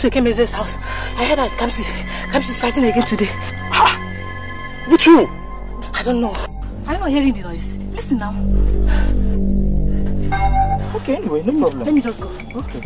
to Ekemeze's house. I heard that Kamsi, Kamsi's fighting again today. Ha! With who? I don't know. I'm not hearing the noise. Listen now. Okay, anyway, no problem. Let me just go. Okay.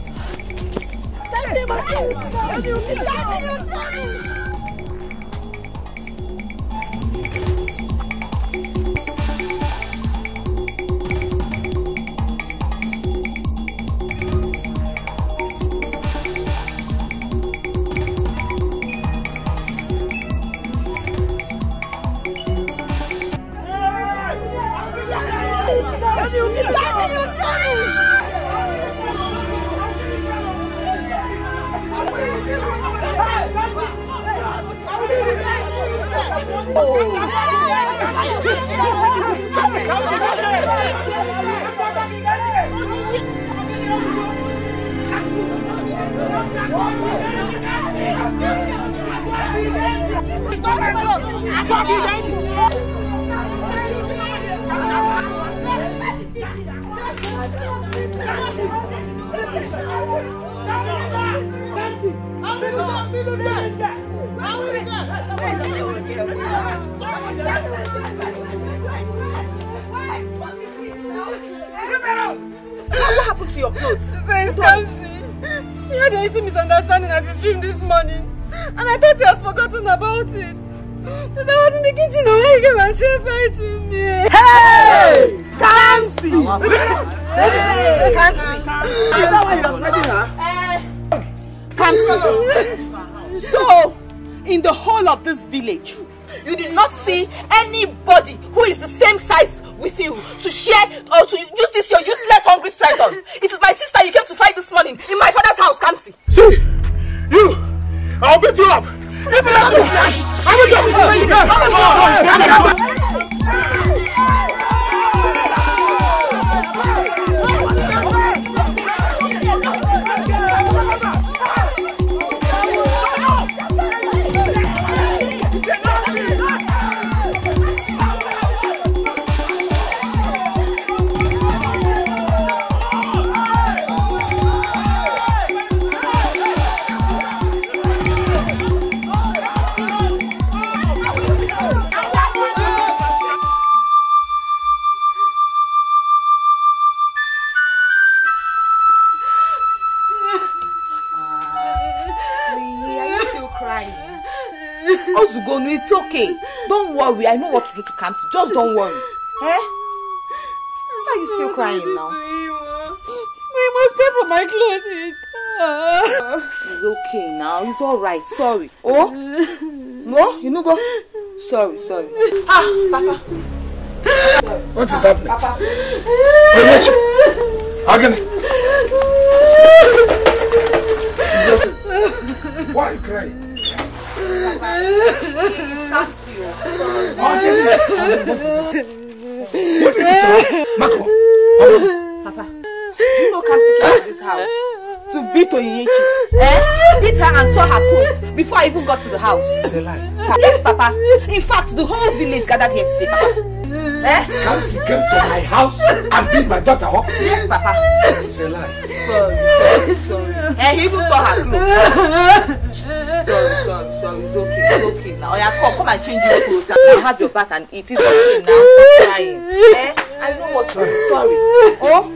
don't worry. Eh? Why are you still crying now? We must pay for my clothing. it's okay now. It's all right. Sorry. gathered here today, Papa? Eh? Can't he come to my house and beat my daughter up? Yes, Papa. It's a lie. Sorry, sorry, sorry. Eh, he even tore her clothes. Sorry, sorry, sorry. It's okay, it's okay now. Oya, oh, come, come and change your clothes and have your bath and eat. It's okay now. Stop crying. Eh? I know what you're sorry. Oh?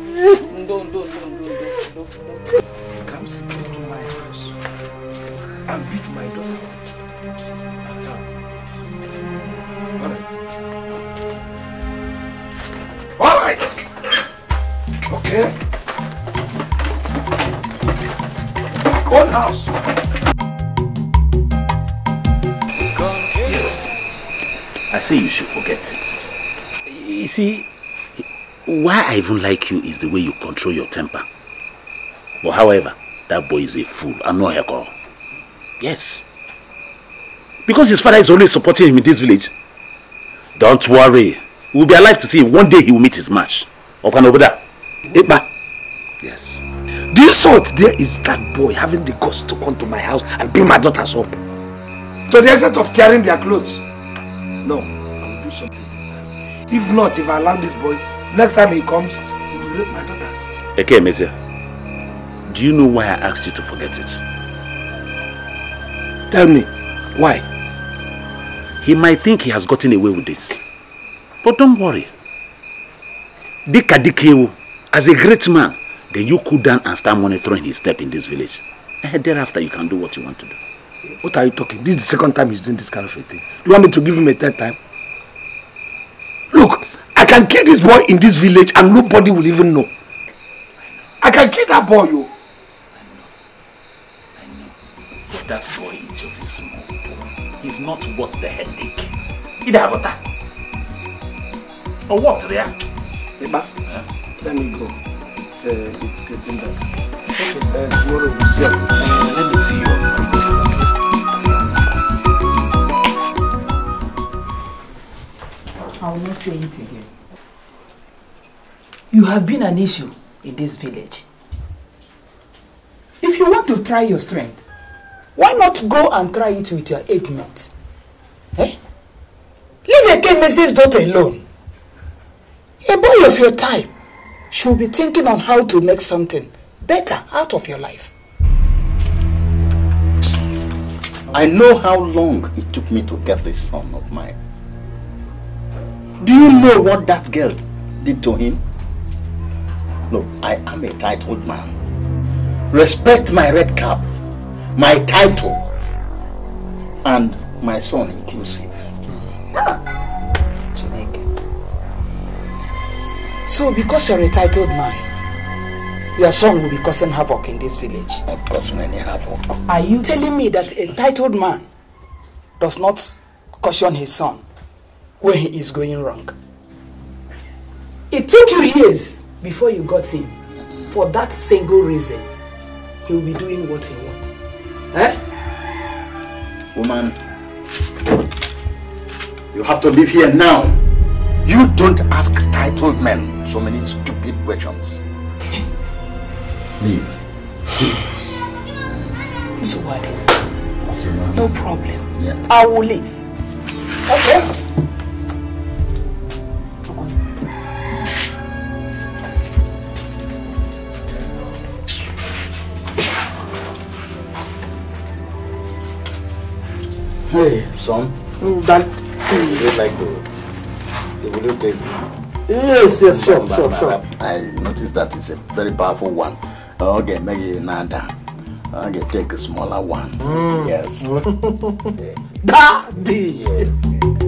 Why I even like you is the way you control your temper. But however, that boy is a fool and no alcohol. Yes. Because his father is only supporting him in this village. Don't worry. We'll be alive to see him. One day he will meet his match. and over there. Epa. Yes. The insult there is that boy having the guts to come to my house and bring my daughters up. To the extent of tearing their clothes. No, I will do something this time. If not, if I allow this boy Next time he comes, he will rape my daughters. Okay, Messiah. Do you know why I asked you to forget it? Tell me, why? He might think he has gotten away with this. But don't worry. Dika Dikewu, as a great man, then you cool down and start monitoring his step in this village. And eh, thereafter, you can do what you want to do. What are you talking? This is the second time he's doing this kind of a thing. You want me to give him a third time? can kill this boy in this village and nobody will even know. I can kill that boy, you. Oh. I know. I know. that boy is just a small boy. He's not worth the headache. He'd have that. Or oh, what, there? Eba, yeah? let me go. It's, uh, it's getting dark. Okay. Uh, tomorrow we'll see you. Uh, let me see you. I will not say it again. You have been an issue in this village. If you want to try your strength, why not go and try it with your eight mates? Eh? Leave a chemist's daughter alone. A boy of your type should be thinking on how to make something better out of your life. I know how long it took me to get this son of mine. Do you know what that girl did to him? No, I am a titled man. Respect my red cap, my title, and my son inclusive. Ah. So because you're a titled man, your son will be causing havoc in this village. Not causing any havoc. Are you telling me that a titled man does not caution his son when he is going wrong? It took you years before you got him for that single reason he will be doing what he wants. Eh? Woman, you have to live here now. You don't ask titled men so many stupid questions. Leave. So what? No problem. Yeah. I will leave. Okay. Hey, son. Mm, that thing. You like the, you video tape? Yes, yes, sure, but, sure, sure. I noticed that it's a very powerful one. Okay, maybe another. Okay, take a smaller one. Mm. Yes. Daddy! Yes.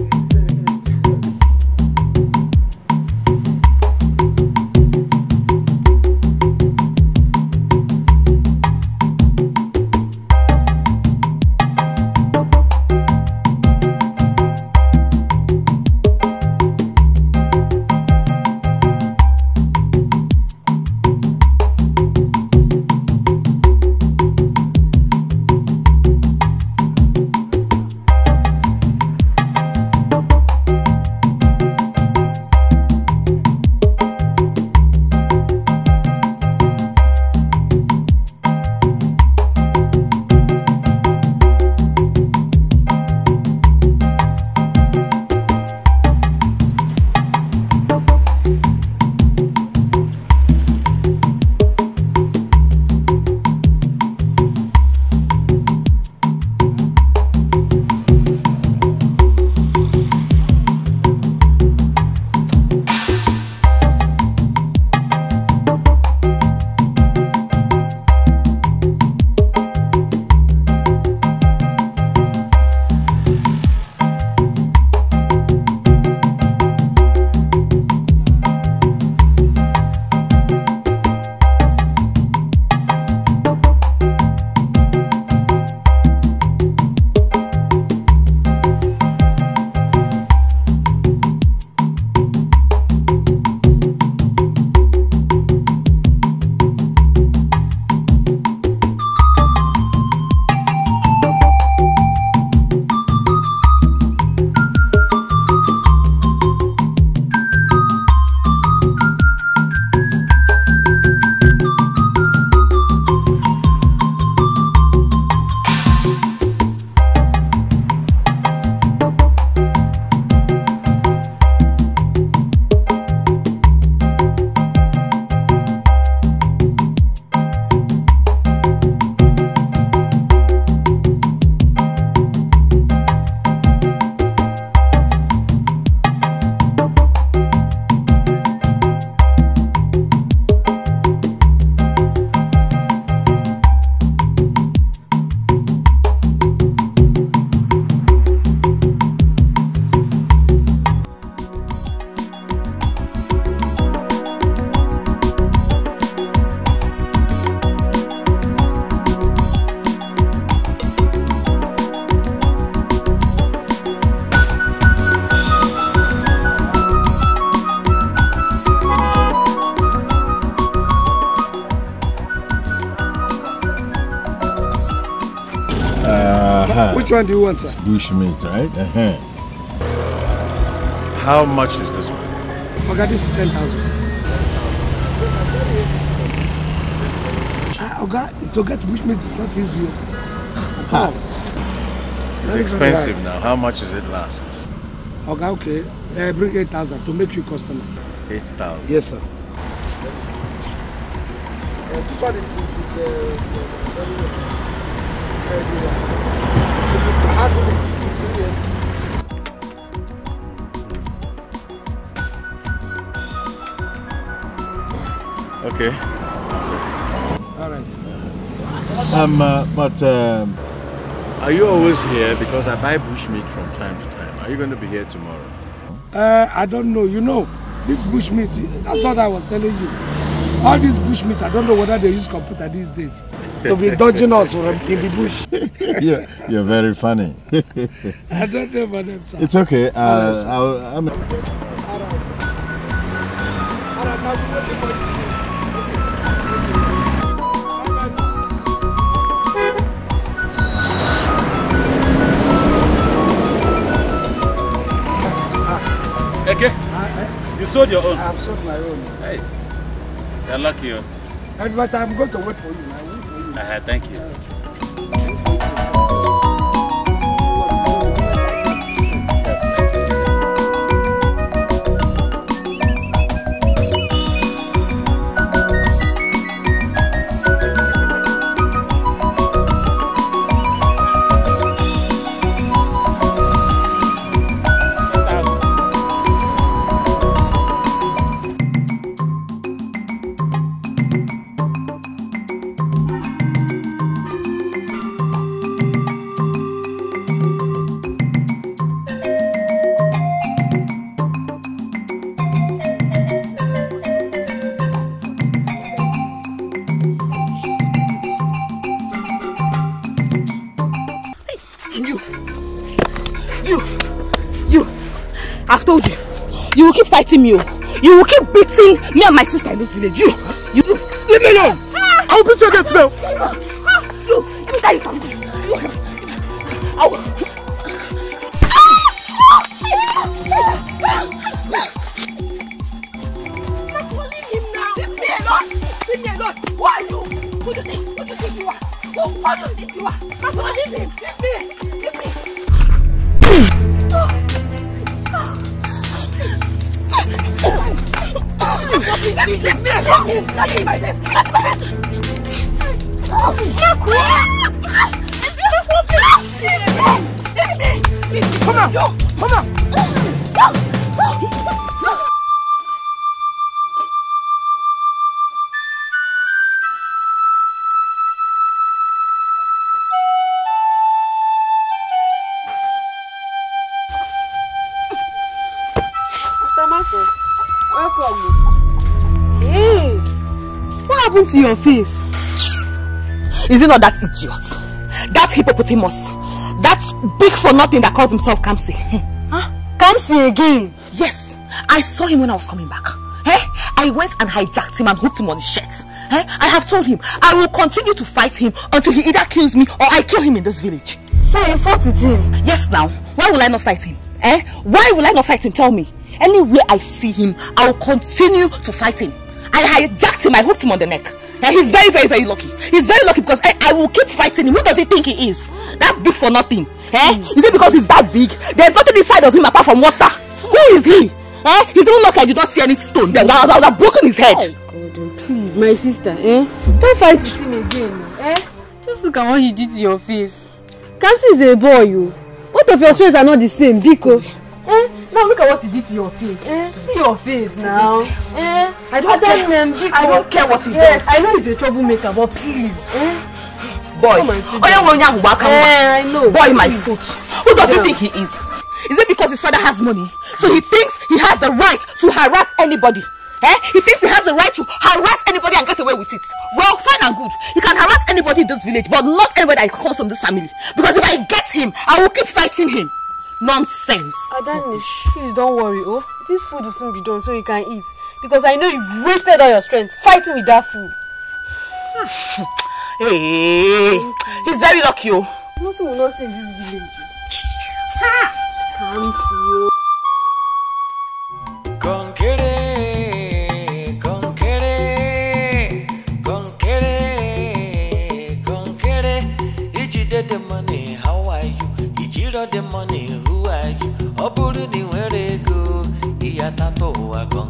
Which one do you want, sir? right? Uh -huh. How much is this one? Okay, this is 10,000. Okay, ah, Oga, to get meat. is not easy at all. It's expensive now. How much does it last? okay. Uh, bring 8,000 to make you customer. 8,000? Yes, sir. Uh, this one is, is, is uh, uh Okay. All right. Um, uh, but um, are you always here? Because I buy bush meat from time to time. Are you going to be here tomorrow? Uh, I don't know. You know, this bush meat. That's what I was telling you. All this bush meat. I don't know whether they use computer these days to be dodging us from in the bush. yeah, you're very funny. I don't know my name, sir. It's okay. Uh, yes, I'll, I'm... Okay. You sold your own? I've sold my own. Hey, you're lucky. Huh? Oh. And, but I'm going to wait for you. Uh, thank you. mi o oh. you will keep beating me and my sister in this village you that idiot. That hippopotamus. That big for nothing that calls himself Kamsi. Hmm. Huh? Kamsi again? Yes. I saw him when I was coming back. Hey, eh? I went and hijacked him and hooked him on his shirt. Hey, eh? I have told him I will continue to fight him until he either kills me or I kill him in this village. So you fought with him? Yes now. Why will I not fight him? Eh? Why will I not fight him? Tell me. Anywhere I see him, I will continue to fight him. I hijacked him, I hooked him on the neck. And he's very, very, very lucky. He's very lucky because I, eh, I will keep fighting him. Who does he think he is? That big for nothing. Eh? Mm. Is it because he's that big? There's nothing inside of him apart from water. Who is he? Eh? He's even lucky I did not see any stone. Then I would have broken his head. Oh, God, oh, please, my sister, eh? Don't fight with him again. Eh? Just look at what he did to your face. Kamsi is a boy, you. Oh. Both of your oh. swears are not the same, Biko. Yeah. Eh? Now look at what he did to your face. Eh? See your face now. Eh? I don't Adam care. Name, I don't care what he yes, does. I know he's a troublemaker, but please. Eh? Boy, Oya Wonya Waka. Eh, I know. Boy, my foot. Who does yeah. he think he is? Is it because his father has money? So he thinks he has the right to harass anybody. Eh? He thinks he has the right to harass anybody and get away with it. Well, fine and good. He can harass anybody in this village, but not anybody that comes from this family. Because if I get him, I will keep fighting him. Nonsense. Adanish, please don't worry, oh. This food will soon be done so you can eat. Because I know you've wasted all your strength fighting with that food. hey, he's very lucky, oh. Nothing will not see in this village. Ha! you? not see, oh. the money ni wẹ́rẹ́ go ìyá ta tó wà gan.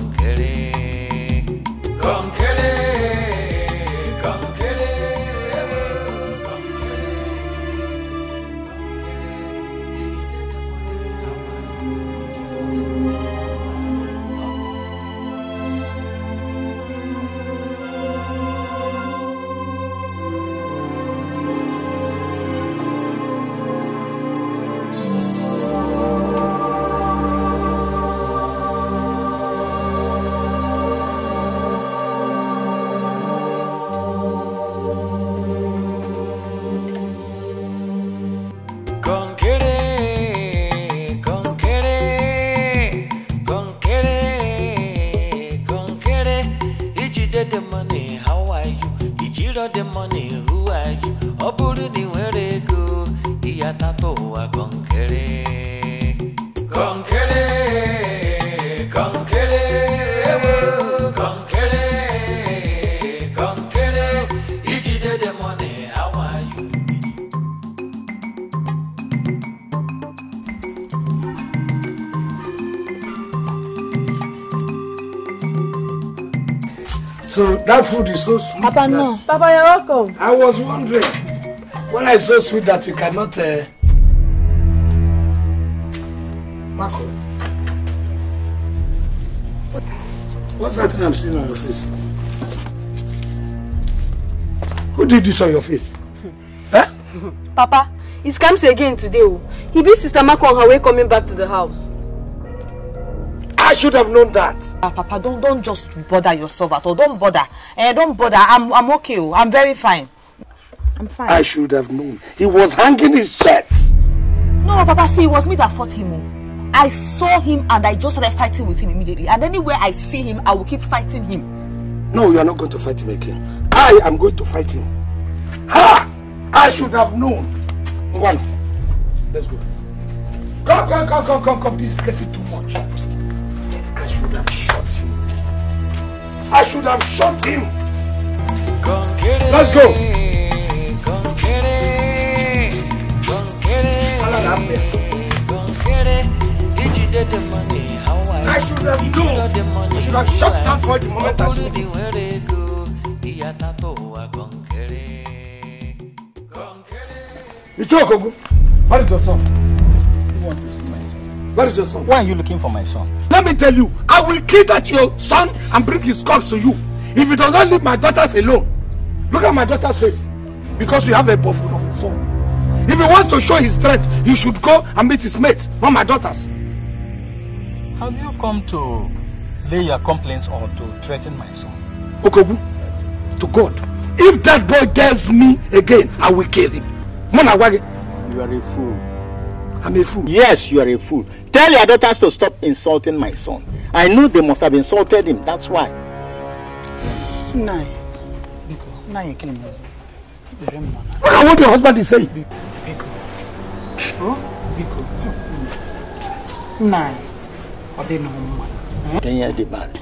got the money, who are you? Ọ put it ị nwere ego, ihe ata ụwa gọ nkere. That food is so sweet. Papa, no. Papa, you're welcome. I was wondering when I so sweet that you cannot. Uh... Marco, what's that thing I'm seeing on your face? Who did this on your face? Hmm. Huh? Papa, it comes again today. Oh. He beat Sister Marco on her way coming back to the house. should have known that. Uh, Papa, don't don't just bother yourself at all. Don't bother. Uh, don't bother. I'm I'm okay. Oh. I'm very fine. I'm fine. I should have known. He was hanging his shirt. No, Papa, see, it was me that fought him. Oh. I saw him and I just started fighting with him immediately. And anywhere I see him, I will keep fighting him. No, you are not going to fight him again. I am going to fight him. Ha! I should have known. One. Let's go. Come, come, come, come, come, come. This is getting too much. should have shot him. I should have shot him. Let's go. I should have known. I should have shot that boy the moment I saw him. Ichokogu, what is your song? Where is your son? Why are you looking for my son? Let me tell you, I will kill that your son and bring his corpse to you. If you does not leave my daughters alone, look at my daughter's face. Because you have a buffoon of his own. If he wants to show his strength, he should go and meet his mate, not my daughters. Have you come to lay your complaints or to threaten my son? Okobu, to God, if that boy dares me again, I will kill him. Monawage. You are a fool. I'm a fool. Yes, you are a fool. Tell your daughters to stop insulting my son. I know they must have insulted him. That's why. Nai. Biko. Nai ekinimazi. Look at what your husband is saying. Biko. Biko. Oh? Biko. Nai. Odenohuma. Kenya the bad.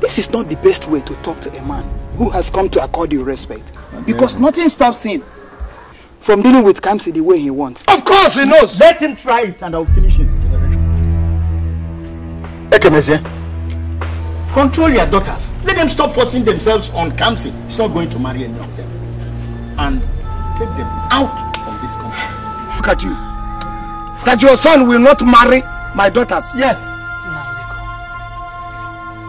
This is not the best way to talk to a man who has come to accord you respect. Because nothing stops him. from dealing with Kamsi the way he wants. Of course he knows. Let him try it and I'll finish his generation. Ekemezie, control your daughters. Let them stop forcing themselves on Kamsi. He's not going to marry any of them. And take them out of this country. Look at you. That your son will not marry my daughters. Yes.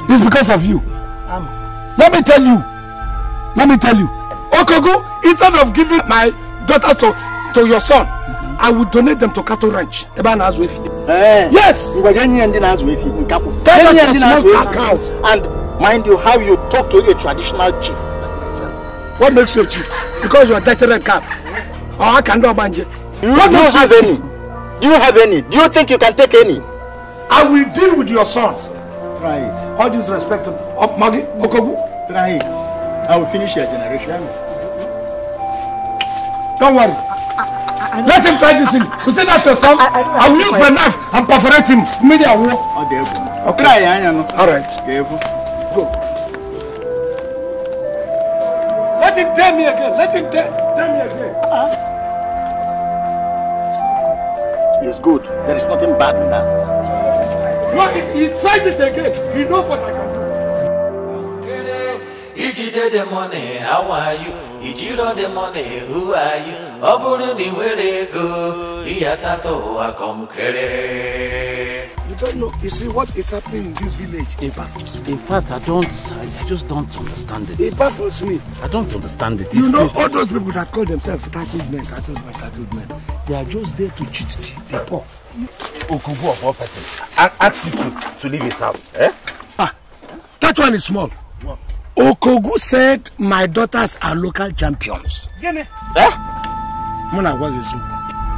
No, It's because of you. Um, Let me tell you. Let me tell you. Okogu, instead of giving my daughters to, to your son, mm -hmm. I will donate them to cattle ranch. Eba na azwefi. Eh. Yes. Ngwajenyi ndi na azwefi nkapo. Tell them to small cow. And mind you, how you talk to a traditional chief. What makes you a chief? Because you are dirty red cap. Or oh, I can do a banje. You what don't have any. Do you have any? Do you think you can take any? I will deal with your son. Try it. All respect of oh, Maggie Okogu. Try it. I will finish your generation. Don't worry. I, I, I Let him try this thing. You say that yourself? I, I, I will use my knife and perforate him. Media war. Okay. okay. All right. Careful. Go. Let him tell me again. Let him tell, tell me again. Uh-huh. good. There is nothing bad in that. No, if he tries it again, he knows what I can do. How are you? Ijiro the money, who are you? Ọ bụrụ na ị nwere ego, ihe atatọ ụwa kọmkere. You don't know. You see what is happening in this village? It baffles me. In fact, I don't. I just don't understand it. It baffles me. I don't understand it. You know, all those people that call themselves cattle men, cattle men, cattle men, they are just there to cheat the poor. Okubu of one person asked you to, to leave his house. Eh? Ah, that one is small. Okogu said my daughters are local champions. Gene. Eh?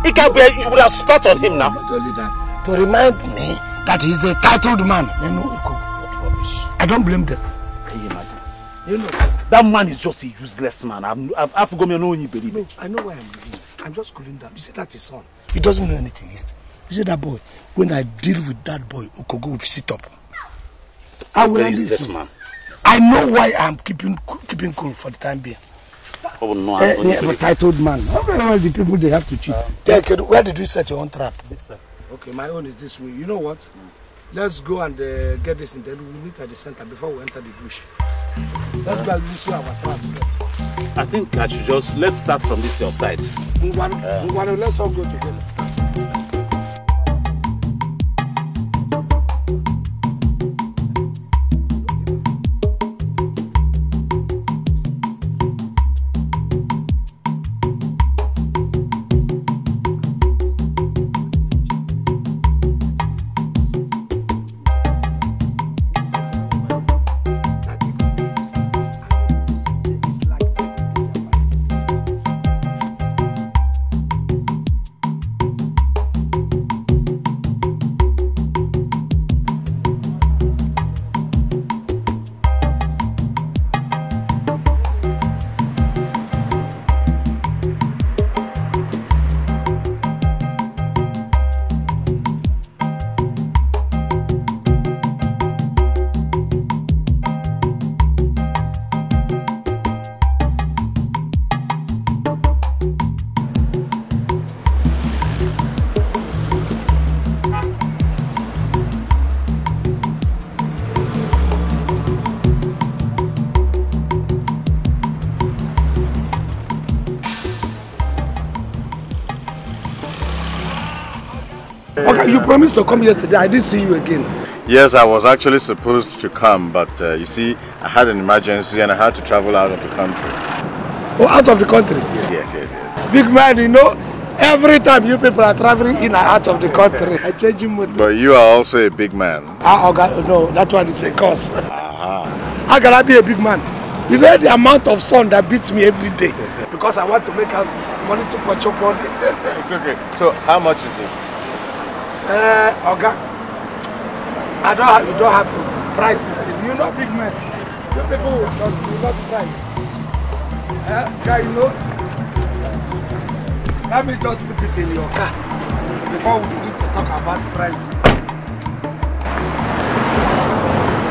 It can be, you would have spat on him now. Not only that, to remind me that he's a titled man. They know What rubbish. I don't blame them. Can you imagine? You know, that man is just a useless man. I've, I've, I've forgotten no one believe I know where I'm living. I'm just cooling down. You see, that his son. He doesn't know anything yet. You see that boy? When I deal with that boy, Okogo will sit up. How will I this man? I know why I'm keeping keeping cool for the time being. Oh, no, I'm uh, eh, yeah, titled man. Otherwise, the people they have to cheat. Um, yeah, okay, where did you set your own trap? This sir. Okay, my own is this way. You know what? Mm. Let's go and uh, get this in there. We'll meet at the center before we enter the bush. Let's go and this way our trap. I think I should just let's start from this your side. Ngwano, uh, Ngwano, let's all go together. promised to come yesterday. I didn't see you again. Yes, I was actually supposed to come, but uh, you see, I had an emergency and I had to travel out of the country. Oh, out of the country? Yes, yes, yes. Big man, you know, every time you people are traveling in and out of the country, I change you But you are also a big man. Ah, oh no, that one is a curse. Uh -huh. How can I be a big man? You know the amount of sun that beats me every day because I want to make out money to for your body. it's okay. So how much is it? Uh, eh, Oga, I don't have, you don't have to price this thing. You're not big man. You people will not, not price. Uh, guy, you know, let me just put it in your car before we begin to talk about pricing.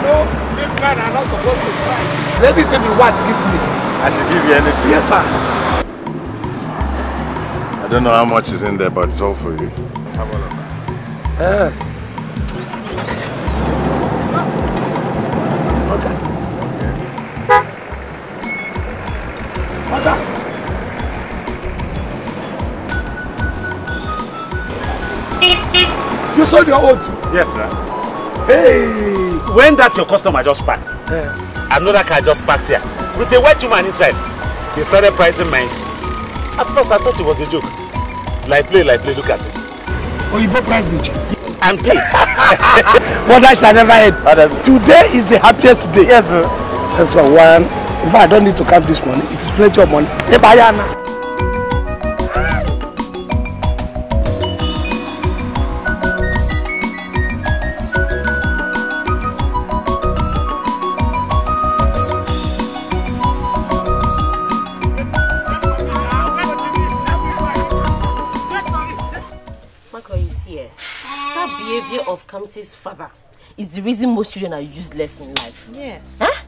No, big men are not supposed to price. Anything you want, give me. I should give you anything. Yes, sir. I don't know how much is in there, but it's all for you. Have a look ẹ. ọ̀gá ọ̀gá. You sold your old? Yes, sir. Hey! When that your customer just parked, yeah. another car just parked here with a white woman inside. They started pricing mine. At first, I thought it was a joke. Like play, like play, look at it. Oyibo president. I'm paid. What I shall never end. Today is the happiest day. Yes, sir. That's what one. If I don't need to count this money. It is plenty of money. Hey, Bayana. Comes Kamsi's father is the reason most children are useless in life. Yes. Huh?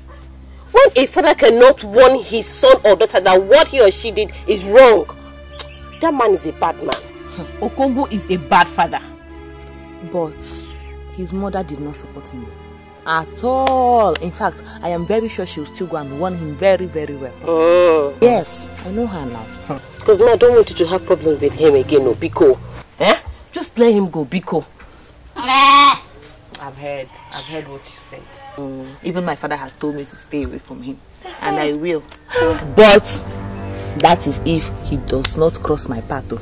When a father cannot warn his son or daughter that what he or she did is wrong, that man is a bad man. Okogo is a bad father. But his mother did not support him at all. In fact, I am very sure she will still go and warn him very, very well. Mm. Yes, I know her now. Because me, I don't want you to have problems with him again, Obiko. Eh? Just let him go, Biko. I've heard. I've heard what you said. Mm. Even my father has told me to stay away from him. And I will. But that is if he does not cross my path oh,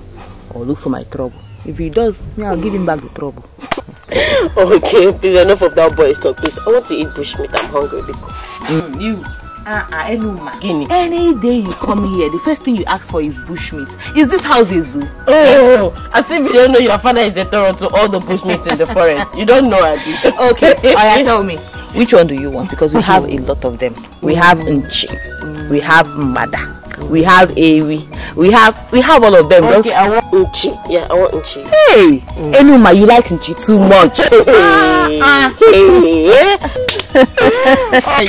or look for my trouble. If he does, yeah, I'll give him back the trouble. okay, please, enough of that boys talk, please. I want to eat bushmeat. I'm hungry. Because... Mm, you. Ah, ah, Enuma. Guinea. Any day you come here, the first thing you ask for is bushmeat. Is this house a zoo? Oh, oh, oh. as if you don't know your father is a terror to all the bushmeats in the forest. You don't know, Adi. Okay, Aya, tell me. Which one do you want? Because we have a lot of them. We have Nchi. We have Mada. We have Ewi. We have we have all of them. Okay, I want Nchi. Yeah, I want Nchi. Hey, mm. Enuma, you like Nchi too much. hey. Ah, ah. hey.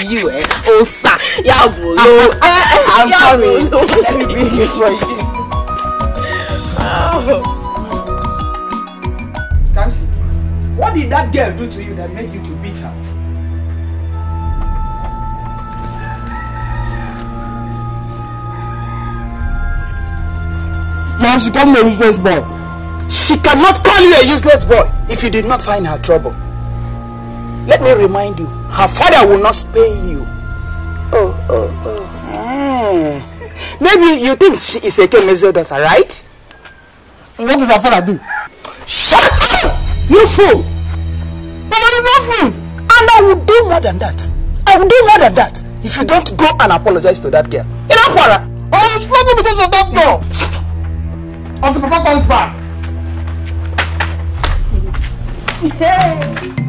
you eh? Osa! Yabolo! Ah, I'm coming! Let me bring it for you. Oh. Kamsi, what did that girl do to you that made you to beat her? Now she called me a useless boy. She cannot call you a useless boy if you did not find her trouble. Let me remind you, her father will not spare you. Oh, oh, oh. Eh. Maybe you think she is a Kemezo daughter, right? What did her father do? Shut up! You fool! But I love me! And I will do more than that. I will do more than that if you don't go and apologize to that girl. In Akwara! I will slap you oh, because of that girl! Shut up! Until Papa comes back! Hey!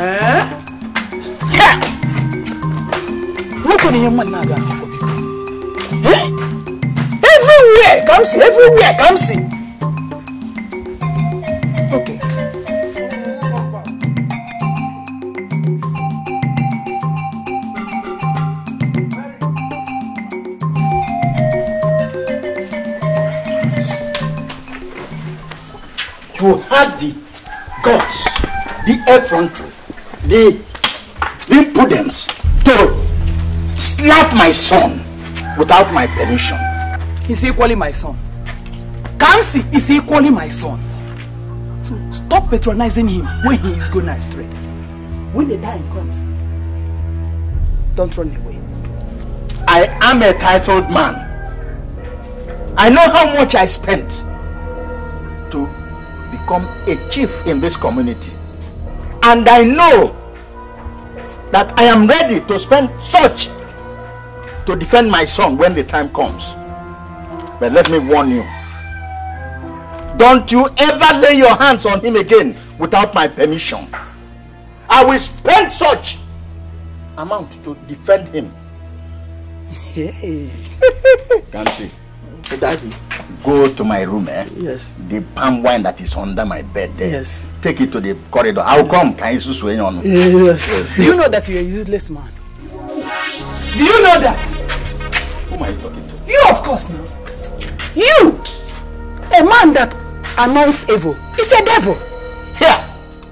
Eh? Look at your man now for people. Eh? Everywhere, come see, everywhere, come see. Okay. You had the guts, the effrontery the, impudence to slap my son without my permission. He's equally my son. Kamsi is equally my son. So stop patronizing him when he is going astray. When the time comes, don't run away. I am a titled man. I know how much I spent to become a chief in this community. And I know that I am ready to spend such to defend my son when the time comes. But let me warn you. Don't you ever lay your hands on him again without my permission. I will spend such amount to defend him. Hey. Can't see. Daddy. Go to my room, eh? Yes. The palm wine that is under my bed there. Eh? Yes. Take it to the corridor. I'll come. Can you swing on? Yes. Do you know that you're a useless man? Do you know that? Who am I talking to? You, of course, now. You! A man that annoys evil. He's a devil. Here!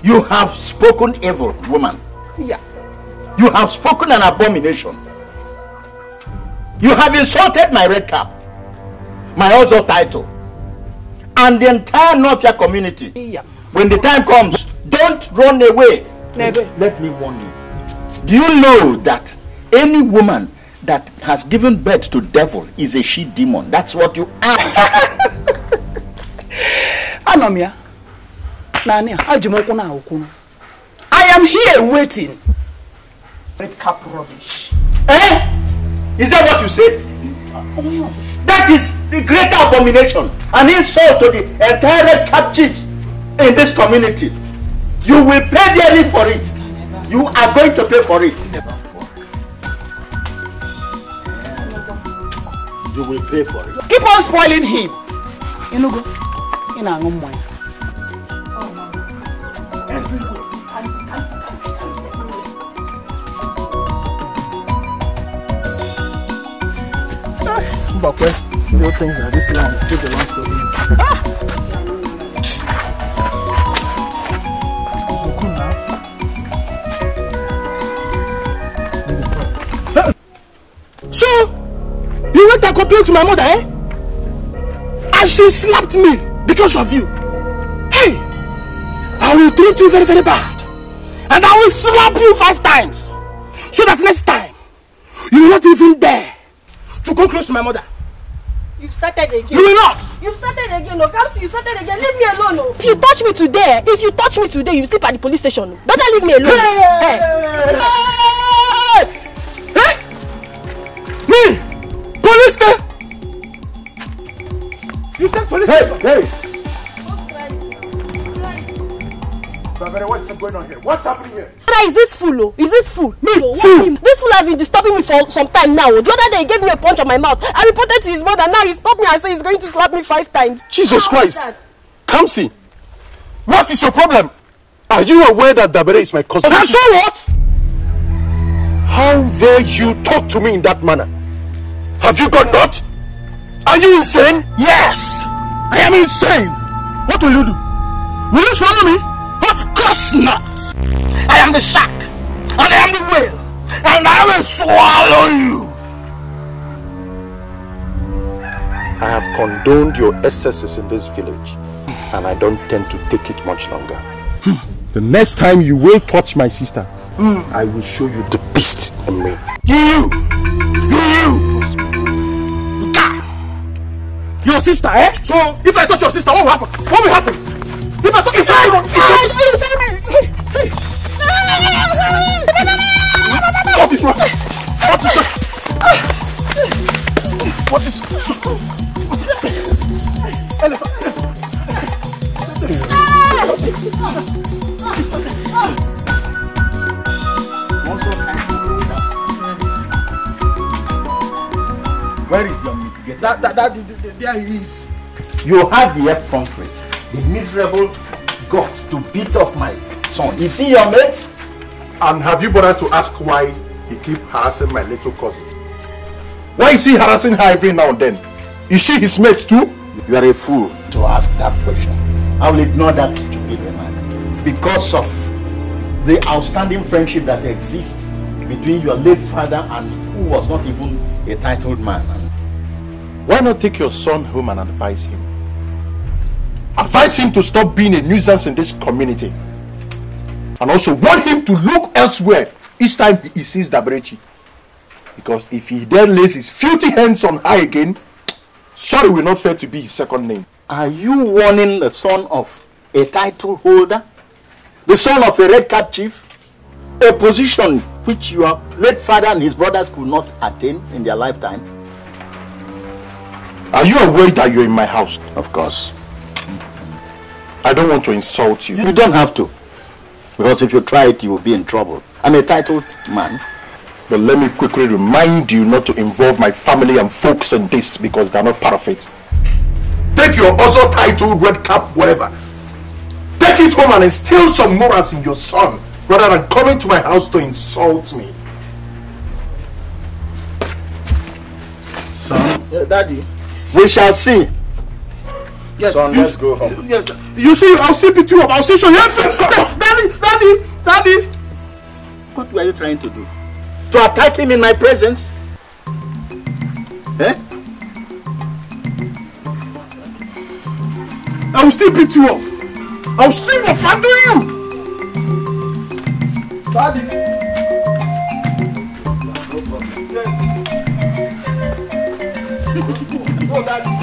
You have spoken evil, woman. Yeah. You have spoken an abomination. You have insulted my red cap my also title, and the entire Northia community. Yeah. When the time comes, don't run away. Never. Let me warn you. Do you know that any woman that has given birth to devil is a she demon? That's what you are. Anomia, Nani, Ajimokuna Okuna. I am here waiting. Red cap rubbish. Eh? Is that what you said? Oh, that is the greater abomination, an insult to the entire captives in this community. You will pay dearly for it. You are going to pay for it. You will pay for it. Keep on spoiling him. Inugo, inaangu mwanya. Oh still thinks that this land still him. Ah! So, you went and complained to my mother, eh? And she slapped me because of you. Hey, I will treat you very, very bad. And I will slap you five times. So that next time, you will not even dare to go close to my mother. You've started again. You will not. You've started again, no. Kamsi, you started again. Leave me alone, no. If you touch me today, if you touch me today, you sleep at the police station. Better leave me alone. Hey. Hey. Hey. Me? Police station? You said police hey, station? Hey. Bavere, what's going on here? What's happening here? Brother, is this fool? Oh? Is this fool? Me? This fool has been disturbing me for some time now. Oh. The other day he gave me a punch on my mouth. I reported to his mother. Now he stopped me and said he's going to slap me five times. Jesus How Christ! Come see. What is your problem? Are you aware that Dabere is my cousin? And so what? How dare you talk to me in that manner? Have you got not? Are you insane? Yes! I am insane! What will you do? Will you swallow me? Of course not. I am the shark, and I am the whale, and I will swallow you. I have condoned your excesses in this village, and I don't tend to take it much longer. Hmm. The next time you will touch my sister, mm. I will show you the beast in me. You! You! You! You! Your sister, eh? So, if I touch your sister, what will happen? What will happen? Viva, toca essa arma! What is wrong? What is wrong? What is... What is... Where is your mitigator? That, that, that, there he is. You have the F country. The miserable got to beat up my son. Is he your mate? And have you bothered to ask why he keep harassing my little cousin? Why is he harassing her every now and then? Is she his mate too? You are a fool to ask that question. I will ignore that stupid remark. Because of the outstanding friendship that exists between your late father and who was not even a titled man. Why not take your son home and advise him? Advise him to stop being a nuisance in this community. And also warn him to look elsewhere each time he sees Dabrechi. Because if he then lays his filthy hands on her again, sorry will not fail to be his second name. Are you warning the son of a title holder? The son of a red cap chief? A position which your late father and his brothers could not attain in their lifetime? Are you aware that you're in my house? Of course. I don't want to insult you. You don't have to. Because if you try it, you will be in trouble. I'm a titled man. But let me quickly remind you not to involve my family and folks in this because they're not part of it. Take your also titled red cap, whatever. Take it home and instill some morals in your son rather than coming to my house to insult me. Son? Yeah, uh, daddy. We shall see. Yes. Son, you, let's go home. Yes. You see, I'll still beat you up. I'll still show you. daddy, daddy, daddy. What were you trying to do? To attack him in my presence? Eh? I will still beat you up. I will still offend you. Daddy. No problem. Yes. no, daddy.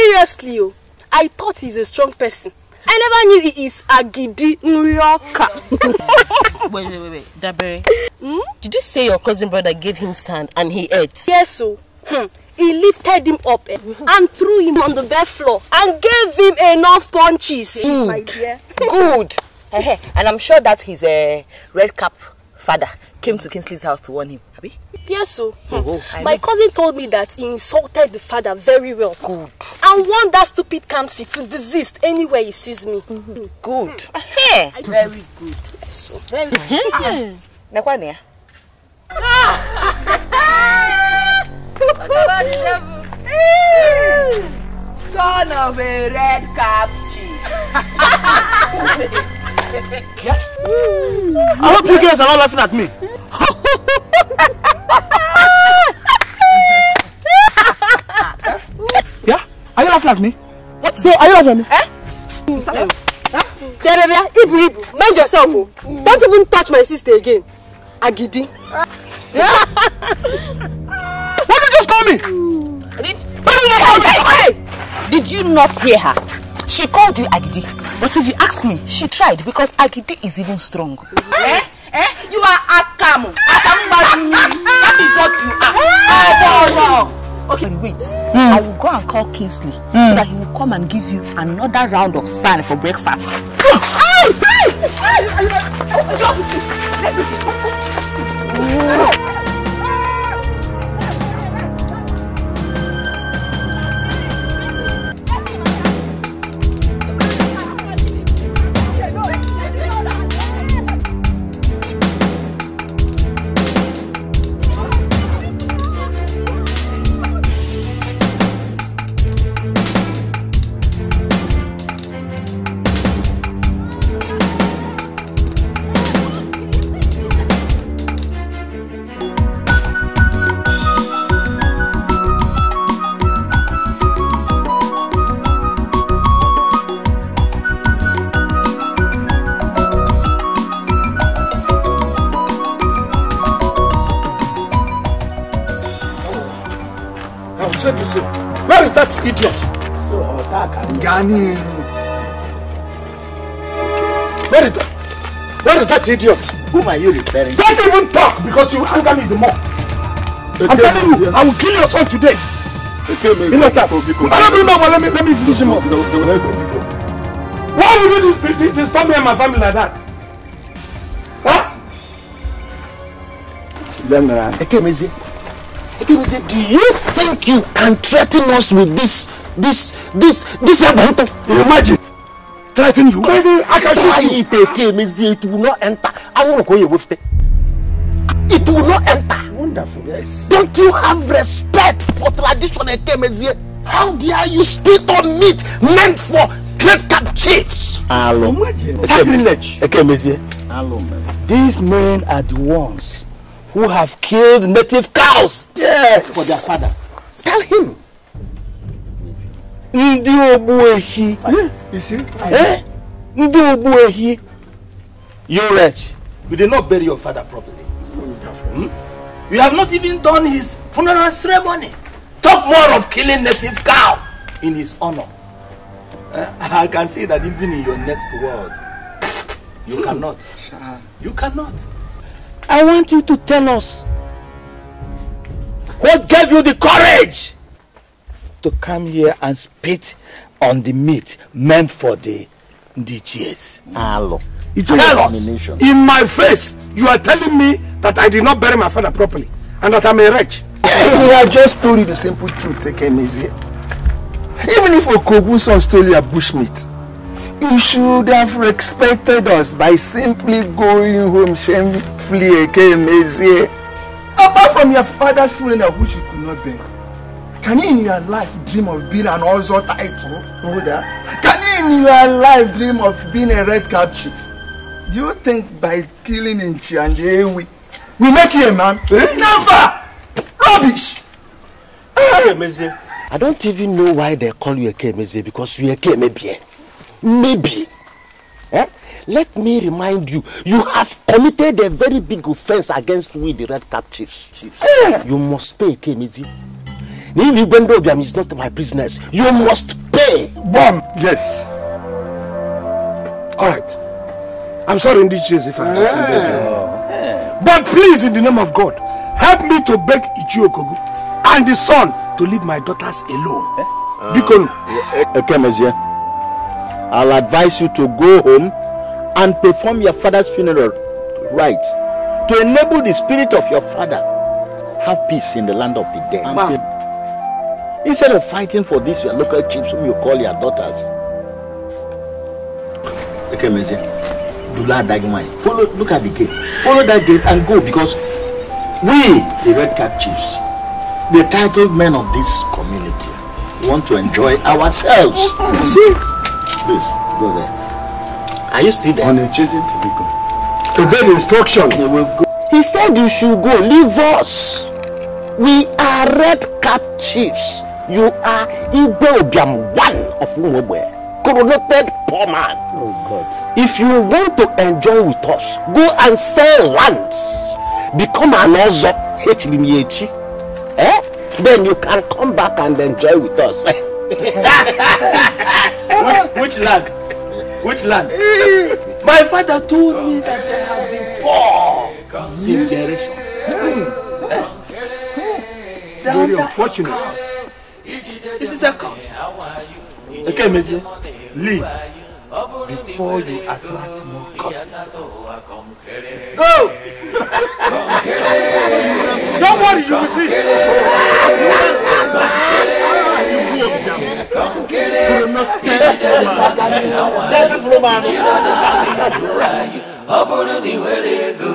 Seriously, oh, I thought he's a strong person. I never knew he is Agidi Nrioka. wait, wait, wait, wait. Dabere, hmm? did you say your cousin brother gave him sand and he ate? Yes, so. Oh. Hmm. He lifted him up eh, and threw him on the bed floor and gave him enough punches. Good. My dear. Good. and I'm sure that his uh, red cap father came to Kingsley's house to warn him. Yes, so. Oh, oh, My cousin told me that he insulted the father very well. Good. And want that stupid Kamsi to desist anywhere he sees me. Mm-hmm. Good. Hmm. very good. Yes, so. Very good. Nakwane. Ah! Son of a red cap chief. Yeah? I hope you guys are not laughing at me. yeah? Are you laughing at me? What? So, are you laughing at me? Eh? Yeah? Huh? Ibu, Ibu, mind yourself. Mm. Don't even touch my sister again. Agidi. Yeah? what did you just call me? Did, hey, hey, hey! did you not hear her? She called you Agidi. But if you ask me, she tried because Agidi is even strong. Eh? Eh? You are Akamu. Akamu Badumiri. That is what you are. Aboro. Okay, wait. Mm. I will go and call Kingsley mm. so that he will come and give you another round of sand for breakfast. Hey! Hey! Hey! Let me see. Let me see. Daniel. Where is that? Where is that idiot? Whom are you referring to? Don't even talk because you anger me the more. I'm telling you, I will kill your son today. You know that? let me, let me finish him up. Why would you disturb me and my family like that? Huh? Ekemezi, Ekemezi, do you think you can threaten us with this, this This, this Ebanto. Imagine. Threaten you? I can shoot you. it, it will not enter. I want to go with it. It will not enter. Wonderful, yes. Don't you have respect for traditional Ekemezie? How dare you spit on meat meant for great cap chiefs? Alum. Sacrilege. Hello, Alum. These men are the ones who have killed native cows. Yes. For their fathers. Tell him. ndị ogbu ehi eh? ndị ogbu ehi you wretch you did not bury your father properly hmm? you have not even done his funeral ceremony talk more of killing native cow in his honor uh, i can see that even in your next world you hmm. cannot you cannot i want you to tell us what gave you the courage to come here and spit on the meat meant for the DGS. It's Tell us, in my face, you are telling me that I did not bury my father properly and that I'm a wretch. we have just told you the simple truth, Easy. Even if Okoguson stole your bushmeat, you should have respected us by simply going home shamefully, Ekemezie. Apart from your father's funeral, which you could not bear. Can you in your life dream of being an Ozo title holder? Can you in your life dream of being a red cap chief? Do you think by killing Nchi and Ewi, we make you a man? Eh? Never! Rubbish! Kemeze, I don't even know why they call you a Kemeze because you a Kemebie. Eh? Maybe. Eh? Let me remind you, you have committed a very big offense against we, the red cap chiefs. Chief. Eh. You must pay Kemeze. If is not my business, you must pay. Bomb. Yes. All right. I'm sorry, Ndichis, if I yeah. offended you. Yeah. But please, in the name of God, help me to beg Ichiokogu and the son to leave my daughters alone. Uh, because eh, eh, okay, Major. I'll advise you to go home and perform your father's funeral right to enable the spirit of your father have peace in the land of the dead. Instead of fighting for this, your local chiefs whom you call your daughters. Okay, Mese. Dula Dagmai. Follow, look at the gate. Follow that gate and go because we, the red cap chiefs, the titled men of this community, want to enjoy ourselves. You see? Please, go there. Are you still there? On a chasing to go. Obey the instruction. They will go. He said you should go. Leave us. We are red cap chiefs. You are Igbe Obiam, one of Umwebwe, coronated poor man. Oh God. If you want to enjoy with us, go and sell lands. Become an Ozo, e e. eh? Then you can come back and enjoy with us. which, which land? Which land? My father told me that they have been poor since generations. Mm. Mm. Eh? Very unfortunate. It is a curse. Okay, Messi, leave before you attract more curses to us. Go! Don't worry, you will see. ọ bụrụ na ị nwere ego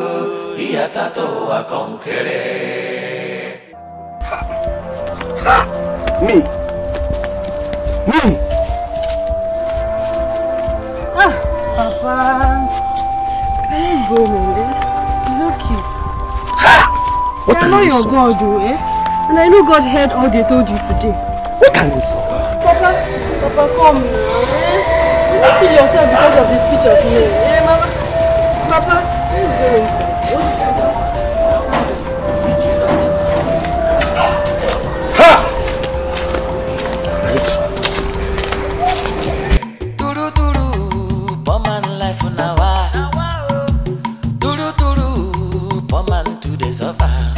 ihe atata ụwa kọnkere me Me! Ah, Papa. Let's go home, eh? It's okay. What I know you your God, do, eh? And I know God heard all they told you today. What can you do? Papa, Papa, come now, eh? You don't kill yourself because of this picture me, eh, Mama? Papa, please go home. survive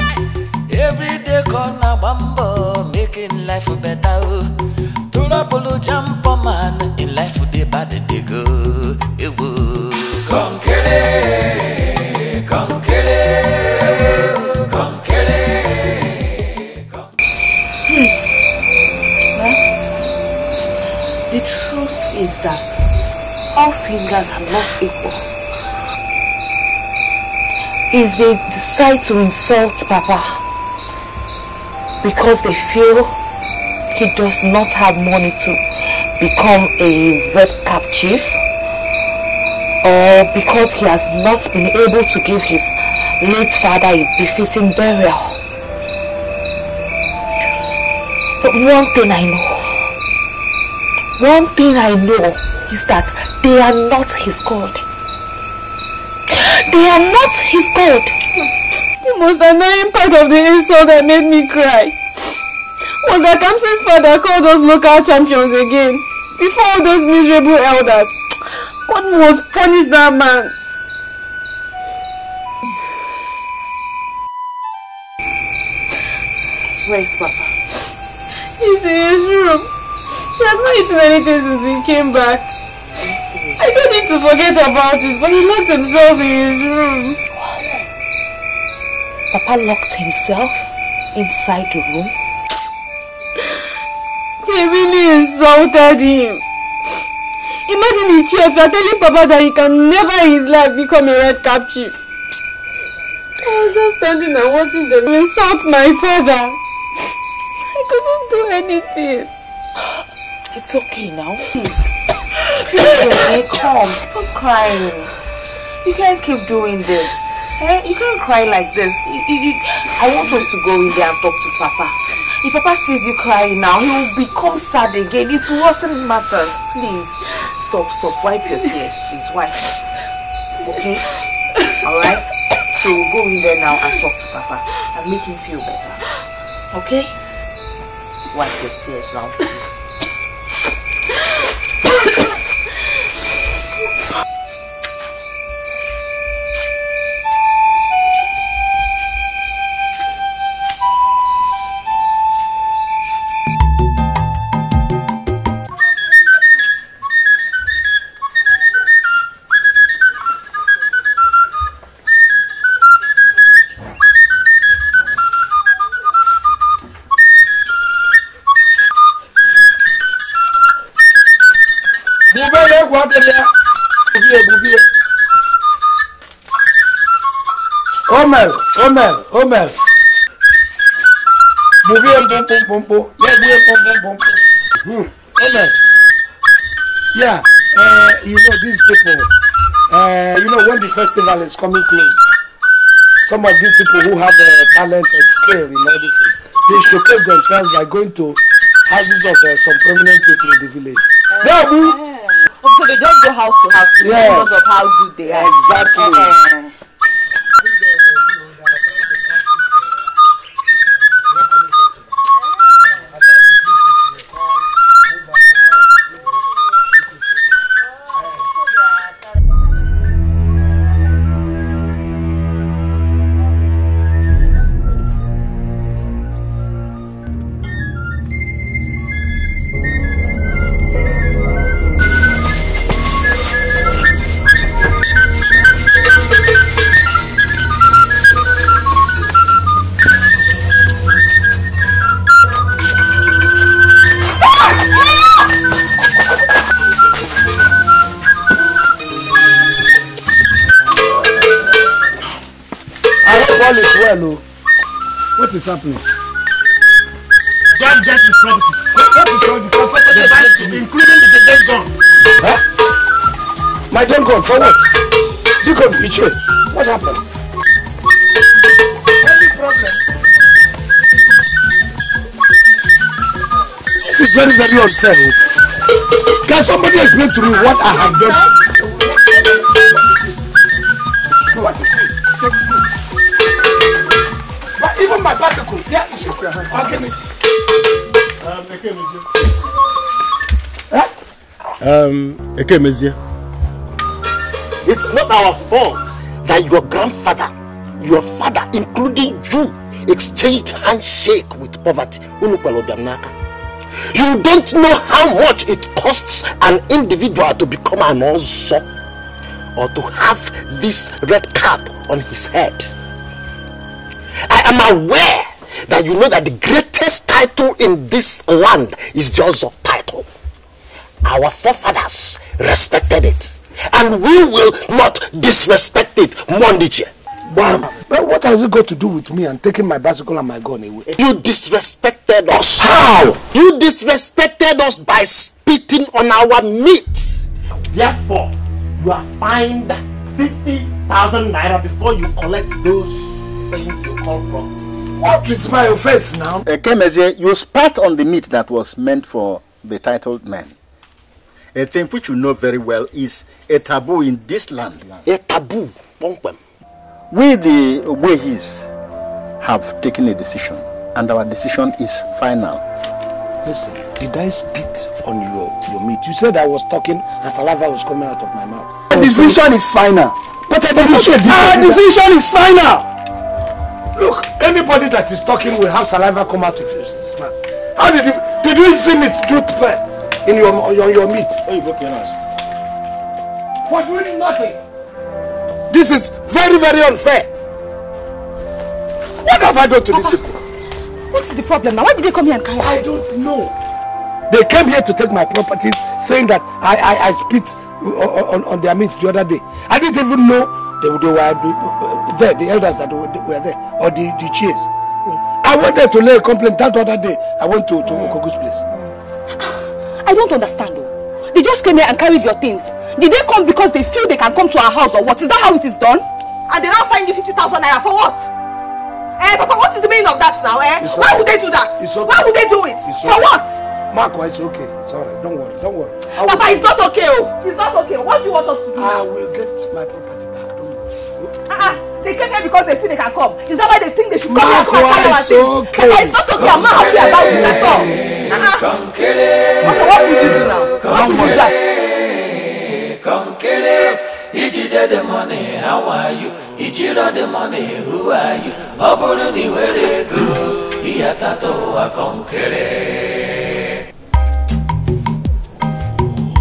every day call na making life better o torapolo jampo man in life they bad they go come kọ̀ǹkéré come kọ̀ǹkéré. The truth is that all fingers are not equal if they decide to insult Papa because they feel he does not have money to become a red cap chief or because he has not been able to give his late father a befitting burial. But one thing I know, one thing I know is that they are not his God. They are not his God. The most annoying part of the insult that made me cry was that Kamsa's father called those local champions again before all those miserable elders. God must punish that man. Where is Papa? He's in his room. He has not eaten anything since we came back. I don't to forget about it, but he locked himself in his room. What? Papa locked himself inside the room? They really insulted him. Imagine the chief are telling Papa that he can never in his life become a red cap chief. I was just standing and watching them insult my father. I couldn't do anything. It's okay now. Please. Hey, come, stop crying. You can't keep doing this. Hey, you can't cry like this. I want us to go in there and talk to Papa. If Papa sees you crying now, he will become sad again. It wasn't matters. Please, stop, stop. Wipe your tears, please. Wipe. Okay? Alright? So we'll go in there now and talk to Papa and make him feel better. Okay? Wipe your tears now, please. Omel, Omel. Mouviye mpon mpon mpon mpon. Ye mouviye mpon mpon mpon mpon. Omel. Yeah, uh, you know these people. Uh, you know when the festival is coming close, some of these people who have uh, talent and skill in everything, they showcase themselves by going to houses of uh, some prominent people in the village. Uh, yeah, yeah. Oh, so they don't go house to house yes. because of how good they are. Exactly. Uh, happening? That death is property. What is wrong? The comfortable device, including the dead gun. Huh? My dead gun, for what? You got betrayed. What happened? Any problem? This is very, very unfair. Can somebody explain to me what I have done? Um, Ekemezie. It's not our fault that your grandfather, your father, including you, exchanged handshake with poverty. You don't know how much it costs an individual to become an ozo or to have this red cap on his head. I am aware that you know that the greatest title in this land is the ozo respected it. And we will not disrespect it Mondiche. Bam. But what has it got to do with me and taking my bicycle and my gun away? You disrespected us. How? You disrespected us by spitting on our meat. Therefore, you are fined 50,000 naira before you collect those things you call from. What is my offense now? Uh, eh, Kemezie, you spat on the meat that was meant for the titled man a thing which you know very well is a taboo in this land. A taboo. We, the Ogbehis, have taken a decision, and our decision is final. Listen, did I spit on your, your meat? You said I was talking and saliva was coming out of my mouth. The decision is final. But I did not say Our decision is final. Look, anybody that is talking will have saliva come out of his mouth. How did you, did you see me do that? Eh? in your on your, oh, your meat. Hey, broken us. For doing nothing. This is very, very unfair. What have I done to these people? What is the problem now? Why did they come here and carry I don't know. They came here to take my properties, saying that I, I, I spit on, on, their meat the other day. I didn't even know they, they were uh, there, the elders that were there, or the, the chiefs. I wanted to lay a complaint that other day. I went to, to Okogu's place. I don't understand. Though. They just came here and carried your things. Did they come because they feel they can come to our house or what? Is that how it is done? And they now find you 50,000 naira for what? Eh, Papa, what is the meaning of that now, eh? It's Why okay. would they do that? It's okay. Why would they do it? It's okay. For what? Marco, it's okay. It's alright. Don't worry. Don't worry. Papa, it's not okay. Oh. It's not okay. What do you want us to do? I will get my property back. Don't worry. Uh -uh. They came here because they feel they can come. Is that why they think they should come Marco, here and come and carry our things? Okay. Papa, it's not okay. I'm not happy about it at all kọ̀ǹkéré kọ̀ǹkéré kọ̀ǹkéré ijide the money how are you ijiro the money who are you ọ bụrụ na ị nwere ego ịyatata ụwa kọ̀ǹkéré.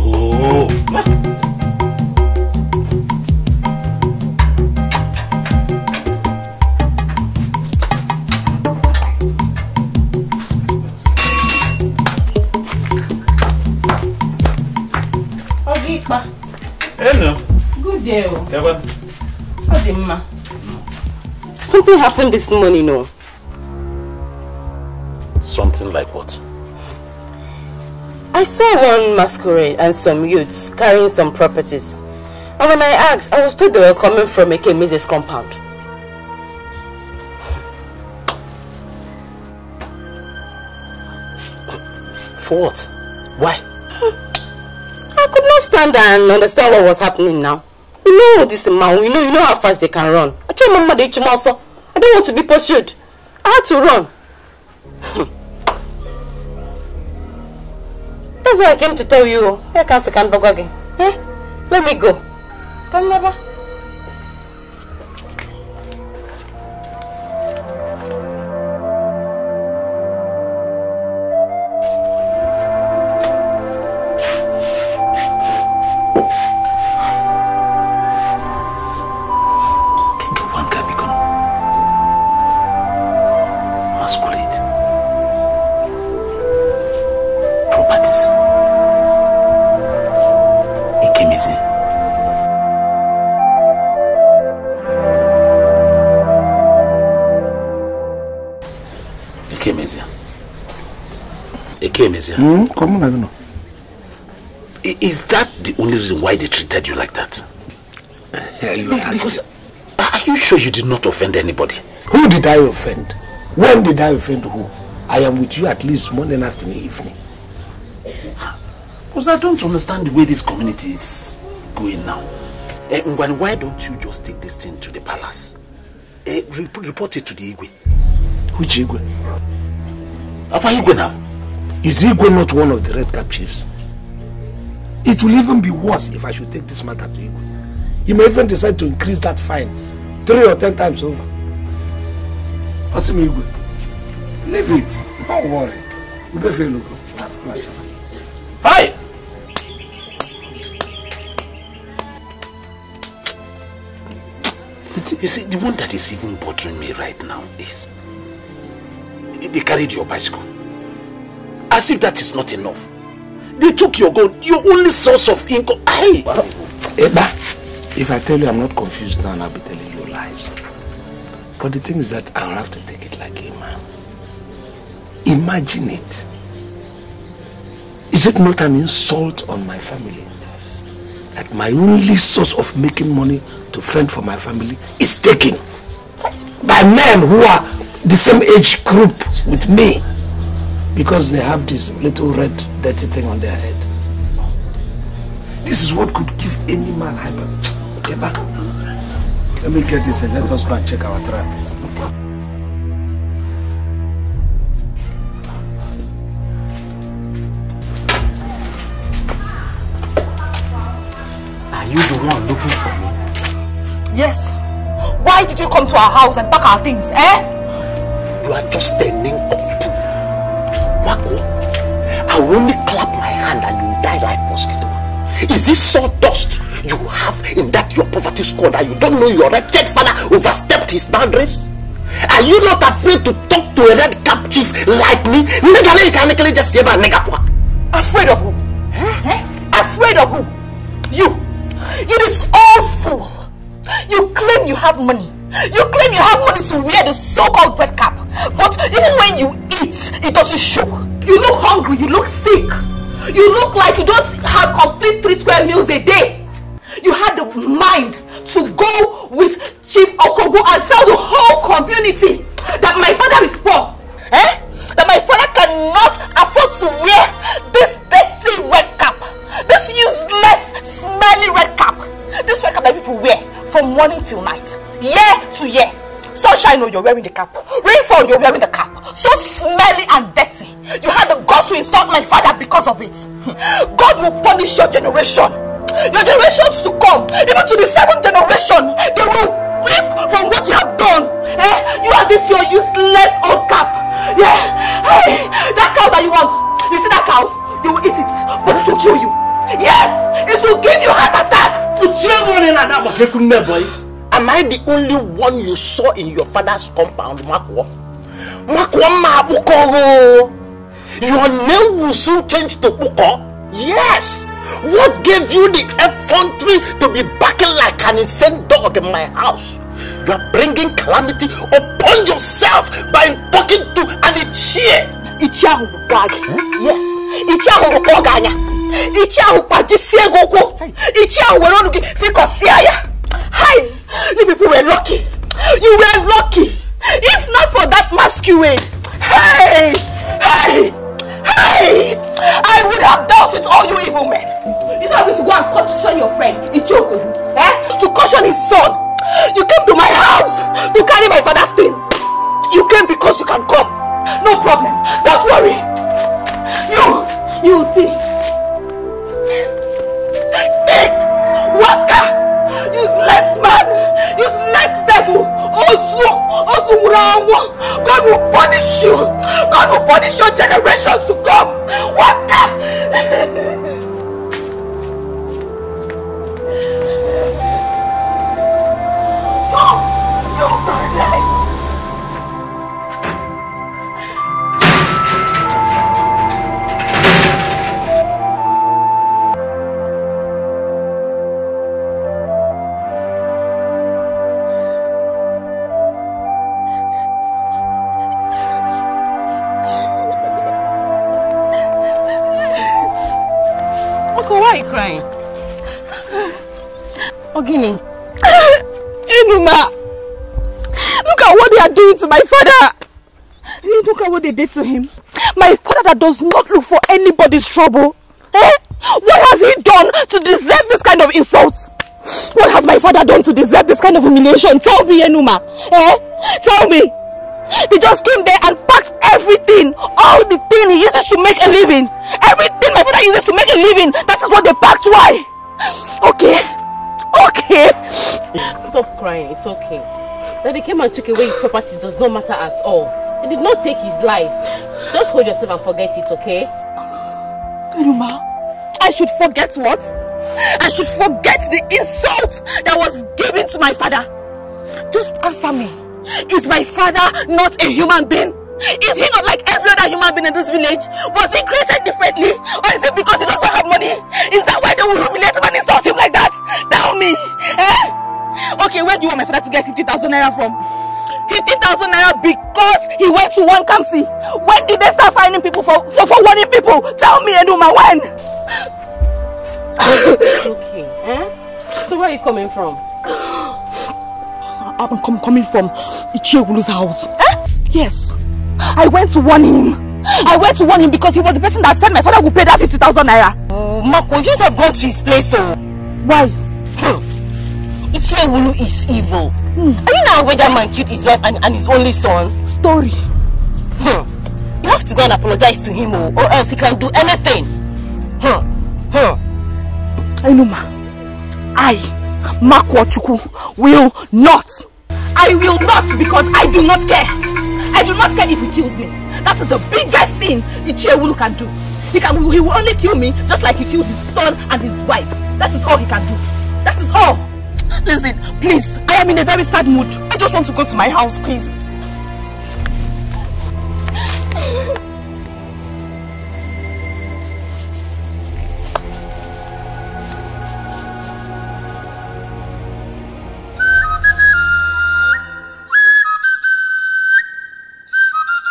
Oh. Ma. Hello. Good day. Kevin. How ma? Something happened this morning, no? Oh. Something like what? I saw one masquerade and some youths carrying some properties. And when I asked, I was told they were coming from a Kemize's compound. For what? Why? I could not stand and understand what was happening now. You know this man, you know, you know how fast they can run. I told my Mama they so I don't want to be pursued. I had to run. That's why I came to tell you. Here comes the Kanbogogi. Eh? Let me go. Come, Baba. Came emezia. Eke came Mm, hmm? come on, I don't know. Is that the only reason why they treated you like that? you because are you sure you did not offend anybody? Who did I offend? When did I offend who? I am with you at least morning, afternoon, evening. Because I don't understand the way this community is going now. Eh, Ngwani, why don't you just take this thing to the palace? Eh, report it to the Igwe. Which Igwe? Apa Igwe now? Is Igwe not one of the red cap chiefs? It will even be worse if I should take this matter to Igwe. He may even decide to increase that fine three or ten times over. Osim Igwe, leave it. Don't worry. You better have pleasure. Hi! You see, the one that is even bothering me right now is they carried your bicycle. As if that is not enough. They took your gun, your only source of income. Hey! Eba, if I tell you I'm not confused now, I'll be telling you lies. But the thing is that I'll have to take it like a man. Imagine it. Is it not an insult on my family? Yes. That my only source of making money to fend for my family is taken by men who are the same age group with me because they have this little red dirty thing on their head. This is what could give any man hyper. Okay, back. Let me get this and let us go and check our trap. Are you the one looking for me? Yes. Why did you come to our house and pack our things, eh? you are just standing up. Marco, I will only clap my hand and you die like mosquito. Is this sawdust you have in that your poverty score that you don't know your wretched father overstepped his boundaries? Are you not afraid to talk to a red cap chief like me? Afraid of who? Huh? Afraid of who? You! You this awful! You claim you have money. You claim you have money to wear the so-called red cap. But even when you eat, it doesn't show. You look hungry, you look sick. You look like you don't have complete three square meals a day. You had the mind to go with Chief Okogo and tell the whole community that my father is poor. Eh? That my father cannot afford to wear this dirty red cap. This useless, smelly red cap. This red cap that people wear from morning till night, year to year. Sunshine, no, oh, you're wearing the cap. Rainfall, you're wearing the cap. So smelly and dirty. You had the guts to insult my father because of it. God will punish your generation. Your generations to come, even to the seventh generation, they will weep from what you have done. Eh? You are this your useless old cap. Yeah. Hey, that cow that you want. You see that cow? You will eat it, but it will kill you. Yes, it will give you heart attack. Put your in that boy. Am I the only one you saw in your father's compound, Makwa? Makwa Mabukoro! Oh. Your name will soon change to Buko. Yes! What gave you the effrontery to be barking like an insane dog in my house? You are bringing calamity upon yourself by talking to an ichie. Ichie ahụ bụ Yes. Ichie ahụ rụkọ ọganya. Ichie ahụ kpajisie gị Ichie ahụ Hi! You people were lucky! You were lucky! If not for that masquerade! Hey! Hey! Hey! I would have dealt with all you evil men! You said to go and caution your friend, Ichioku, eh? To caution his son! You came to my house to carry my father's things! You came because you can come! No problem! Don't worry! You! You will see! Big! Waka! useless man useless devil ozu ozu nwụrụ anwụ God will punish you God will punish your generations to come waka. no, you will die. Enuma! Look at what they are doing to my father! Hey, look at what they did to him. My father that does not look for anybody's trouble. Eh? What has he done to deserve this kind of insult? What has my father done to deserve this kind of humiliation? Tell me, Enuma. Eh? Tell me. They just came there and packed everything. All the thing he uses to make a living. Everything my father uses to make a living. That is what they packed. Why? Okay. Okay. Stop crying. It's okay. That they came and took away his property does not matter at all. He did not take his life. Just hold yourself and forget it, okay? Iruma, I should forget what? I should forget the insult that was given to my father. Just answer me. Is my father not a human being? Is he not like every other human being in this village? Was he created differently? Or is it because he doesn't have money? Is that why they will humiliate him and insult him like that? Tell me! Eh? Okay, where do you want my father to get 50,000 naira from? 50,000 naira because he went to one Kamsi. When did they start finding people for, for, for warning people? Tell me, Enuma, when? okay, eh? So where are you coming from? I'm com coming from Ichiogulu's house. Eh? Yes. I went to warn him. I went to warn him because he was the person that said my father would pay that 50,000 naira. Oh, Marco, you should have gone to his place, so. Oh. Why? Wulu is evil. Are you not aware that man killed his wife and, and his only son? Story. Hmm. You have to go and apologize to him oh, or, else he can do anything. Hmm. Hmm. I know ma. I, Makwachuku, will not. I will not because I do not care. I do not care if he kills me. That is the biggest thing Wulu can do. He, can, he will only kill me just like he killed his son and his wife. That is all he can do. That is all. Listen, please, I am in a very sad mood. I just want to go to my house, please.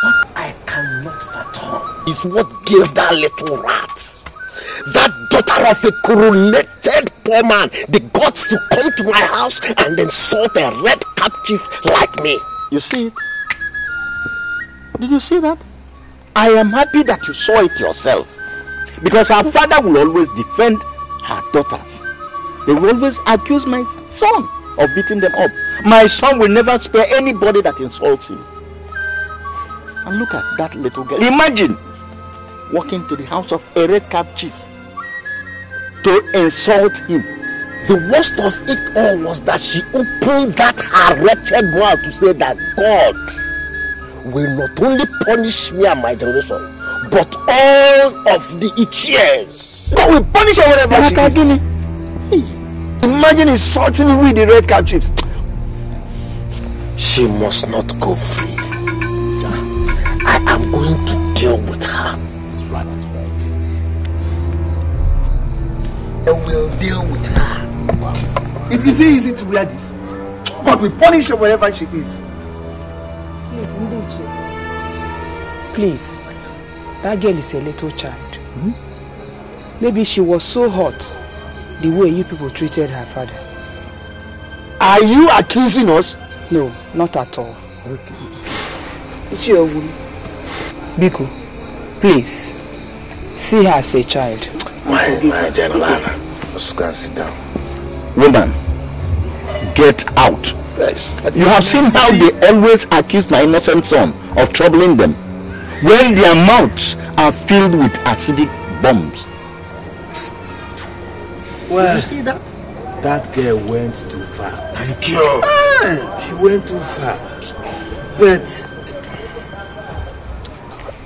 what I cannot is what gave that little rat that daughter of a coronated poor man the got to come to my house and insult a red captive like me. You see it? Did you see that? I am happy that you saw it yourself. Because her father will always defend her daughters. They will always accuse my son of beating them up. My son will never spare anybody that insults him. And look at that little girl. Imagine walking to the house of a red cap chief to insult him. The worst of it all was that she opened that her wretched mouth to say that God will not only punish me and my generation, but all of the Ichies. God will punish her whatever she is. Imagine insulting me with the red cap chips. She must not go free. I am going to deal with her. and will deal with her. Wow. It is easy to wear this. God will punish her wherever she is. Please, Ndichi. Please, that girl is a little child. Hmm? Maybe she was so hot the way you people treated her father. Are you accusing us? No, not at all. Okay. It's your woman. Biko, please, see her as a child. My, my general, just go and sit down. Woman, get out. Yes. You have seen how they always accuse my innocent son of troubling them when their mouths are filled with acidic bombs. Well, Did you see that? That girl went too far. Thank you. she went too far. But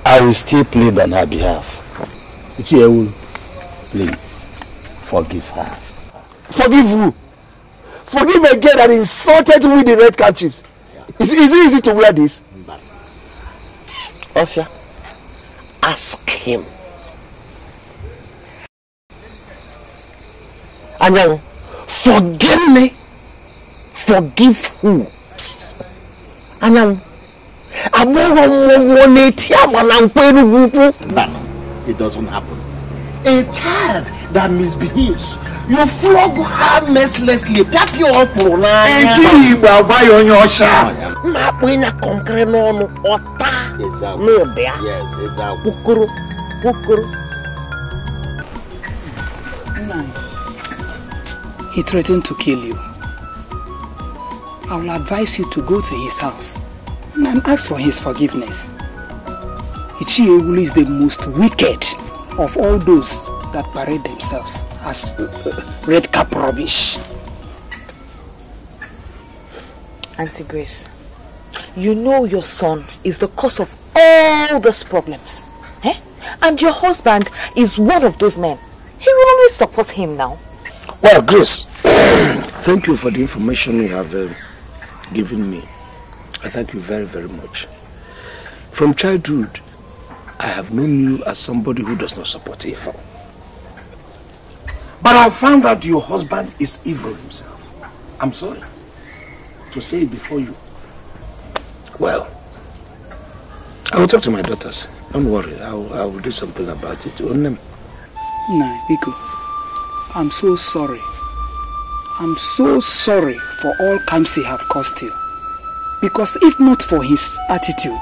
I will still plead on her behalf. Ichiewu, Please, forgive her. Forgive who? Forgive a girl that insulted me with the red cap chips. Yeah. Is, it easy to wear this? But, ask him. Anyanwu, forgive me. Forgive who? Anyanwu, agbọghọ nwa nwa na-eti agba na mkpa elu ukwu. it doesn't happen a child that misbehaves you flog her mercilessly pịapịa ọkpụrụ n'anya ejighị igbo agwa ya onye ọcha mmakpụ ịnya kọnkịrị n'ọnụ ọta n'ụdịa kpokoro kpokoro He threatened to kill you. I will advise you to go to his house and ask for his forgiveness. Ichi Ewulu is the most wicked of all those that parade themselves as red cap rubbish. Auntie Grace, you know your son is the cause of all those problems. Eh? And your husband is one of those men. He will always support him now. Well, Grace, thank you for the information you have uh, given me. I thank you very, very much. From childhood, I have known you as somebody who does not support evil. But I found out your husband is evil himself. I'm sorry to say it before you. Well, I will talk to my daughters. Don't worry, I will, I will do something about it. Onem. Nah, Biko, I'm so sorry. I'm so sorry for all Kamsi have caused you. Because if not for his attitude,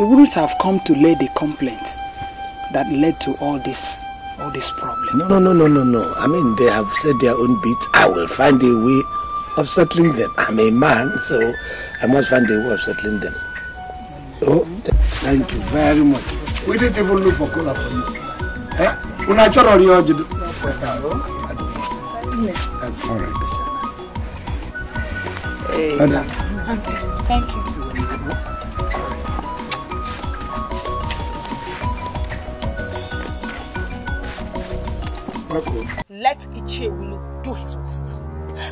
you wouldn't have come to lay the complaint that led to all this all this problem. No, no, no, no, no, no. I mean, they have said their own bit. I will find a way of settling them. I'm a man, so I must find a way of settling them. Oh, thank you very much. We didn't even look for cola for you. Eh? Unachoro your That's all right. Hey. Thank you. Let Ichewulu do his worst.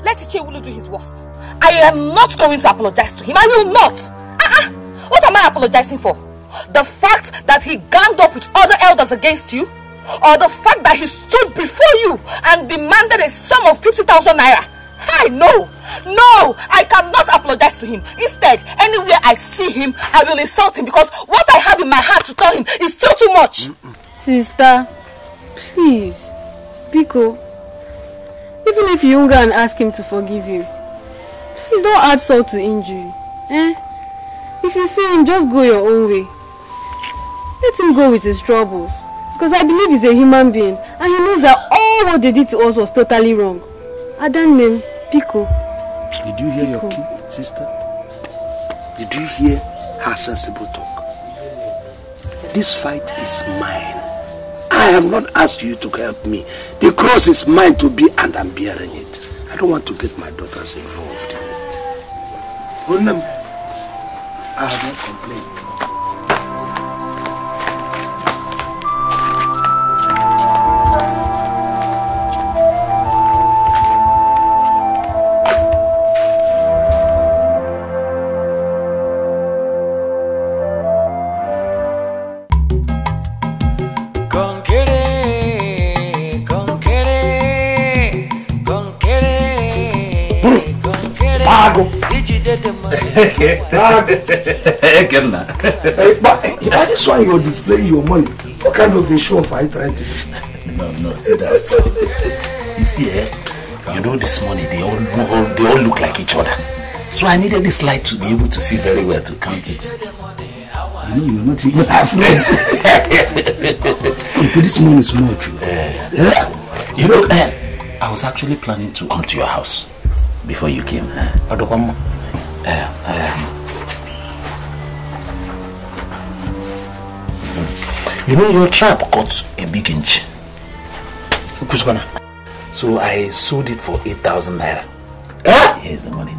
Let Ichewulu do his worst. I am not going to apologize to him. I will not. Uh-uh. What am I apologizing for? The fact that he ganged up with other elders against you? Or the fact that he stood before you and demanded a sum of 50,000 naira? I know. No, I cannot apologize to him. Instead, anywhere I see him, I will insult him because what I have in my heart to tell him is still too much. Sister, please. Biko, even if you hunger and ask him to forgive you, please don't add salt to injury. Eh? If you see him, just go your own way. Let him go with his troubles. Because I believe he's a human being and he knows that all what they did to us was totally wrong. Adan name, Pico. Did you hear Pico. your key, sister? Did you hear her sensible talk? This fight is mine. I have not asked you to help me. The cross is mine to be and I'm bearing it. I don't want to get my daughters involved in it. Sir. I have not complained. Good luck. But that is you to display your money. What kind of a show are you trying to do? No, no, see that. You see, eh? You know this money, they all, all, they all look like each other. So I needed this light to be able to see very well to count it. You know, you're not even halfway. but this money is more true. Eh. yeah. You know, eh? I was actually planning to come to your house before you came. Uh, uh, You know your trap got a big inch. So I sold it for 8,000 naira. Ah! Here's the money.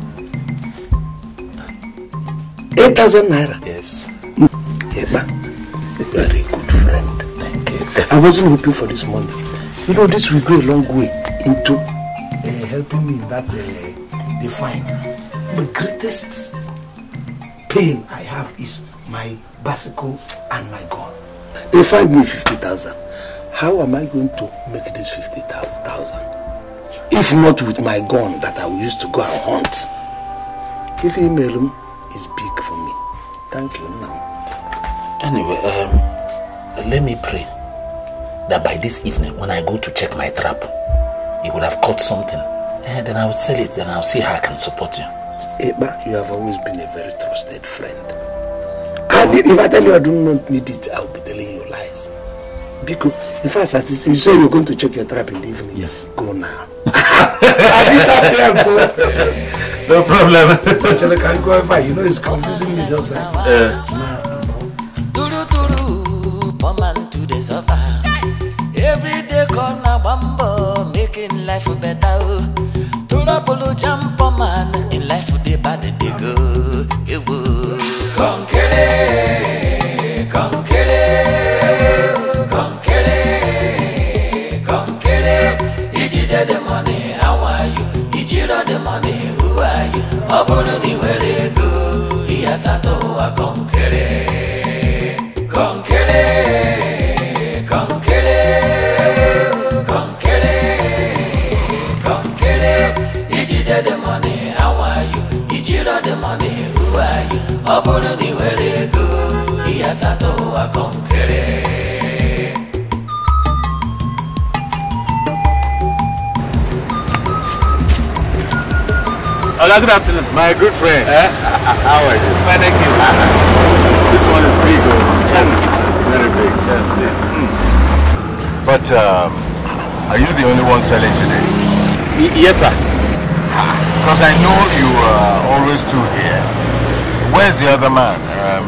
8,000 naira? Yes. Eba, very good friend. Thank you. I wasn't hoping for this money. You know, this will go a long way into uh, helping me in that uh, define. The greatest pain I have is my bicycle and my gun. They find me 50,000. How am I going to make this 50,000? If not with my gun that I used to go and hunt. If email um, is big for me. Thank you, Nam. Anyway, um, let me pray that by this evening, when I go to check my trap, he would have caught something. And eh, then I will sell it and I'll see how I can support you. Eba, you have always been a very trusted friend. And if I tell you I do not need it, I'll be telling you. Biko, in fact, you say you're going to check your trap in the evening. Yes. Go now. no problem. Actually, can go ever. You know, it's confusing me just like. Uh. Every day, corner making life better. Oh. jump man, in life, bad they go. It ọ bụrụ na ị nwere ego ihe tata ụwa kọnkere kọnkere kọnkere kọnkere kọnkere ijide the money how are you ijiro the money who are you ọ bụrụ na ị nwere ego ihe tata ụwa kọnkere good afternoon. My good friend. Eh? How are you? Fine, thank you. this one is big, oh. Yes. It's very big. Yes, yes. Hmm. But um, are you the only one selling today? Y yes, sir. Because I know you are always two here. Where's the other man? Um,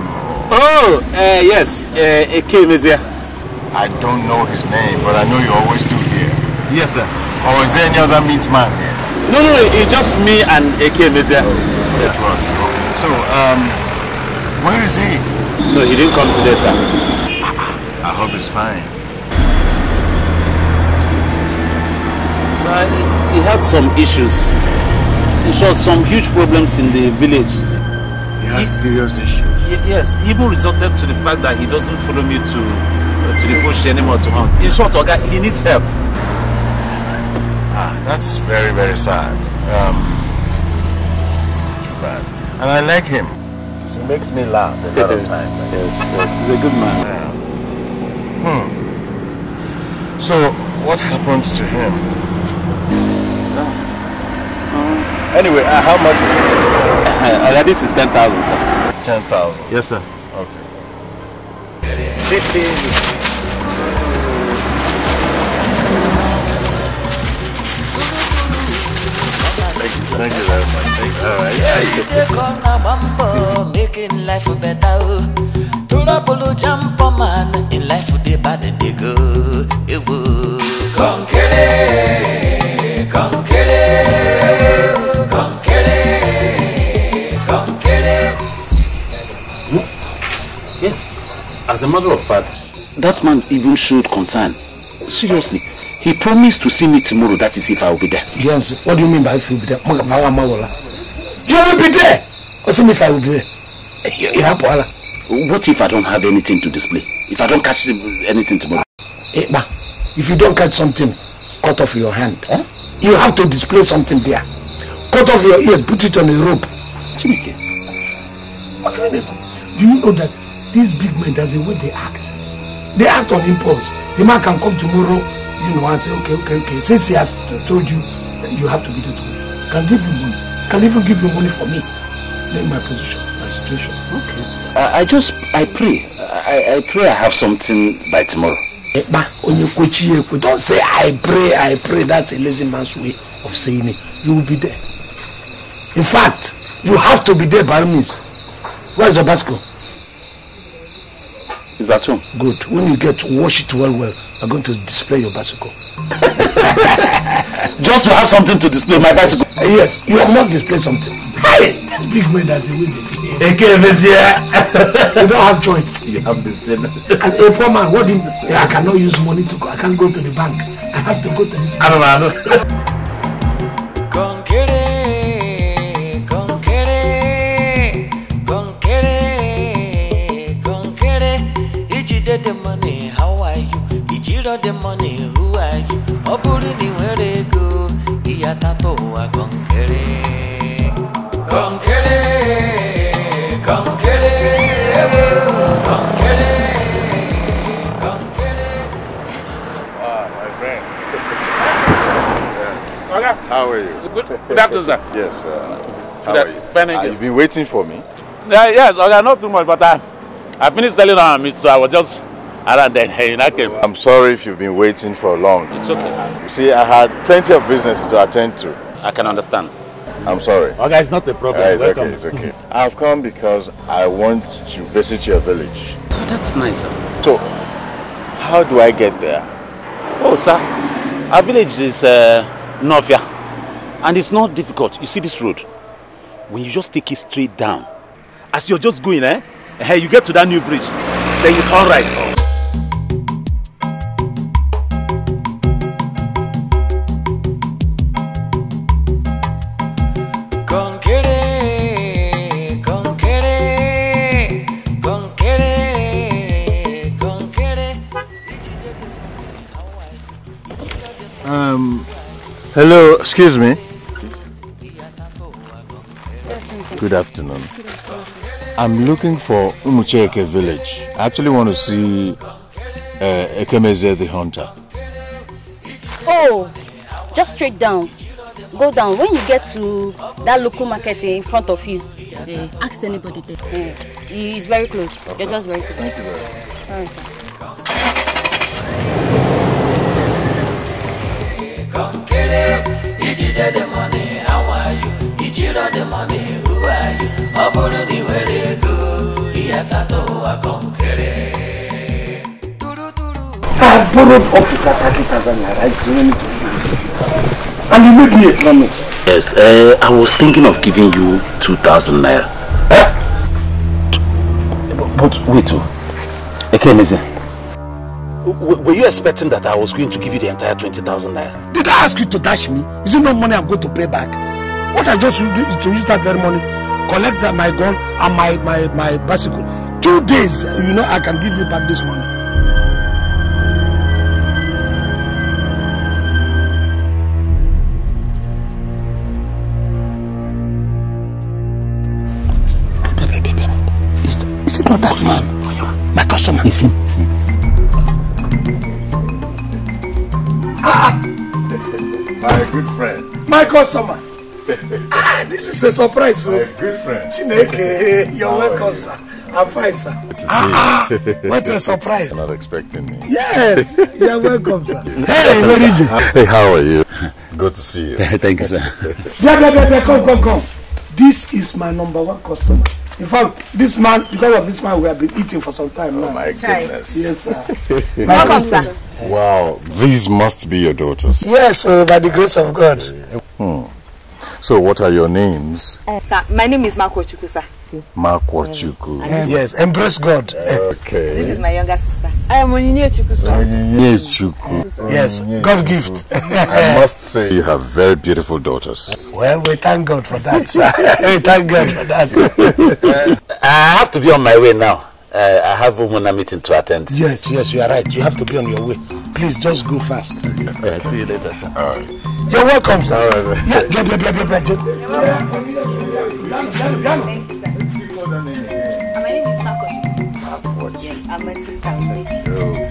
oh, uh, yes. Uh, came is here. I don't know his name, but I know you're always two here. Yes, sir. Or is there any other meat man here? No, no, it's just me and AK Mezia. Yeah. Oh, so, um, where is he? No, he didn't come today, sir. I hope he's fine. Sir, he had some issues. He saw some huge problems in the village. He had serious issues? yes, even resorted to the fact that he doesn't follow me to, uh, to the bush anymore to hunt. In short, he needs help. That's very, very sad. Um, bad. And I like him. He makes me laugh a lot of time. yes, yes, he's a good man. Yeah. Hmm. So, what happened to him? Uh, anyway, uh, how much? uh, this is 10,000, sir. 10,000? Yes, sir. Okay. 50. Thank you very much. Thank you. All right. Yeah, you dey come na bambo, making life better. Turabolo jump man, in life dey bad dey go. kill it, come kill it. Yes. As a matter of fact, that man even showed concern. Seriously. He promised to see me tomorrow, that is if I will be there. Yes, what do you mean by if you will be there? You will be there! if I will be there? Eh, what if I don't have anything to display? If I don't catch anything tomorrow? Eh, if you don't catch something, cut off your hand. Huh? You have to display something there. Cut off your ears, put it on a rope. Chimike. do? Do you know that these big men, that's the way they act? They act on impulse. The man can come tomorrow You know, I say, okay, okay, okay. Since he has told you, you have to be there to Can give you money. Can even give you money for me. in my position, my situation. Okay. I, I just, I pray. I, I pray I have something by tomorrow. Eh, Don't say I pray, I pray. That's a lazy man's way of saying it. You will be there. In fact, you have to be there by means. Where's your bicycle? Is that home. Good. When you get to wash it well, well, I'm going to display your bicycle. Just to have something to display my bicycle. Uh, yes, you must display something. Hey, that's big man that's a window. Okay, yeah. you don't have choice. You have this thing. As a poor man, what do you, I cannot use money to go. I can't go to the bank. I have to go to this. Bank. I don't know. I don't. got the money, who are you? Ọ bụrụ na ị nwere ego, ihe atatọ ụwa kọnkere. Kọnkere, kọnkere, kọnkere. How are you? Good, good afternoon, sir. Yes, Uh, how are you? Uh, you've been waiting for me? Uh, yes, okay, not too much, but I, I finished selling our uh, meat, so I was just I am sorry if you've been waiting for long. It's okay. You see, I had plenty of business to attend to. I can understand. I'm sorry. Okay, oh, guys, not a problem. It's Welcome. Okay, it's okay. I've come because I want to visit your village. Oh, that's nice, sir. So, how do I get there? Oh, sir, our village is uh, Novia, and it's not difficult. You see this road? When you just take it straight down, as you're just going, eh? Hey, you get to that new bridge, then you turn right. Hello, excuse me. Good afternoon. I'm looking for Umucheke village. I actually want to see uh, Ekemeze the hunter. Oh, just straight down. Go down. When you get to that local market in front of you, ask anybody there. Mm. it's very close. Okay. You're just very close. Thank you very much. All right, sir. Dede. Ijide the money, how are you? Ijiro the money, who are you? Oburu the were go. Iyatato akonkere. I borrowed up to 30,000 naira. It's only And you made me a promise. Yes, uh, I was thinking of giving you 2,000 naira. Eh? But, but wait, oh. Okay, listen were you expecting that I was going to give you the entire 20,000 naira? Did I ask you to dash me? Is it no money I'm going to pay back? What I just do is to use that very money, collect that, my gun and my, my, my bicycle. Two days, you know, I can give you back this money. Is, is it not that man? My customer. Is him. My good friend. My customer. ah, this is a surprise. Oh. My good friend. Chineke, you're How welcome, you? sir. I'm fine, sir. Ah, ah what a surprise. You're not expecting me. Yes, you're welcome, sir. hey, Meriji. Hey, how are you? Good to see you. Thank you, sir. Yeah, yeah, yeah, yeah, come, come, come. This is my number one customer. In fact, this man, because of this man, we have been eating for some time oh now. Oh, my goodness. Yes, sir. Welcome, sir. Wow, these must be your daughters. Yes, uh, by the grace of God. Hmm. So what are your names? Uh, sir, my name is Mark sir. Mark eh, Yes, embrace God. Okay. This is my younger sister. I am Onyinye Chuku, sir. Onyinye Yes, God gift. I must say you have very beautiful daughters. Well, we thank God for that, sir. we thank God for that. Uh, I have to be on my way now. Uh, I have a meeting to attend. Yes, yes, you are right. You have to be on your way. Please just go fast. Okay. All right, see you later. All right. You're welcome, sir. All right, yeah, blah, blah, blah, blah, blah. Thank you, sir. My name is Marco. Yes, I'm my sister. Oh,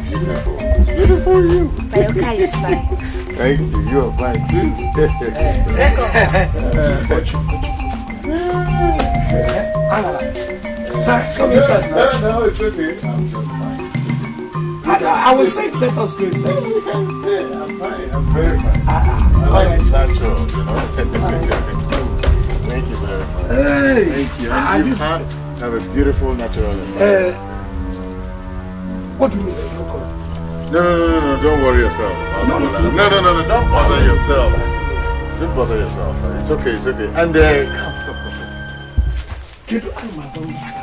beautiful. Beautiful you. Sayoka is fine. Thank you. You are fine too. Welcome. Uh, uh, uh, uh, uh, uh, uh, uh, Sir, come inside. No, no, it's okay. I'm just fine. I, I was saying, let us go inside. Yeah, I'm fine. I'm very fine. Ah, I like right. natural, you know. Thank you very much. Hey, Thank you. Ah, and you have, have a beautiful natural eh. environment. Uh, what do you mean? No, no, no, no, no, don't worry yourself. No no, no, no, no, no, no, don't bother yourself. Don't bother yourself. It's okay, it's okay. And uh, Get out of my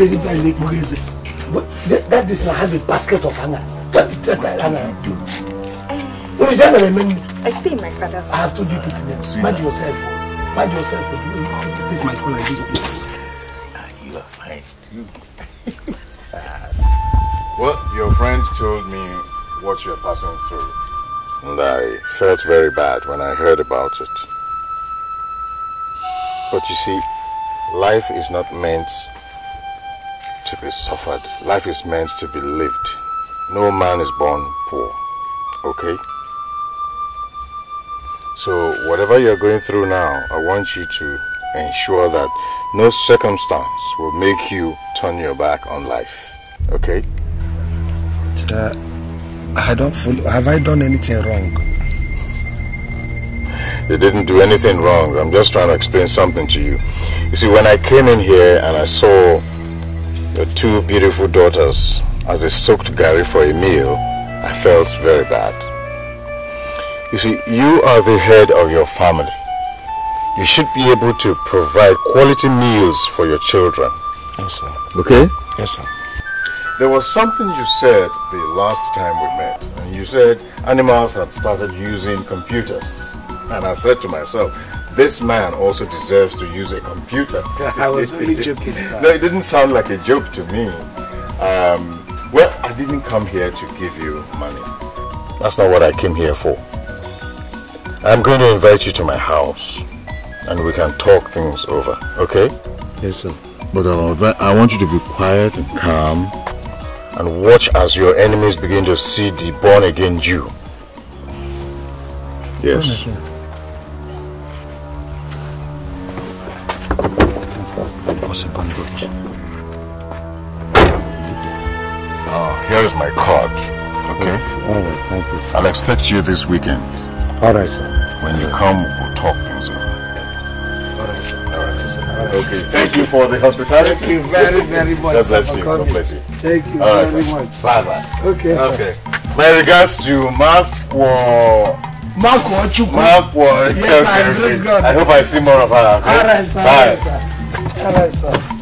Deliver Lake Moise. But that, that is not have a basket of anger. What did that hanger do? Eh. What is that I stay in my father's house. I have told you people, mind yourself. Mind yourself. You take my phone this ah, you are fine too. well, your friend told me what you are passing through. And I felt very bad when I heard about it. But you see, life is not meant to be suffered. Life is meant to be lived. No man is born poor, okay? So whatever you're going through now, I want you to ensure that no circumstance will make you turn your back on life, okay? Uh, I don't follow. Have I done anything wrong? They didn't do anything wrong. I'm just trying to explain something to you. You see, when I came in here and I saw your two beautiful daughters as they soaked Gary for a meal, I felt very bad. You see, you are the head of your family. You should be able to provide quality meals for your children. Yes, sir. Okay? Yes, sir. There was something you said the last time we met, and you said animals had started using computers. And I said to myself, this man also deserves to use a computer. I was only joking. Sir. No, it didn't sound like a joke to me. Um, well, I didn't come here to give you money. That's not what I came here for. I'm going to invite you to my house and we can talk things over, okay? Yes, sir. But um, I want you to be quiet and calm and watch as your enemies begin to see the born again Jew. Yes. Oh What's a bandage? Oh, here is my card. Okay? All right, thank you. Sir. I'll expect you this weekend. All right, sir. When you come, we'll talk things over. All right, sir. All right, sir. Okay, thank you for the hospitality. Thank you very, very much. God bless you. God bless you. Thank you All right, very sir. much. Bye bye. Okay. Okay. Sir. My regards to Mark for. Makwa Chukwu. Makwa. Yes, okay, I praise okay. God. I hope I see more of her. Okay? All right, sir. Bye. All right, sir. All right, sir.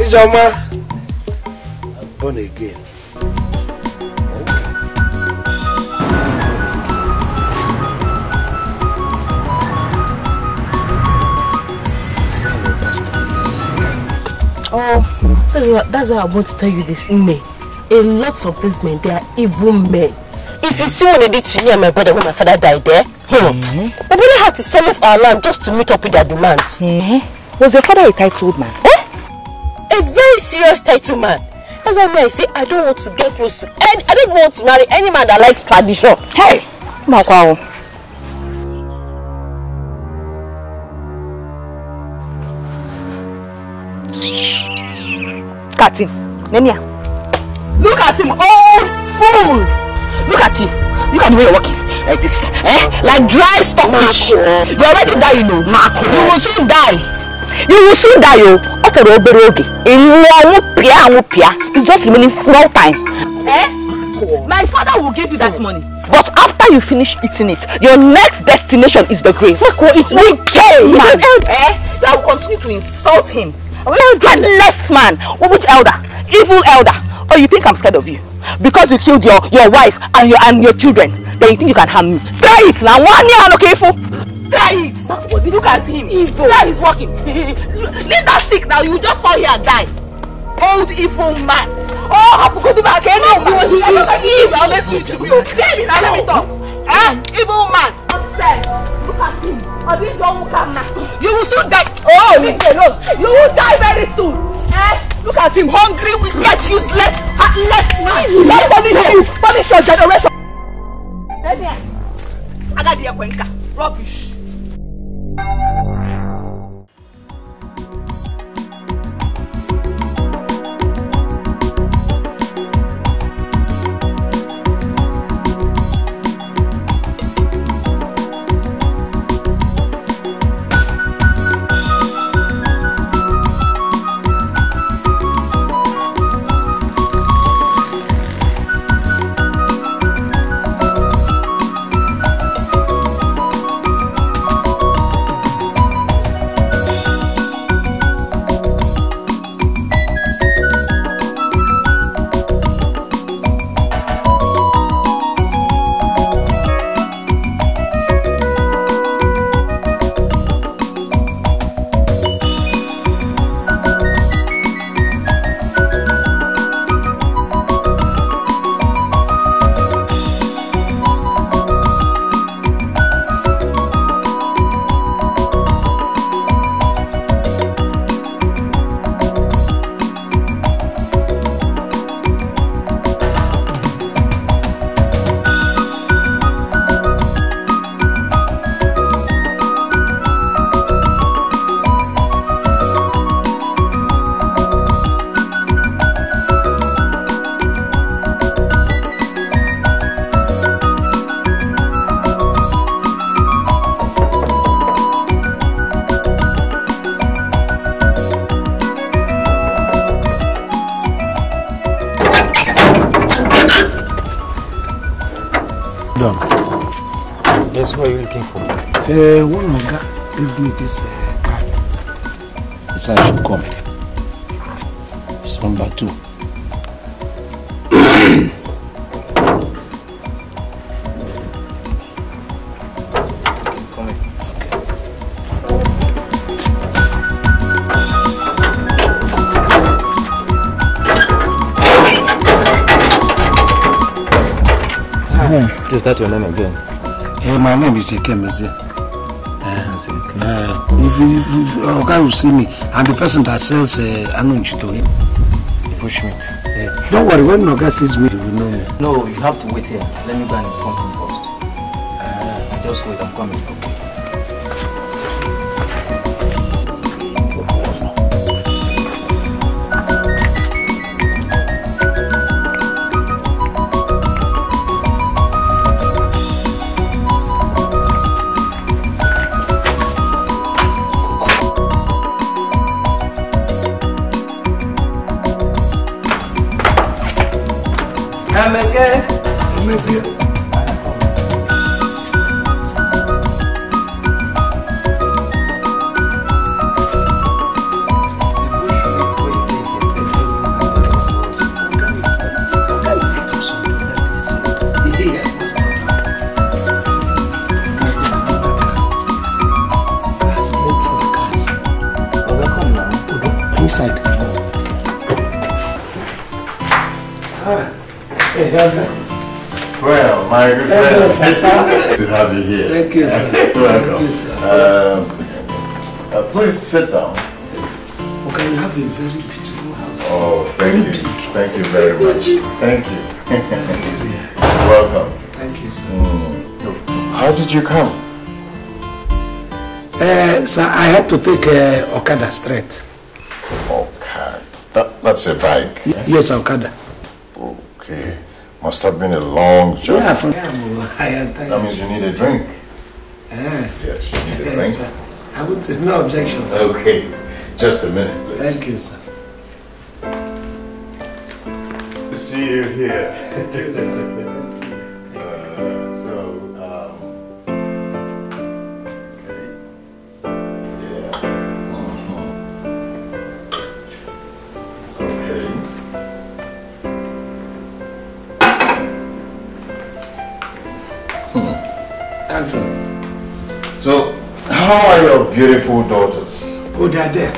Ijoma, born again. That's why, that's why I want to tell you this, Nne. A lot of these men, they are evil men. If you see what they did to me and my brother when my father died there, eh? hmm, mm-hmm. my brother had to sell off our land just to meet up with their demands. Mm-hmm. Was your father a titled man? Eh? A very serious titled man. That's why I say I don't want to get close to any, I don't want to marry any man that likes tradition. Hey, Makwawo. Look at him. Nenia. Look at him. Old fool. Look at you. Look at the way you're walking. Like this. Eh? Like dry stockfish. You're already dying, you know. You will soon die. You will soon die, yo. Oh. After the obere oge. It's just remaining small time. Eh? My father will give you that money. But after you finish eating it, your next destination is the grave. Look what it's wicked, man. Eh? You will continue to insult him. Landless man! Which elder? Evil elder! Oh, you think I'm scared of you? Because you killed your, your wife and your, and your children, then you think you can harm me. Try it now! One year, okay, fool! Try it! Look at him! Evil! Now he's walking! Leave that stick now, you just fall here and die! Old evil man! Oh, Hapukutu Bakeno! You evil! Always need to be okay! Now let me talk! Eh? Evil man! Nonsense! You will soon die. Oh, leave me alone. You will die very soon. Eh? Look at him, hungry, wicked, useless, heartless man. Don't punish you. Punish your generation. Agadi Ekwenka, rubbish. Uh, one God gave me this uh, card. This I should come. It's number two. Is that your name again? Hey, my name is Ekemeze. Uh, if, you, if, if oh, guy will see me I'm the person that sells uh, anunchito him push meat. Yeah. Don't worry, when a guy sees me, he will know me. No, you have to wait here. Let me go and inform him first. Uh, just wait, I'm coming. Okay. sit down. Okay, you have a very beautiful house. Oh, thank very you. Big. Thank you very much. Thank you. Welcome. Thank you, sir. Mm. How did you come? Uh, sir, I had to take uh, Okada straight. Okada? That, that's a bike? Yeah? Yes, Okada. Okay. Must have been a long journey. Yeah, from, I am tired. That means you need a drink. no objections. Okay, just a minute, please. Thank you, sir. How are your beautiful daughters? Oh, they're there.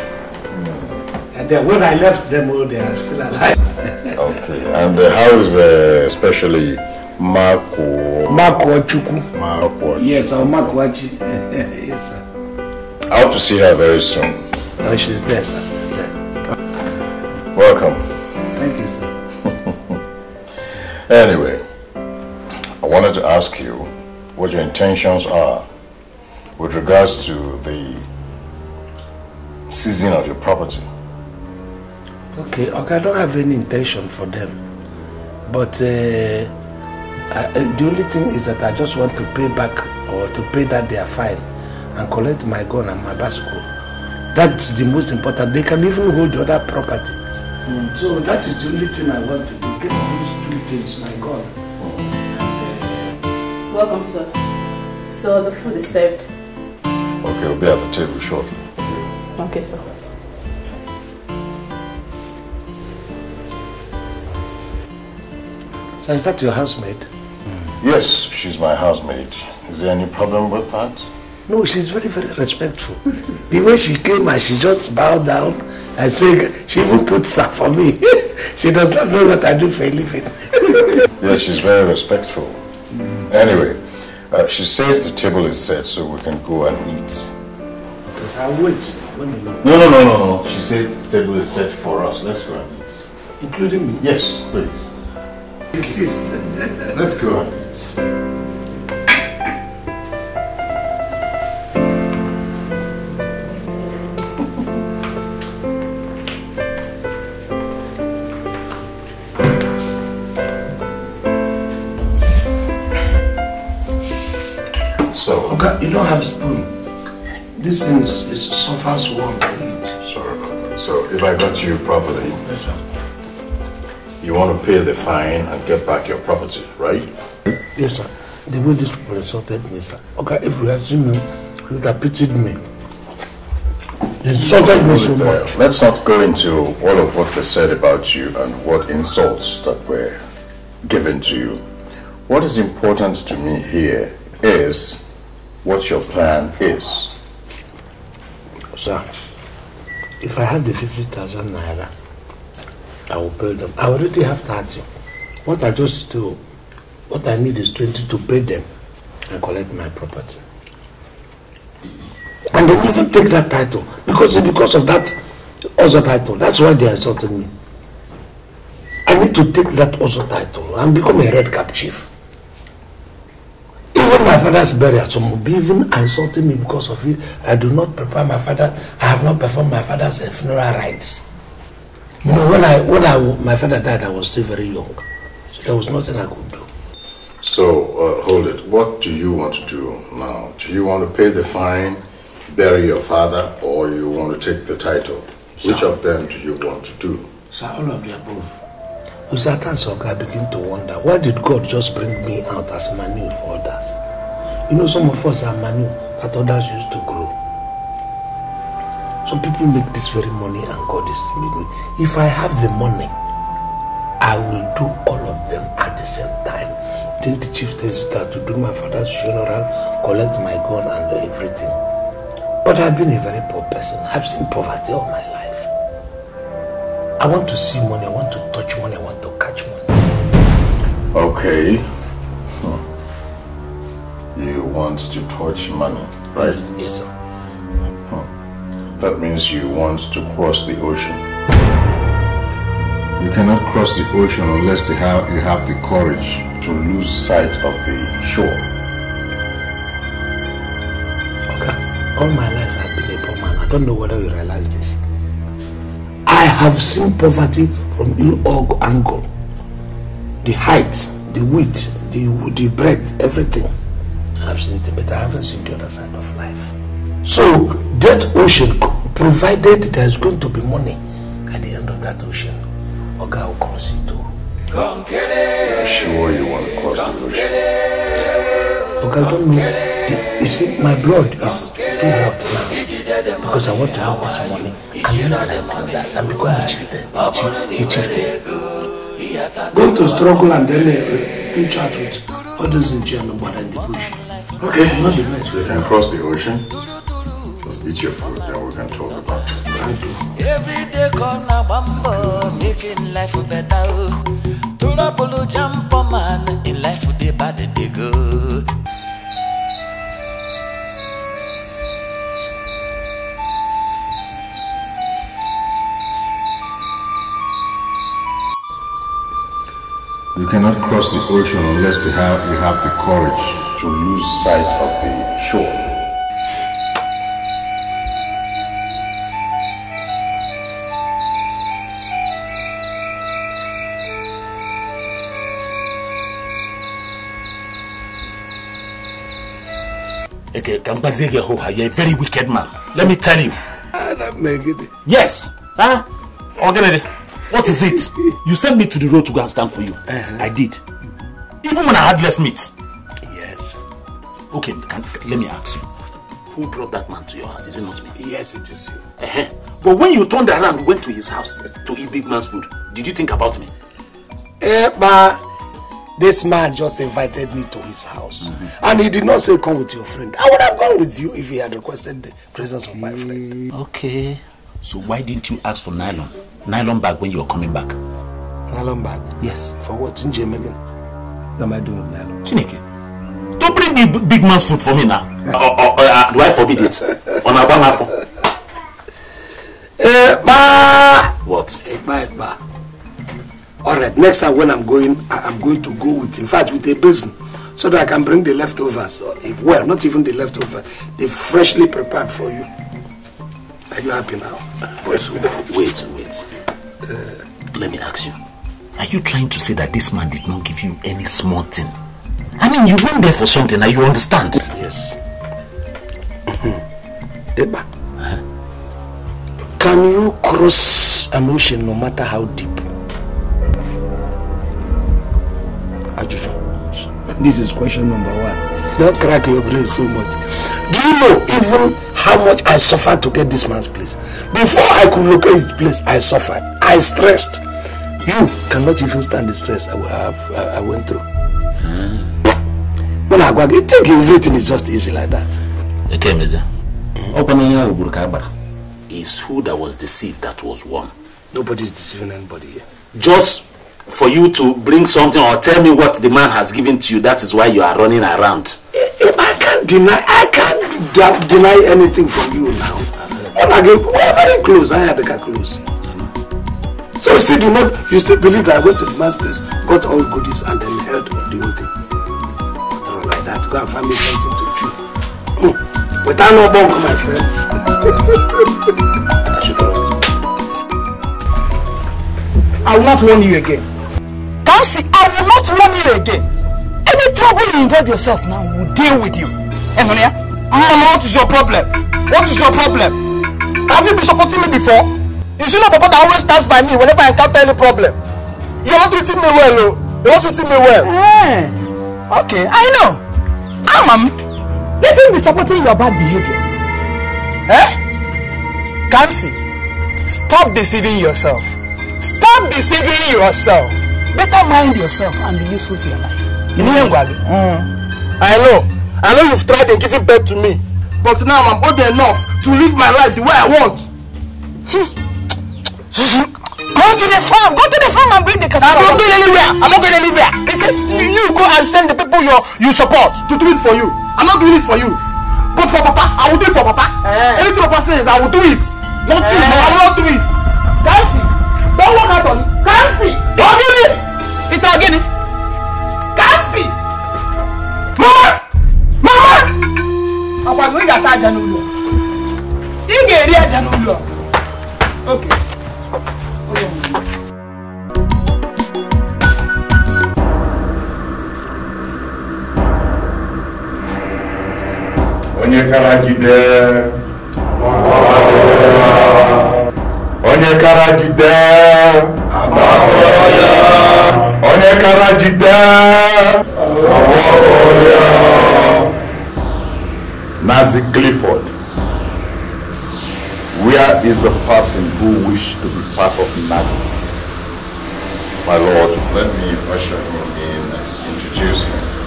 And then when I left them, oh, they are still alive. okay. And uh, how is uh, especially Marco? Marco Chuku. Marco. Yes, our Marco yes, sir. I hope to see her very soon. Oh, she's there, sir. There. Welcome. Thank you, sir. anyway, I wanted to ask you what your intentions are with regards to the seizing of your property. Okay, okay, I don't have any intention for them. But uh, I, uh, the only thing is that I just want to pay back or to pay that their fine and collect my gun and my bicycle. That's the most important. They can even hold the other property. Mm. So that is the only thing I want to do. Get these two things, my gun. Welcome, sir. So the food is served. He'll be at the table shortly. Okay, sir. So is that your housemaid? Yes, she's my housemaid. Is there any problem with that? No, she's very, very respectful. the way she came and she just bowed down and said, she even put stuff for me. she does not know what I do for a living. yeah, she's very respectful. Anyway, uh, she says the table is set so we can go and eat. Because I wait. No, no, no, no, no. She said the table is set for us. Let's go and eat. Including me? Yes, please. Insist. Let's go and eat. can't, you don't have a spoon. This thing is, is fast warm to eat. Sorry about that. So if I got you properly, yes, you want to pay the fine and get back your property, right? Yes, sir. The way these people insulted me, sir. Okay, if you had seen me, you would have pitied me. They insulted me so much. Let's not go into all of what they said about you and what insults that were given to you. What is important to me here is what your plan is. Sir, if I have the 50,000 naira, I will pay them. I already have 30. What I just do, what I need is 20 to pay them and collect my property. And they even take that title because because of that other title. That's why they insulted me. I need to take that other title and become a red cap chief. Even my father's burial, some will be even insulting me because of it. I do not prepare my father. I have not performed my father's funeral rites. You know, when I when I my father died, I was still very young, so there was nothing I could do. So uh, hold it. What do you want to do now? Do you want to pay the fine, bury your father, or you want to take the title? Sir, Which of them do you want to do? Sir, all of the above. Uzatan Soga begin to wonder why did God just bring me out as manure for others? You know, some of us are manure that others used to grow. Some people make this very money and God is still with me. If I have the money, I will do all of them at the same time. Take the chieftains start to do my father's funeral, collect my gun and everything. But I've been a very poor person. I've seen poverty all my life. I want to see money, I want to touch money, I want to catch money. Okay. Hmm. You want to touch money, right? Yes, yes sir. Hmm. That means you want to cross the ocean. You cannot cross the ocean unless you have, you have the courage to lose sight of the shore. Okay. All my life I've been a poor man. I don't know whether you realize this. I have seen poverty from all angle. The height, the width, the, the breadth, everything. I've seen it, but I haven't seen the other side of life. So that ocean, provided there is going to be money at the end of that ocean, Oga will cross it too. Konkere, I'm sure you want to cross the ocean. Oga, I don't know the You see, my blood is too hot now because I want to have this morning. I'm live like others and become a chieftain. A, chief, a chieftain. Going to struggle and then uh, uh, each with others in jail and in the bush. Okay, it's not the best. You can cross the ocean. Just eat your food, then we can talk about it. Thank you. Every day, corner bumbo, making life better. Turabolo jump man, in life, they bad, they go. You cannot cross the ocean unless you have, you have the courage to lose sight of the shore. Okay, Gambazegehoha, you're a very wicked man. Let me tell you. Ah, yes! Huh? Organize what is it? You sent me to the road to go and stand for you. Uh -huh. I did. Even when I had less meat. Yes. Okay, can, let me ask you. Who brought that man to your house? Is it not me? Yes, it is you. Uh -huh. But when you turned around, went to his house uh, to eat big man's food, did you think about me? Eh, but this man just invited me to his house. Mm -hmm. And he did not say, come with your friend. I would have gone with you if he had requested the presence of my friend. Okay. So why didn't you ask for nylon? nylon bag when you were coming back. Nylon bag? Yes. For what? In Jim again? What am I doing with nylon? Chineke. Don't bring the big man's food for me now. uh, uh, uh, uh do I forbid it? On our banner Eh ba. What? Ekba, eh, ba. Eh, Alright, next time when I'm going, I'm going to go with, in fact, with a basin so that I can bring the leftovers. If, eh, well, not even the leftovers, they freshly prepared for you. Are you happy now? But wait, uh, let me ask you. Are you trying to say that this man did not give you any small thing? I mean, you went there for something, now you understand? Yes. Eba, huh? can you cross an ocean no matter how deep? Ajuju. This is question number one. Don't crack your brain so much. Do you know even how much I suffered to get this man's place. Before I could locate his place, I suffered. I stressed. You cannot even stand the stress I, have, I, I went through. When I go, you think everything is just easy like that. Okay, Mr. It's who that was deceived that was won. Nobody is deceiving anybody here. Just for you to bring something or tell me what the man has given to you, that is why you are running around. If eh, eh, I can't deny, I deny anything from you now. And again, we are very close. I had the car close. So you still do not, you still believe that I went to the man's place, got all goodies, and then held the whole thing. Something like that. Go and find me something to chew. Mm. Without no bunk, my friend. I will not warn you again. Come see, I will not warn you again. Any trouble you involve yourself now will deal with you. Enonia, Mama, what is your problem? What is your problem? Have you been supporting me before? Is it not Papa that always stands by me whenever I encounter any problem? You are treating me well, oh. You are treating me well. Hey. Eh. Okay, I know. Ah, Mom, let him be supporting your bad behaviors. Eh? Kamsi, stop deceiving yourself. Stop deceiving yourself. Better mind yourself and be useful to your life. You know, mm. mm. I know. I know you've tried in giving birth to me, but now I'm old enough to live my life the way I want. Hmm. Go to the farm. Go to the farm and bring the cassava. I'm not going anywhere. I'm not going anywhere. Listen, you go and send the people you you support to do it for you. I'm not doing it for you. But for Papa, I will do it for Papa. Eh. Anything Papa says, I will do it. Not eh. you. No, I will not do it. Can't see. Don't look at me. Can't see. Ogini. It's Ogini. Can't see. Mama ọkwa gị ị ga-ata aja n'ụlọ ị ga-eri aja n'ụlọ oke onye karajide onye karajide onye karajide Nazi Clifford. Where is the person who wished to be part of Nazis? My lord, let me usher him in and introduce him.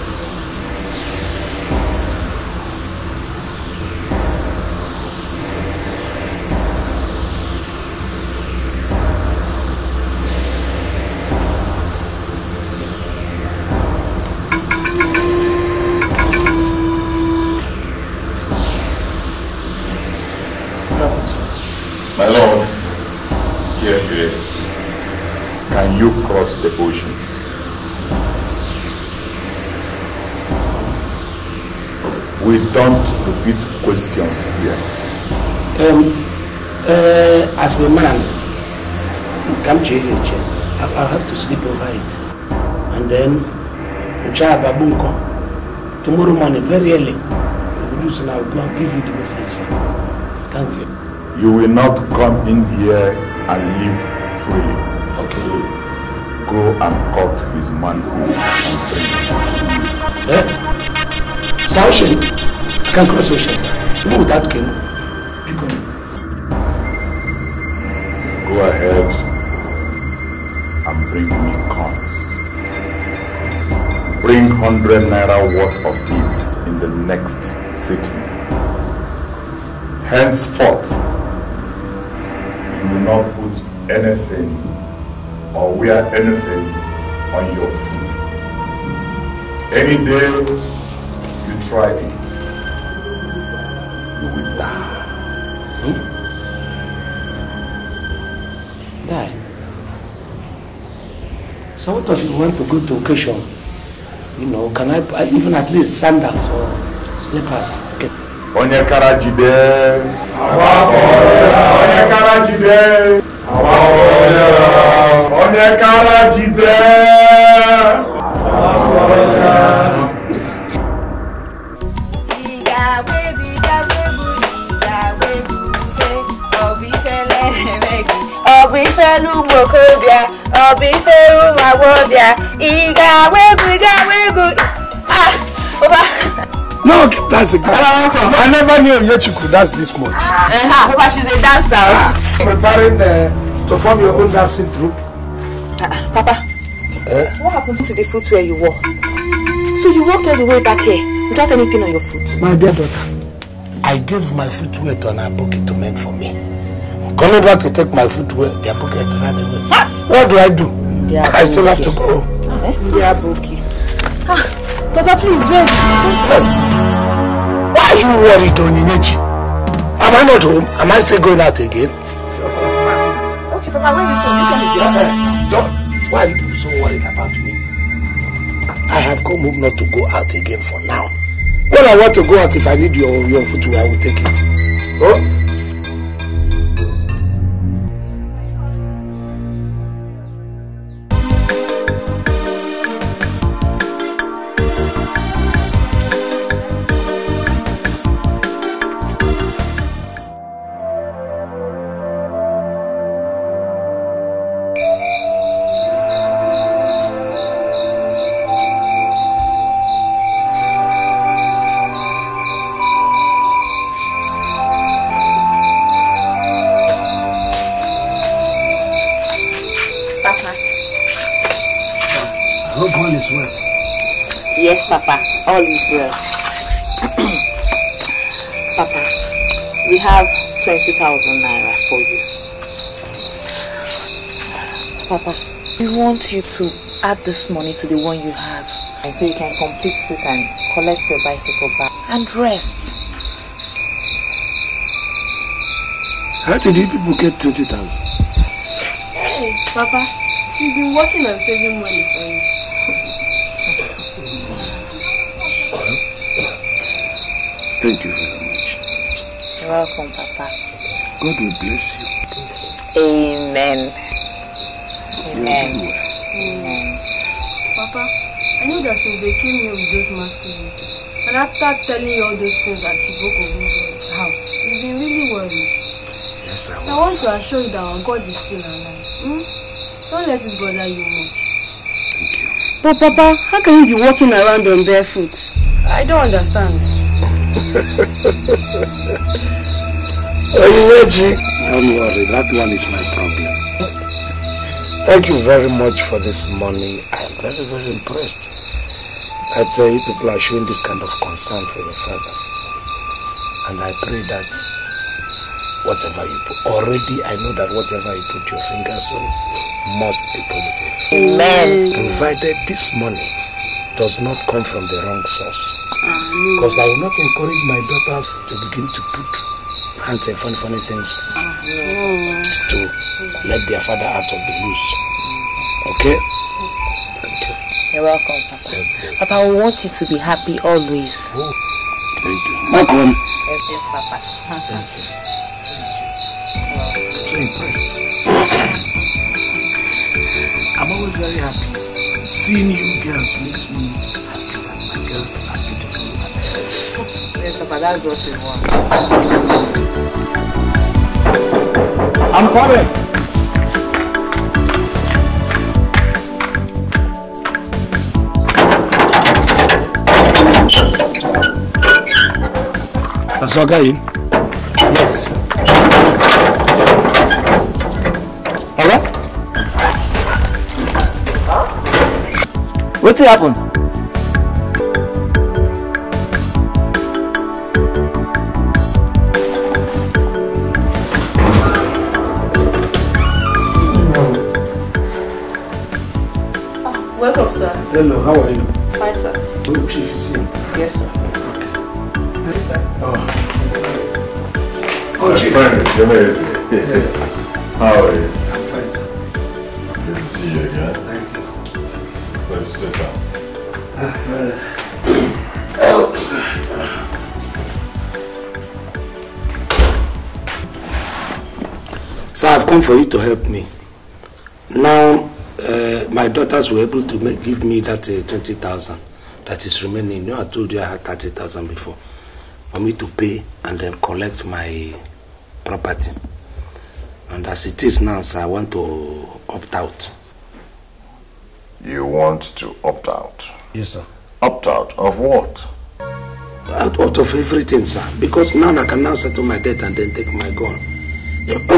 don't repeat questions here. Um, uh, as a man, come to you, I have to sleep over it. And then, tomorrow morning, very early, produce and I will go and give you the message. Thank you. You will not come in here and live freely. Okay. Go and cut his manhood. Eh? Saution can't cross oceans. Even without canoe, you can. Go ahead and bring me coins. Bring 100 naira worth of beads in the next city. Henceforth, you will not put anything or wear anything on your feet. Any day you try it, do with that? Hmm? Dad. So what if you want to go to occasion? You know, can I, I even at least sandals or slippers? Okay. Onye kara jide. Àwa Onye kara jide. Àwa Onye kara jide. Àwa ifelu ụmụ okorobịa ọ bụ ifelu ụmụ agbọghọbịa ị ga-agwa egwu ị ga-agwa egwu No, that's a girl. I never knew Yechiko dance this much. Uh, uh, Papa, she's a dancer. Uh, preparing uh, to form your own dancing troupe. Uh, Papa, uh? what happened to the foot where you walk? So you walked all the way back here without anything on your foot? My dear daughter, I gave my footwear to an advocate to mend for me. Colored to take my food away, their pocket ran away. Ah! What do I do? I still have to go home. Ah, eh? They are broken. Ah, Papa, please wait. Why are you worried, Oninichi? Am I not home? Am I still going out again? Okay, Papa, when is home? This one is eh, eh, Why are you so worried about me? I have come home not to go out again for now. When I want to go out, if I need your, your food, I will take it. Oh? you to add this money to the one you have. And so you can complete it and collect your bicycle back. And rest. How did you people get 20,000? Hey, Papa, you've been working and saving money for me. Thank you very much. You're welcome, Papa. God will bless you. Amen. yourself they came here with those masquerades. And after telling you all those things that Chiboko went to his house, you've been really worried. Yes, I was. I want to assure you that our God is still alive. Hmm? Don't let it bother you much. Thank you. But Papa, how can you be walking around on barefoot? I don't understand. Are you Oyeji, don't worry, that one is my problem. Thank you very much for this money. I am very, very impressed. that uh, you people are showing this kind of concern for your father. And I pray that whatever you put, already I know that whatever you put your fingers on must be positive. Amen. Provided this money does not come from the wrong source. Because I will not encourage my daughters to begin to put hands and funny, funny things to let their father out of the loose. Okay? You're welcome, Papa. Yes, Papa, I want you to be happy always. Oh, thank you. Welcome. Yes, yes, Papa. Thank you. Thank you. So impressed. I'm always very happy. Seeing you girls makes me happy my girls are beautiful. Yes, Papa, that's what we want. I'm coming. Kasoga yìí. Yes. Hello? Huh? Wetin happen? Ah, welcome, sir. Hello, how are you? Hi, sir. Oh, Chief is here. You're amazing. How are you? I'm fine, sir. Good to see you again. Thank you. Let's sit down. so I've come for you to help me. Now, uh, my daughters were able to make, give me that uh, 20,000 that is remaining. You know, I told you I had 30,000 before. For me to pay and then collect my property. And as it is now, sir, I want to opt out. You want to opt out? Yes, sir. Opt out of what? Out, out of everything, sir. Because now I can now settle my debt and then take my gun.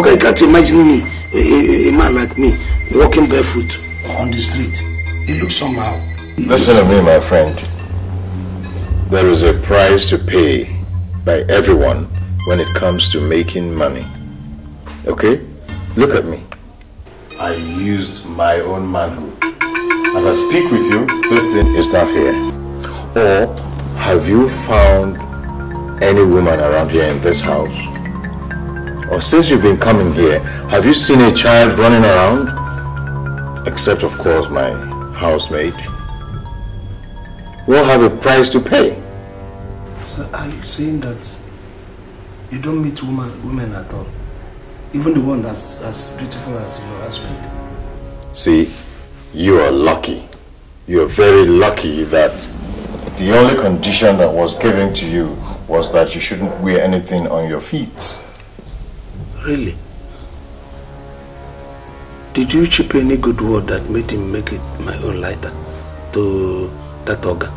Okay, you can't imagine me, a, a, a man like me, walking barefoot on the street. It looks somehow. It Listen looks to me, my friend. There is a price to pay by everyone when it comes to making money. Okay? Look at me. I used my own manhood. As I speak with you, this thing is not here. Or have you found any woman around here in this house? Or since you've been coming here, have you seen a child running around? Except, of course, my housemate. We'll have a price to pay. Sir, are you saying that you don't meet woman, women at all. Even the one that's as beautiful as your husband. See, you are lucky. You are very lucky that the only condition that was given to you was that you shouldn't wear anything on your feet. Really? Did you chip any good word that made him make it my own lighter to that ogre?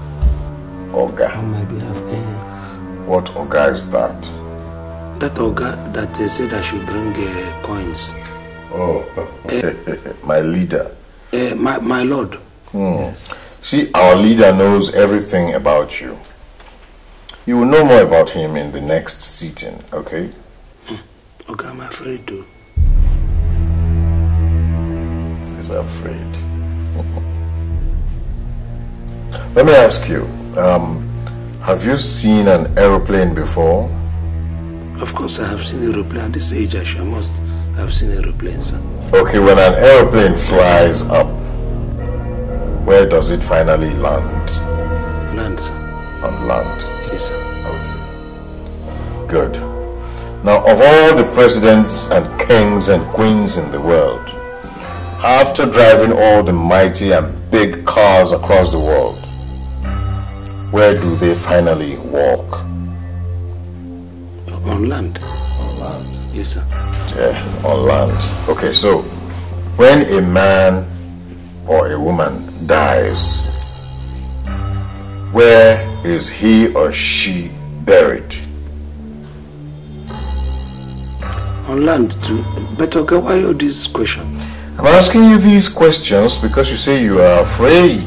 Ogre? On my behalf, eh? What ogre is that? that Oga that uh, said I should bring uh, coins. Oh, uh, my leader. Uh, my, my lord. Hmm. Yes. See, our leader knows everything about you. You will know more about him in the next sitting, okay? Hmm. Okay, I'm afraid to. He's afraid. Let me ask you, um, have you seen an aeroplane before? Of course, I have seen aeroplane. At this age, I sure must have seen aeroplanes, sir. Okay, when an aeroplane flies up, where does it finally land? Land, sir. On land? Yes, sir. Good. Now, of all the presidents and kings and queens in the world, after driving all the mighty and big cars across the world, where do they finally walk? On land. On land? Yes, sir. Yeah, on land. Okay, so when a man or a woman dies, where is he or she buried? On land, too. But okay, why all these questions? I'm asking you these questions because you say you are afraid.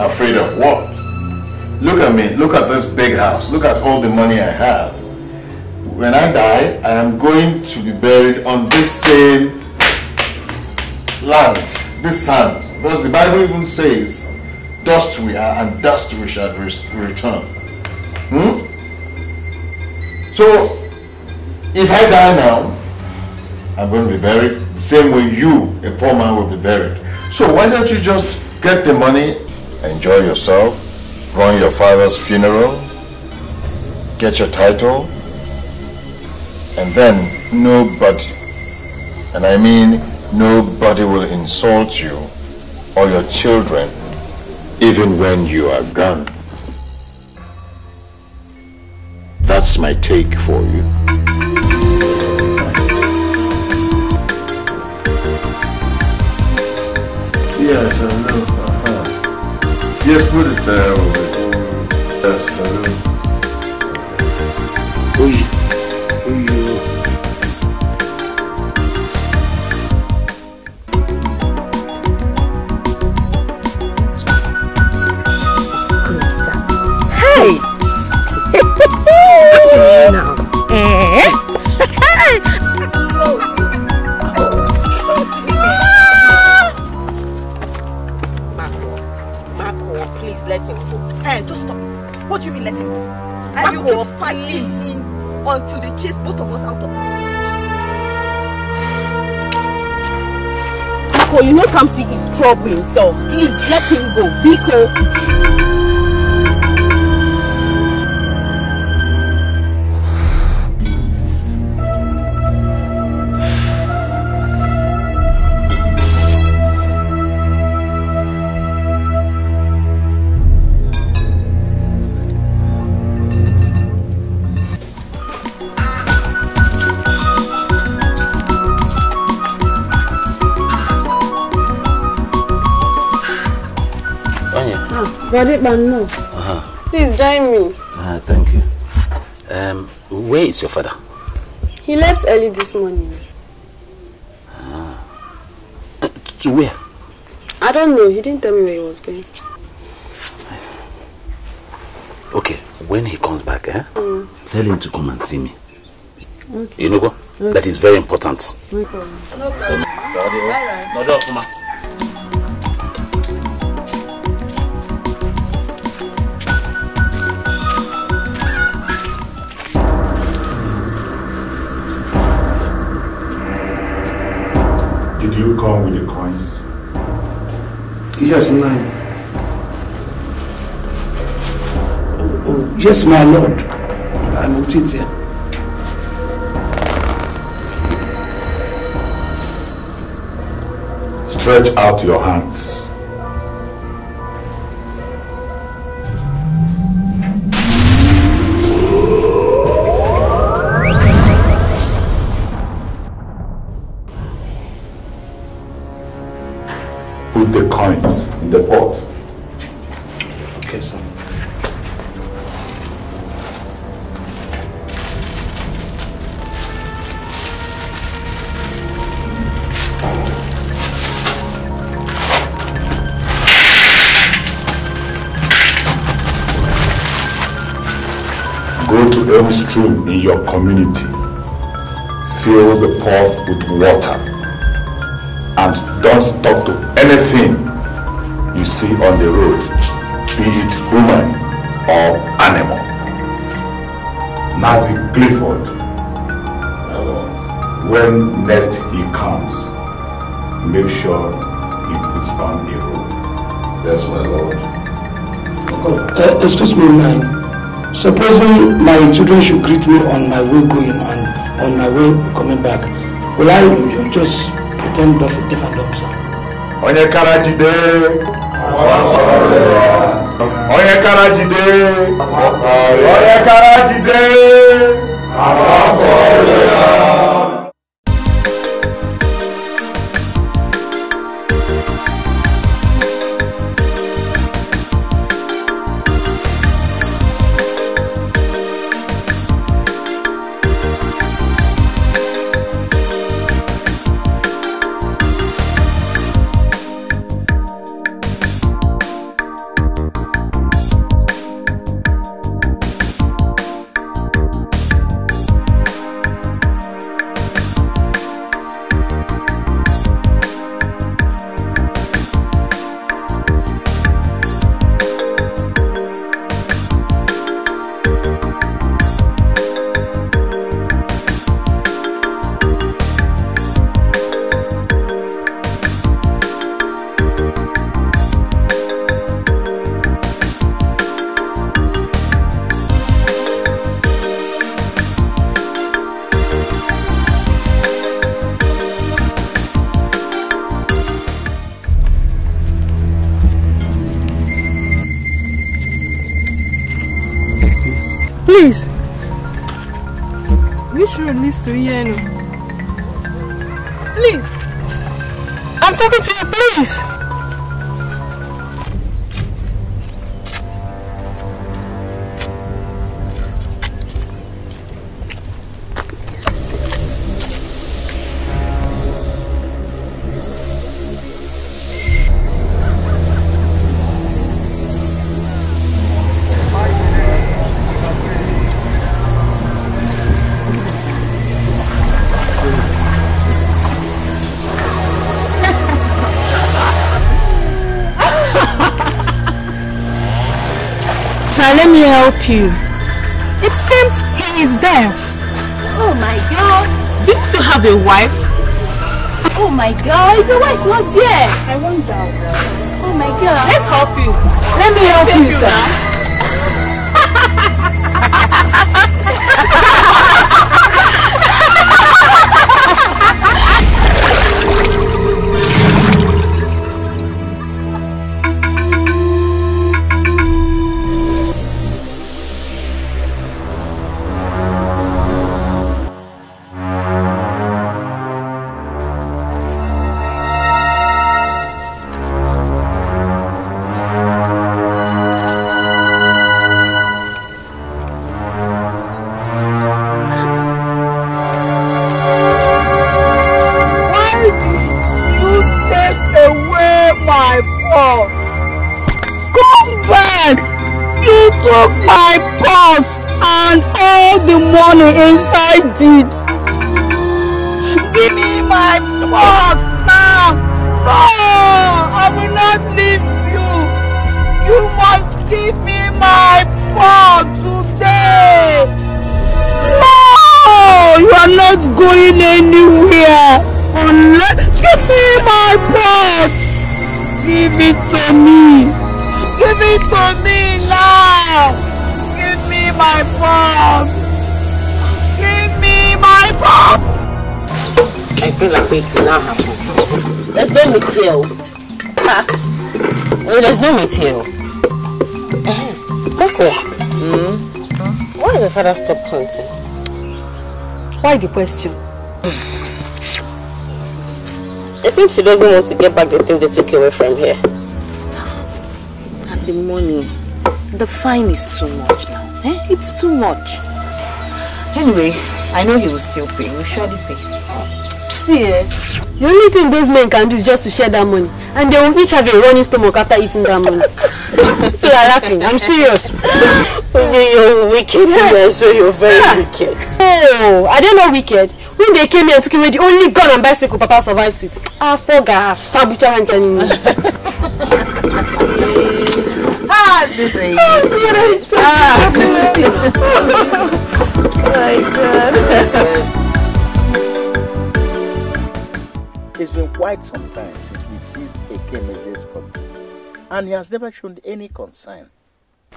Afraid of what? Look at me. Look at this big house. Look at all the money I have when I die, I am going to be buried on this same land, this sand. Because the Bible even says, dust we are and dust we shall return. Hmm? So, if I die now, I'm going to be buried the same way you, a poor man, will be buried. So why don't you just get the money, enjoy yourself, run your father's funeral, get your title, and then nobody, and I mean nobody will insult you or your children even when you are gone. That's my take for you. Yes, I know. Uh -huh. Yes, put it there. Yes, I know. What do you mean let him go? And you keep fighting him until they chase both of us out of this village. Biko, you know Kamsi is troubling. himself. Please let him go. Biko. Gadiban, no. Uh-huh. Please join me. Ah, thank you. Um, where is your father? He left early this morning. Ah. Uh, to where? I don't know. He didn't tell me where he was going. Okay, when he comes back, eh? Mm. Tell him to come and see me. Okay. You know what? Okay. That is very important. No problem. No problem. No problem. do you come with the coins? Yes, nine. Oh, oh, yes, my lord. I will it here. Stretch out your hands. your community. Fill the path with water and don't stop to anything you see on the road, be it human or animal. Nazi Clifford, when next he comes, make sure he puts on the road. Yes, my lord. Uh, excuse me, man. Supposing my children should greet me on my way going and on my way coming back, will I just pretend deaf and dumb, sir? Onye Karajide. Onye Karajide. Onye Karajide. estoy lleno. It seems he is deaf. Oh my god. Didn't you have a wife? Oh my god, The wife was here. I wonder. Oh my god. Let's help you. Let me help you, you, sir. is father stop hunting? Why the question? It seems she doesn't want to get back the thing they took away from here. And the money, the fine is too much now. Eh? It's too much. Anyway, I know he will still pay. He will surely pay. See, eh? The only thing those men can do is just to share that money. And they will each have a running stomach after eating that money. You are laughing. I'm serious. You're wicked, yes, so you're very wicked. Oh, I don't know wicked. When they came here and took away the only gun and bicycle Papa survives with. Ah, foga, sabucha hanchani. Ah, this is. Oh, my God. Ah. It's been quite some time since we seized a message and he has never shown any concern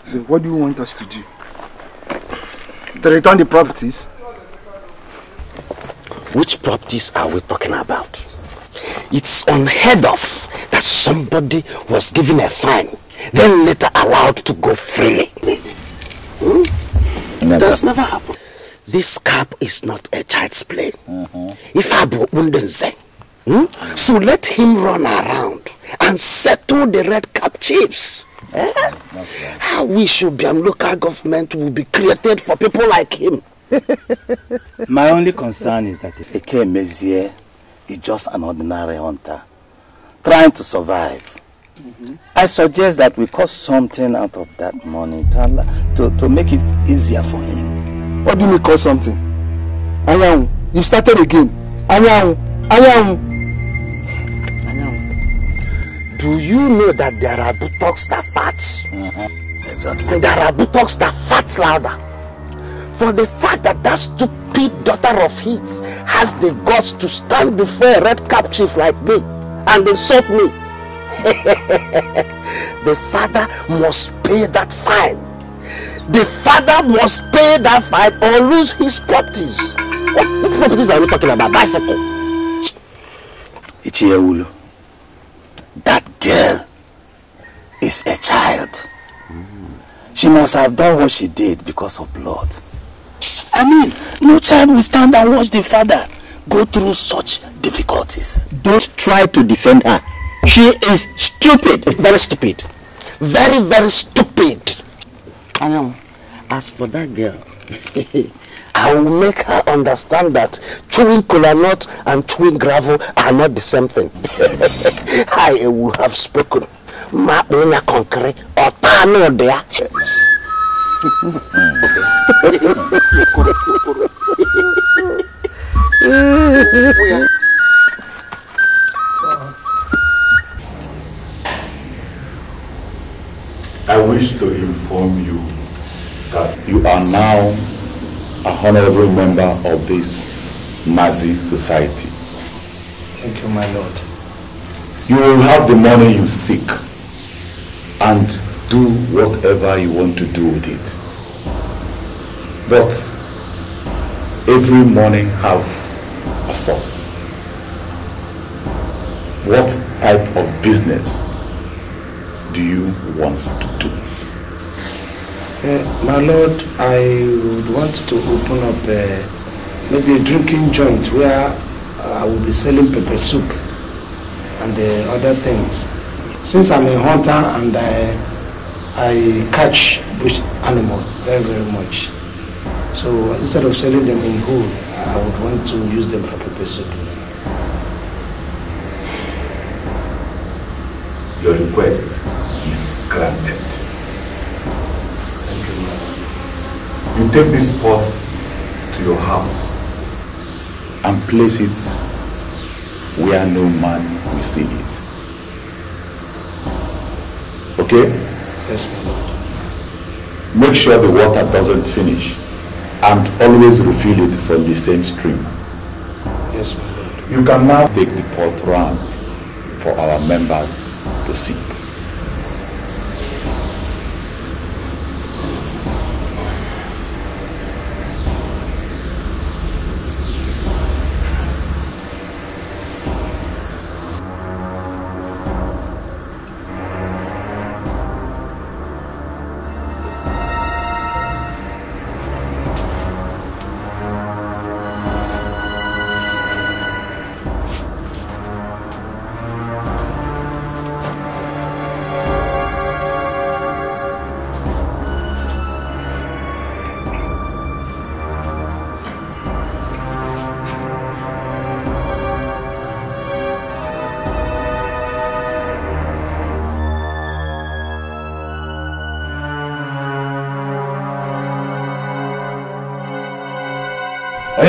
so what do you want us to do? To return the properties? Which properties are we talking about? It's unheard of that somebody was given a fine, then later allowed to go freely. Hmm? Never. That's never happened. This cap is not a child's play. Mm-hmm. If I Abro hmm? So let him run around and settle the red cap chiefs. Eh? I wish Ubiam local government would be created for people like him. My only concern is that Eke Mezie is just an ordinary hunter trying to survive. Mm -hmm. I suggest that we cut something out of that money to, to, to make it easier for him. What do you mean cut something? Anyang, you started again. Anyang, Anyang do you know that there are buttocks that fat? Mm -hmm. Exactly. there are buttocks that fat louder. For the fact that that stupid daughter of his has the guts to stand before a red cap chief like me and insult me, the father must pay that fine. The father must pay that fine or lose his properties. What, what properties are we talking about? Bicycle. It's here, Ulu. That girl is a child. Mm. She must have done what she did because of blood. I mean, no child will stand and watch the father go through such difficulties. Don't try to defend her. She is stupid. Very stupid. Very, very stupid. I know. As for that girl, I will make her understand that chewing cola nut and chewing gravel are not the same thing. Yes. I will have spoken. Ma concrete concre or tano dea. I wish to inform you that you are now a honorable member of this Mazi society. Thank you, my lord. You will have the money you seek and do whatever you want to do with it. But every morning have a source. What type of business do you want to do? Uh, my lord, I would want to open up a, maybe a drinking joint where I will be selling pepper soup and the eh, other things. Since I'm a hunter and I, I catch bush animals very, very much. So instead of selling them in whole, I would want to use them for pepper soup. Your request is granted. You take this pot to your house and place it where no man will see it. Okay? Yes, my Lord. Make sure the water doesn't finish and always refill it from the same stream. Yes, my Lord. You can now take the pot round for our members to see.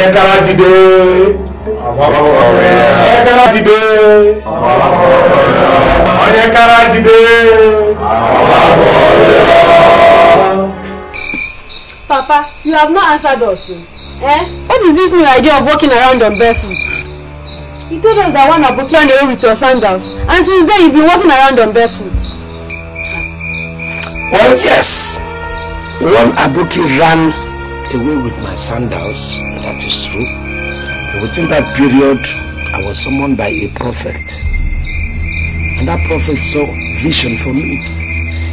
ẹ kára dìde ẹ kára dìde ọyẹ kára dìde. Papa, you have not answered us. Eh? eh? What is this new idea of walking around on barefoot? He told us that one Aboki on the road with your sandals. And since then, you've been walking around on barefoot. Well, yes. One Aboki ran away with my sandals That is true. Within that period, I was summoned by a prophet. And that prophet saw vision for me.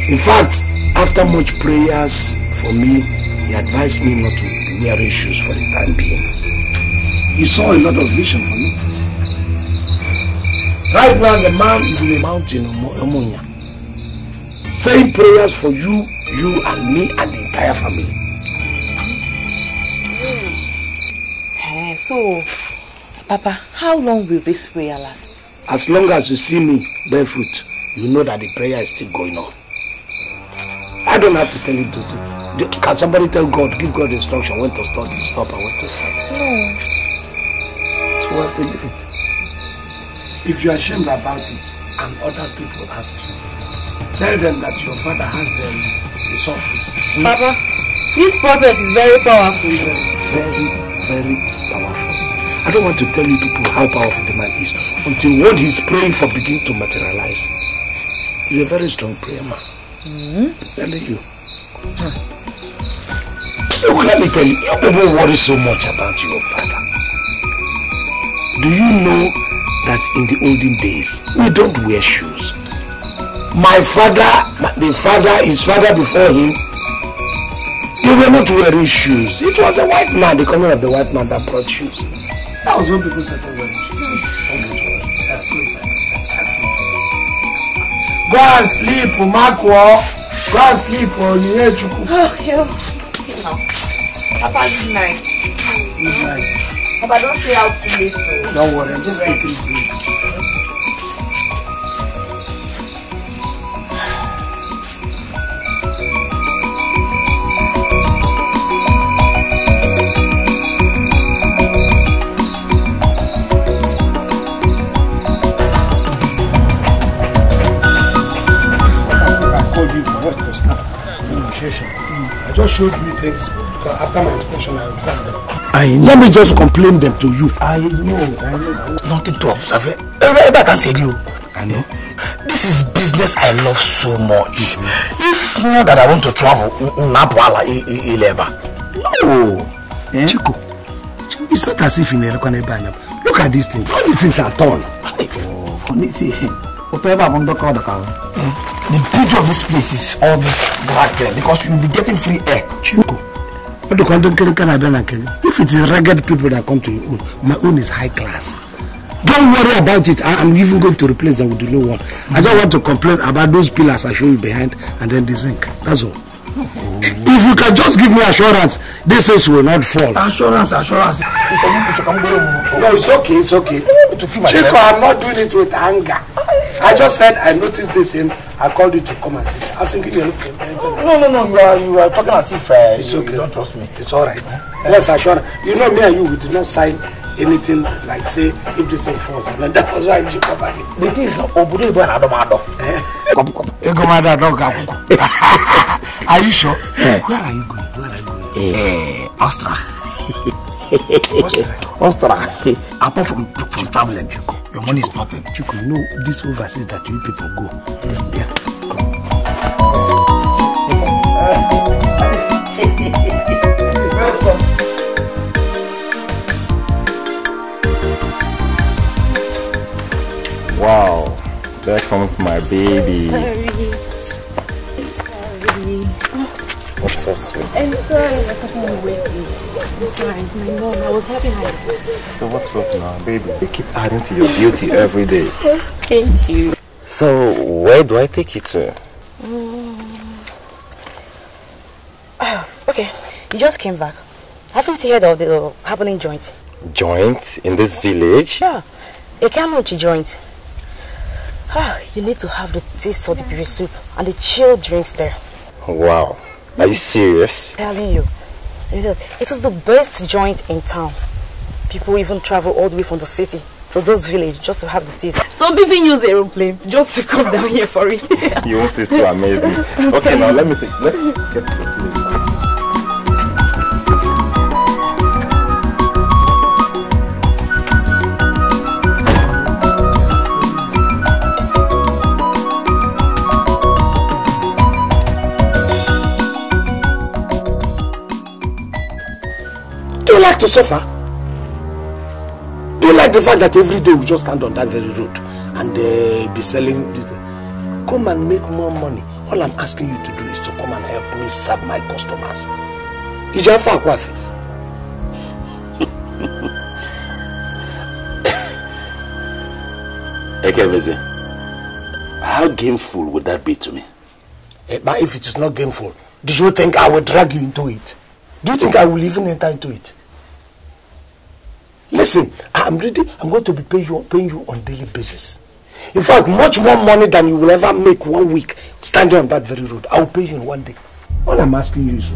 In fact, after much prayers for me, he advised me not to wear shoes for the time being. He saw a lot of vision for me. Right now, the man is in the mountain of Omonia, saying prayers for you, you and me and the entire family. So, Papa, how long will this prayer last? As long as you see me bear fruit, you know that the prayer is still going on. I don't have to tell you to Can somebody tell God, give God instruction when to stop, you stop and when to start? No. It's worth have to leave it. If you're ashamed about it and other people ask you, tell them that your father has them. Um, the soft Papa, this prophet is very powerful. Very, very, very I don't want to tell you people how powerful the man is until what he's praying for begin to materialize. He's a very strong prayer man. Mm -hmm. Telling you. Huh. Look, let me tell you, you people worry so much about your father. Do you know that in the olden days we don't wear shoes? My father, the father, his father before him, they were not wearing shoes. It was a white man, the coming of the white man that brought shoes. That was when people started oh, wearing shoes. Don't get worried. Uh, Go and sleep, Umakwo. Oh. Go and sleep, Onyechukwu. Oh, okay. Now, Papa, good night. Good night. Papa, don't stay out too late. Don't worry, I'm just taking this. just showed you things because after my inspection I observed them. I know. Let me just complain them to you. I know, I know. Nothing to observe. Eh? Everybody can say you. I know. This is business I love so much. Mm-hmm. If not that I want to travel, Napala Ileba. No. Eh? Chico, it's not as if you're in Elokaneba. Look at these things. All these things are torn. Oh, honestly, whatever I'm under cover. The beauty of this place is all this black there because you'll be getting free air. Chinko. what do you If it is ragged people that come to your own, my own is high class. Don't worry about it. I, I'm even going to replace them with the new one. Mm-hmm. I just want to complain about those pillars I show you behind and then the zinc. That's all. Oh. If you can just give me assurance, these things will not fall. Assurance, assurance. No, it's okay, it's okay. Chico, I'm not doing it with anger. I just said I noticed this in I called you to come and sit. I think you look. No, no, no. You are you are talking as if uh, it's okay. you don't trust me. It's all right. Yes, I sure. You know me and you. We did not sign anything like say if this is false, and that was why you come back. The thing is, not. Ibo and Adomado. Egomada Adogakuko. Are you sure? Eh. Where are you going? Where are you going? Eh, eh Austria. Ostra. Apart from from traveling, Chuku, your money is nothing. Chuku, you know these overseas that you people go. Mm. Yeah. Wow, there comes my baby. So sorry. That's so sweet. I'm sorry, I couldn't wait. I'm sorry, my mom. I was happy hiding. So what's up now, baby? You keep adding to your beauty every day. Thank you. So where do I take you to? oh, okay, you just came back. Haven't you heard of the uh, happening joint? Joint in this village? Yeah, a Kanuchi joint. Ah, you need to have the taste of the beer soup and the chilled drinks there. Wow, are you serious? I'm telling you. You know, it is the best joint in town. People even travel all the way from the city to those village just to have the taste. Some people use aeroplane just to come down here for it. you want sister amaze me. Okay, now let me think. Let's get you like to suffer? Do you like the fact that every day we just stand on that very road and uh, be selling this? Come and make more money. All I'm asking you to do is to come and help me serve my customers. Is your Ìjà fún àkọ́àfẹ́. Ekeveze, how gameful would that be to me? Eh, but if it is not gameful, do you think I will drag you into it? Do you think I will even enter into it? Listen, I'm ready. I'm going to be paying you, paying you on daily basis. In fact, much more money than you will ever make one week standing on that very road. I'll pay you in one day. All I'm asking you is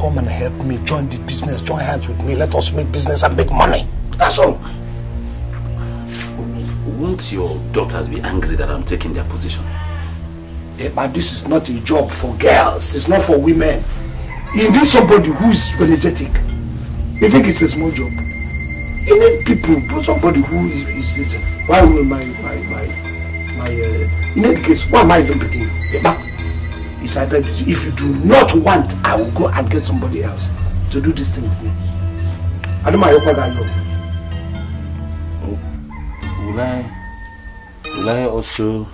come and help me join the business, join hands with me. Let us make business and make money. That's all. Won't your daughters be angry that I'm taking their position? Yeah, but this is not a job for girls. It's not for women. You need somebody who is energetic. You think it's a small job? you need people but somebody who is is why will my my my my uh, in any case why am I even begging you Eba it's either if you do not want I will go and get somebody else to do this thing with me I don't Aduma Ayokwa Gayo. Will I will I also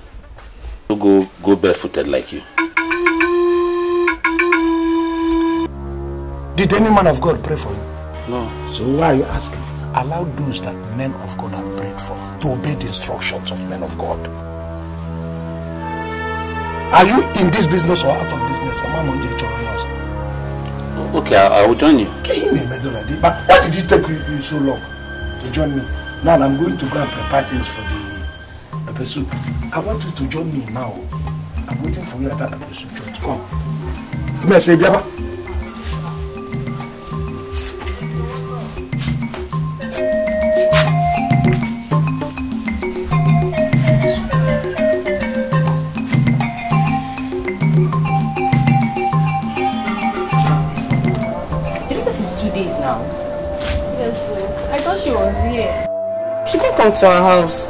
go go barefooted like you? Did any man of God pray for you? No. So why are you asking? Allow those that men of God have prayed for to obey the instructions of men of God. Are you in this business or out of business? Am I among the children? Okay, I, I will join you. But why did it take you, you so long to join me? Now I'm going to go and prepare things for the pepper soup. I want you to join me now. I'm waiting for you at that pepper Come. Come and say, Biaba. come to our house.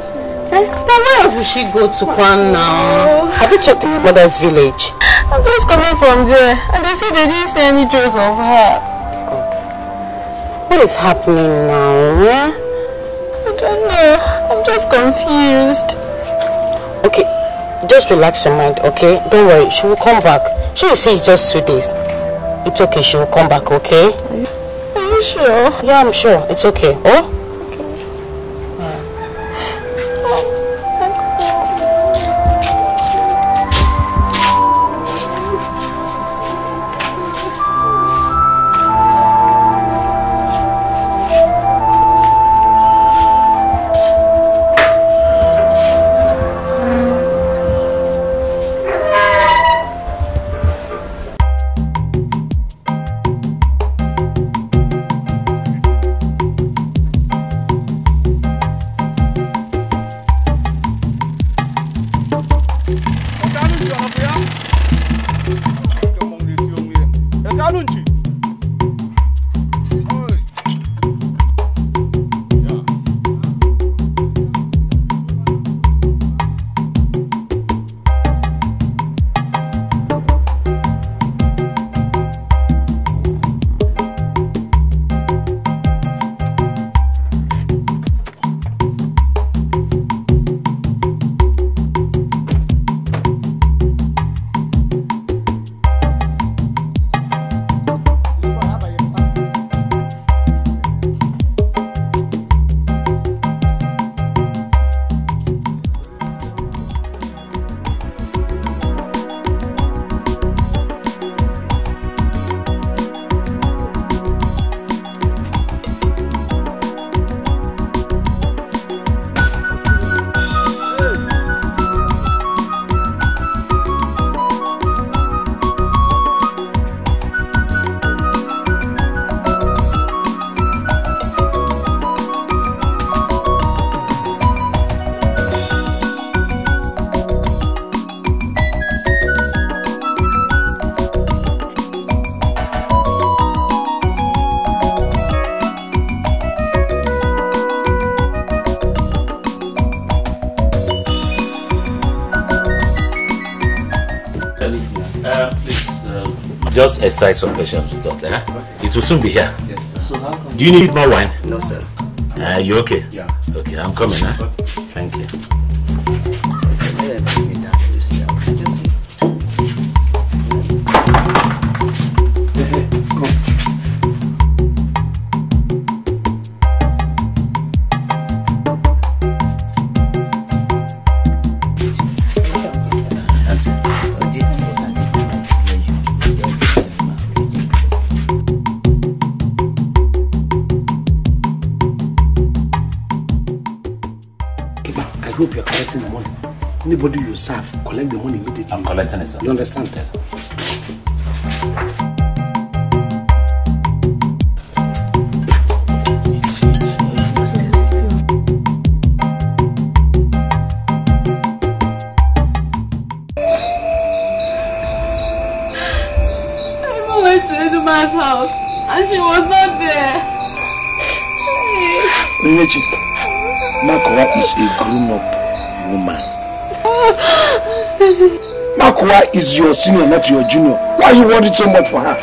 Now eh? where else will she go to Kwan now? Have you checked the mother's village? I'm just coming from there and they say they didn't see any trace of her. What is happening now? Yeah? I don't know. I'm just confused. Okay, just relax your mind, okay? Don't worry, she will come back. She will say it's just two days. It's okay, she will come back, okay? Are you sure? Yeah, I'm sure. It's okay. Oh? just excite some questions with eh? It will soon be here. Yes, Do you need more wine? No, sir. Uh, you okay? Yeah. Okay, I'm coming. Huh? donde están? Why is your senior, not your junior. Why are you worried so much for her?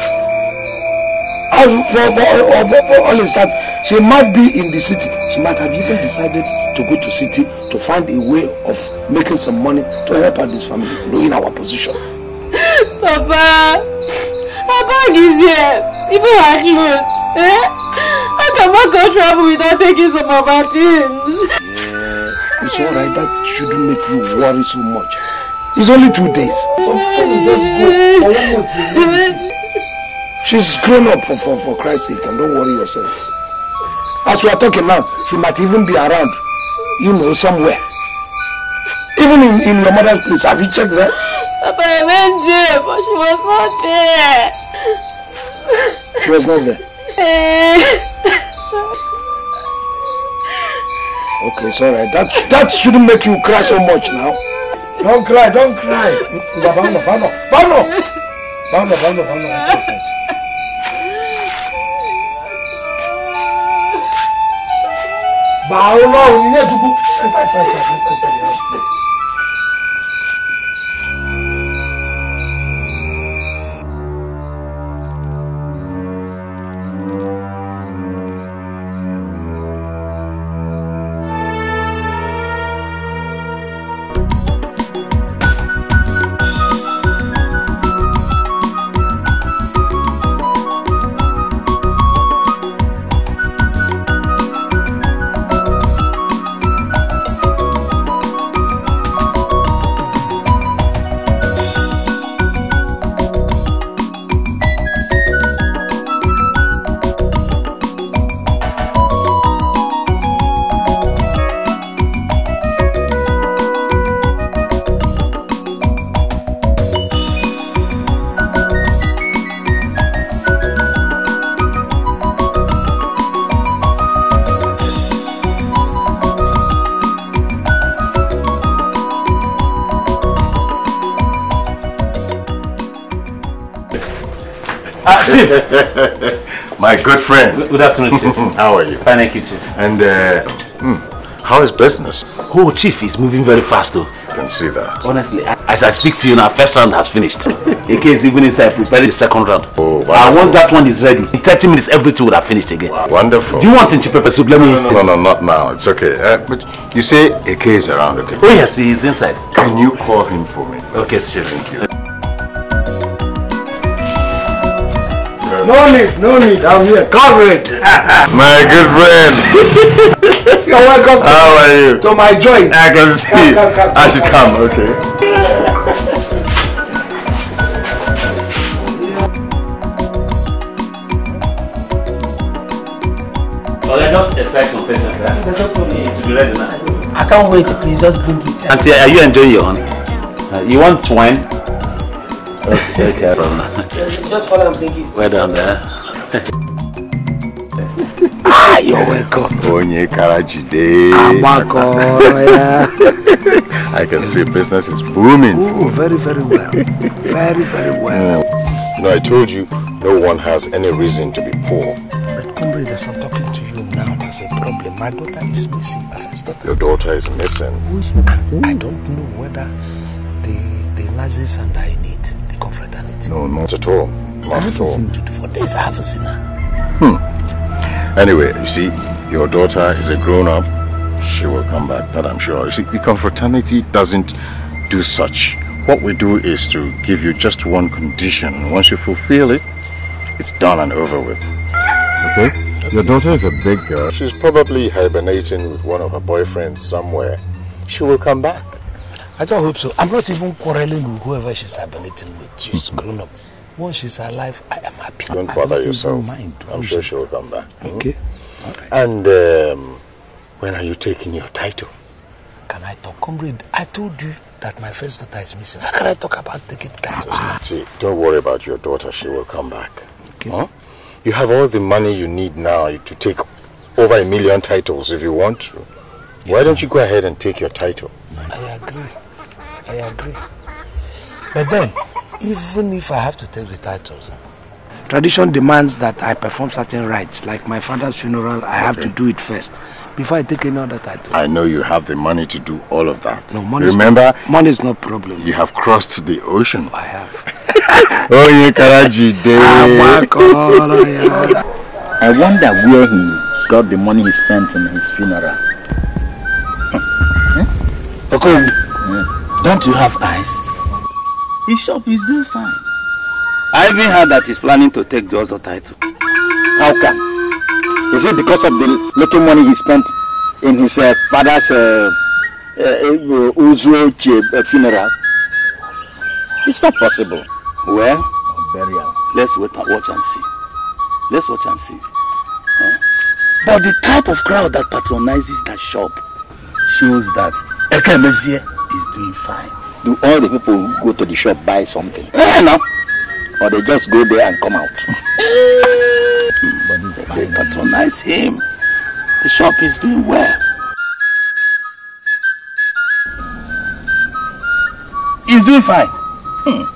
As for, for, for, for, for all is that she might be in the city. She might have even decided to go to city to find a way of making some money to help out this family, knowing our position. Papa, her bag is here. Even her clothes. Eh? I cannot go travel without taking some of her things. Yeah, it's alright. That shouldn't make you worry so much. It's only two days. She's grown up for, for, for Christ's sake and don't worry yourself. As we are talking now, she might even be around, you know, somewhere. Even in, in your mother's place, have you checked that? Papa, I went there, but she was not there. She was not there? okay, it's alright. That, that shouldn't make you cry so much now. Don't cry, don't cry. Bano, Bano, Bano, Bano, Bano, Bano. Báwo lọ́rùn ní ẹ̀dúgbò? Ẹ ta ìsàlẹ̀, ẹ ta Chief. My good friend. Good afternoon, Chief. how are you? Fine, thank you, Chief. And uh, hmm, how is business? Oh, Chief, is moving very fast, though. I can see that. Honestly, as I speak to you now, first round has finished. In case even inside preparing the second round. Oh, uh, wonderful. And once that one is ready, in 30 minutes, everything would have finished again. Wow. Wonderful. Do you want in pepper soup? Let me... No, no, no, not now. It's okay. Uh, but you say AK is around, okay? Oh, yes, he is inside. Can you call him for me? Okay, Chief. Thank you. No need, no need. I'm here. covered. my good friend. You're welcome. How are you? To my joint. I can see. Come, come, come, I should come. Okay. Well, I just exercise patience. not for me. To be ready now. I can't wait. Please just bring it. Auntie, are you enjoying your honey? Uh, you want wine? Okay, okay. Just follow and bring it. Well done, there? Eh? Ah, ah, you're welcome. Onye Karajide. Abako, yeah. I can see business is booming. Oh, very, very well. Very, very well. Mm. No, I told you, no one has any reason to be poor. But comrade, I'm talking to you now, there's a problem. My daughter is missing. My first daughter. Your daughter is missing. And I don't know whether the, the Nazis and I no, not at all. Not at all. seen for days. I haven't seen her. Hmm. Anyway, you see, your daughter is a grown-up. She will come back, that I'm sure. You see, the confraternity doesn't do such. What we do is to give you just one condition. once you fulfill it, it's done and over with. Okay? Your daughter is a big girl. She's probably hibernating with one of her boyfriends somewhere. She will come back. I just hope so. I'm not even quarreling with whoever she's ablating with. She's mm -hmm. grown up. Once she's alive, I am happy. Don't bother yourself. Mind. I'm sure she will come back. Hmm? Okay. Hmm? Right. And um, when are you taking your title? Can I talk? Comrade, I told you that my first daughter is missing. How can I talk about taking titles? Ah. See, don't worry about your daughter. She will come back. Okay. Huh? You have all the money you need now to take over a million titles if you want to. Yes, Why don't you go ahead and take your title? But then, even if I have to take the titles, tradition demands that I perform certain rites. Like my father's funeral, I okay. have to do it first before I take any other title. I know you have the money to do all of that. No, money Remember? Is money is not problem. You have crossed the ocean. I have. oh, you Karaji day. I wonder where he got the money he spent in his funeral. Don't you have eyes? His shop is doing fine. I even heard that he's planning to take the other title. How come? Is it because of the little money he spent in his uh, father's uh, uh, uh, uh, funeral? It's not possible. Well, burial. Let's wait and watch and see. Let's watch and see. Huh? But the type of crowd that patronizes that shop shows that Ekemezie is doing fine. Do all the people go to the shop buy something? Eh, no. Or they just go there and come out. but they, they patronize him. The shop is doing well. He's doing fine. Hmm.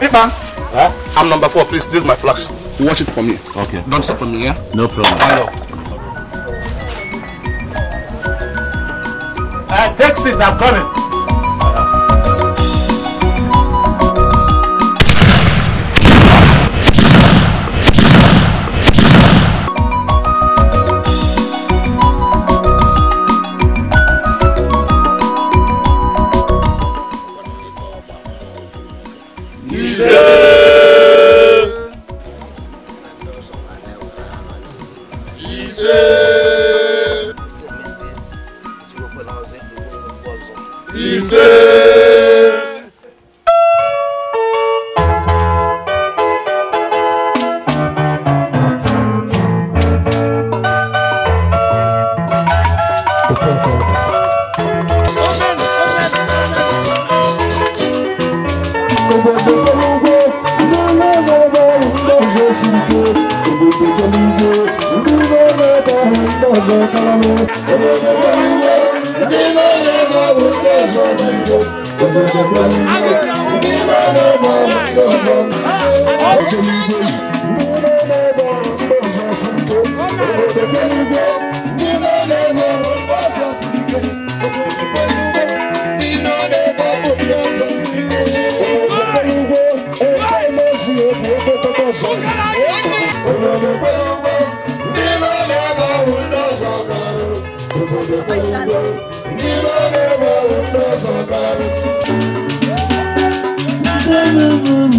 Abiba. Huh? I'm number four, please. This is my flash. Watch it for me. Okay. Don't stop me, yeah? No problem. I love. Uh, I'm coming.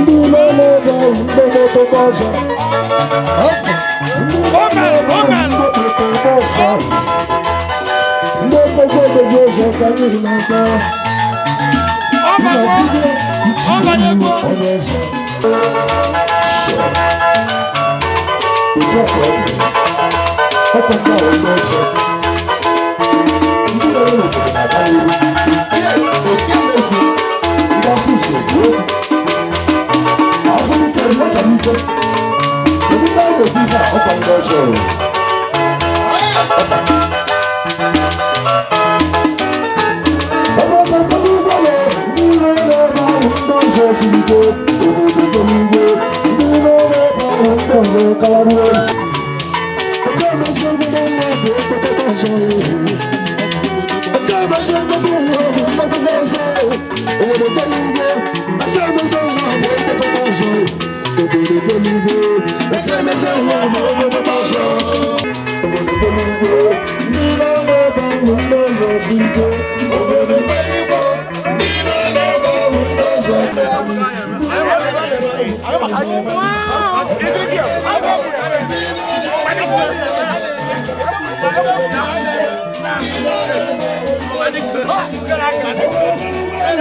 ndị ume na-ebe ahụ ndị na-etobe ọzọ ndị na-etobe ọzọ ndị ekpekọ odobe ọzọ ka anyị hụ n'aka nnagide Johnson. Kalaboué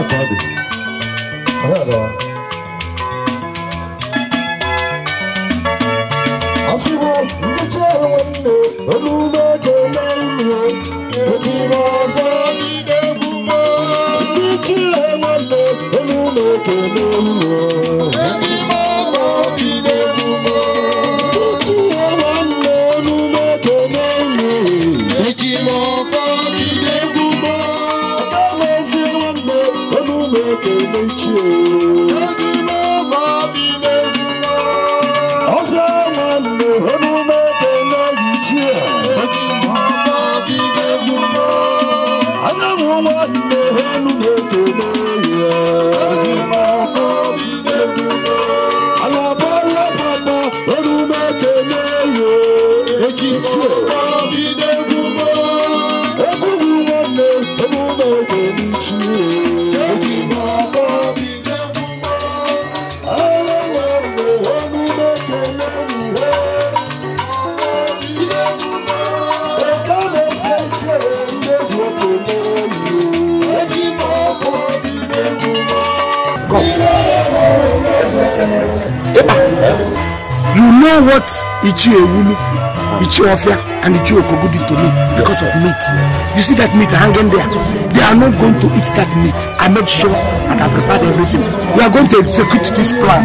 Shot, Bobby. I Ichi Ewulu, Ichi Ofia, and Ichi Okogudi to me because of meat. You see that meat hanging there? They are not going to eat that meat. I made sure that I prepared everything. We are going to execute this plan.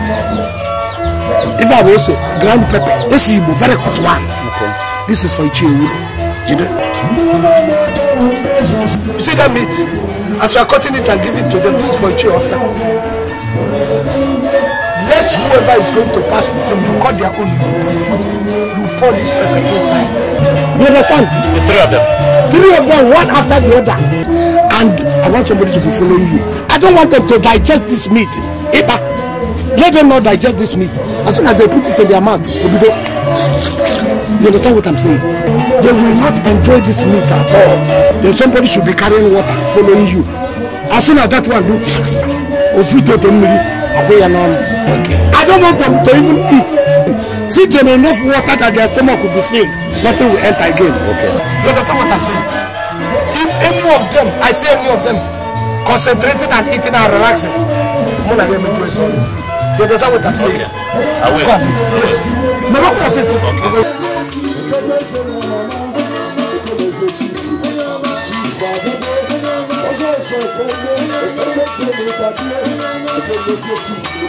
If I were to say, ground pepper, this is a very hot one. Okay. This is for Ichi Ewulu. You You see that meat? As you are cutting it and giving it to them, this is for Ichi Ofia that whoever is going to pass with him, you cut their own, you put, you pour this pepper inside. You understand? The three of them. Three of them, one after the other. And I want somebody to be following you. I don't want them to digest this meat. Eba. Let them not digest this meat. As soon as they put it in their mouth, they'll be there. You understand what I'm saying? They will not enjoy this meat at all. Then somebody should be carrying water, following you. As soon as that one do, of it, away and on. I don't want them to even eat. See them enough water that their stomach will be filled. Nothing will enter again. Okay. You understand what I'm saying? If any of them, I say any of them, concentrating and eating and relaxing, more like them enjoy You understand what I'm saying? Okay. I will. Come. Yes. Never process it. Okay. Thank you.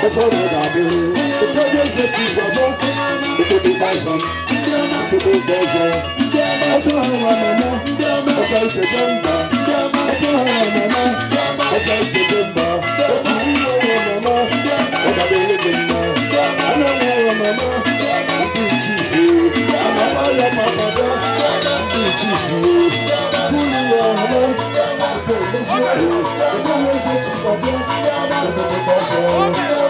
Before we got here, the project that you were working on, the people buy some, the people buy some. I feel how I'm now, I feel to jump, I feel how I'm now, I feel to jump. Oh, you know I'm now, oh, that they live in now. I know I'm now, I'm pretty chief. I'm a man, I'm a mother, I'm pretty chief. Who you are now? I'm pretty chief. The project that you were working on,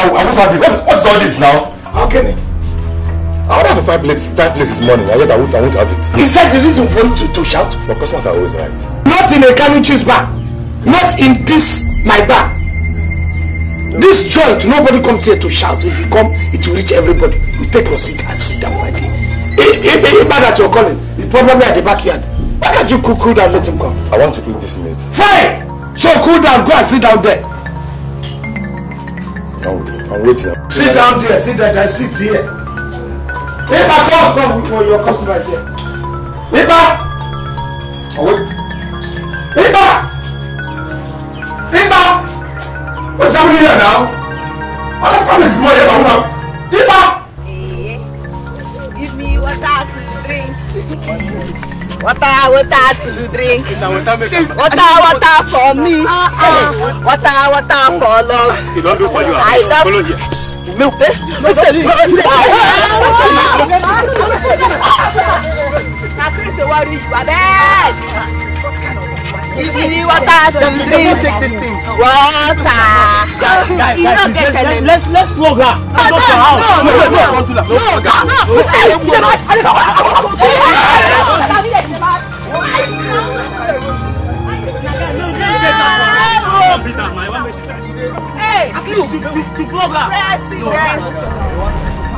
I, won't have it. What, what is all this now? How can it? I would have five places. five places this morning, and yet I won't, I won't have it. Is that the reason for you to, to shout? But customers are always right. Not in a Kanu cheese bar. Not in this, my bar. This joint, nobody comes here to shout. If you come, it will reach everybody. You take your seat and sit down quietly. Any man that you're calling, he's probably at the backyard. Why can't you cool, cool down, let him come? I want to cook this meat. Fine! So cool down, go and sit down there wait now. sit down there sit down there sit here. nípa come, come. wíwọ your customers here. nípa. water water for me ah, ah. water water for love I love you. Meu Deus! Meu You see water to this thing. Water. You no Let's let's flog her. to, to flog her. President,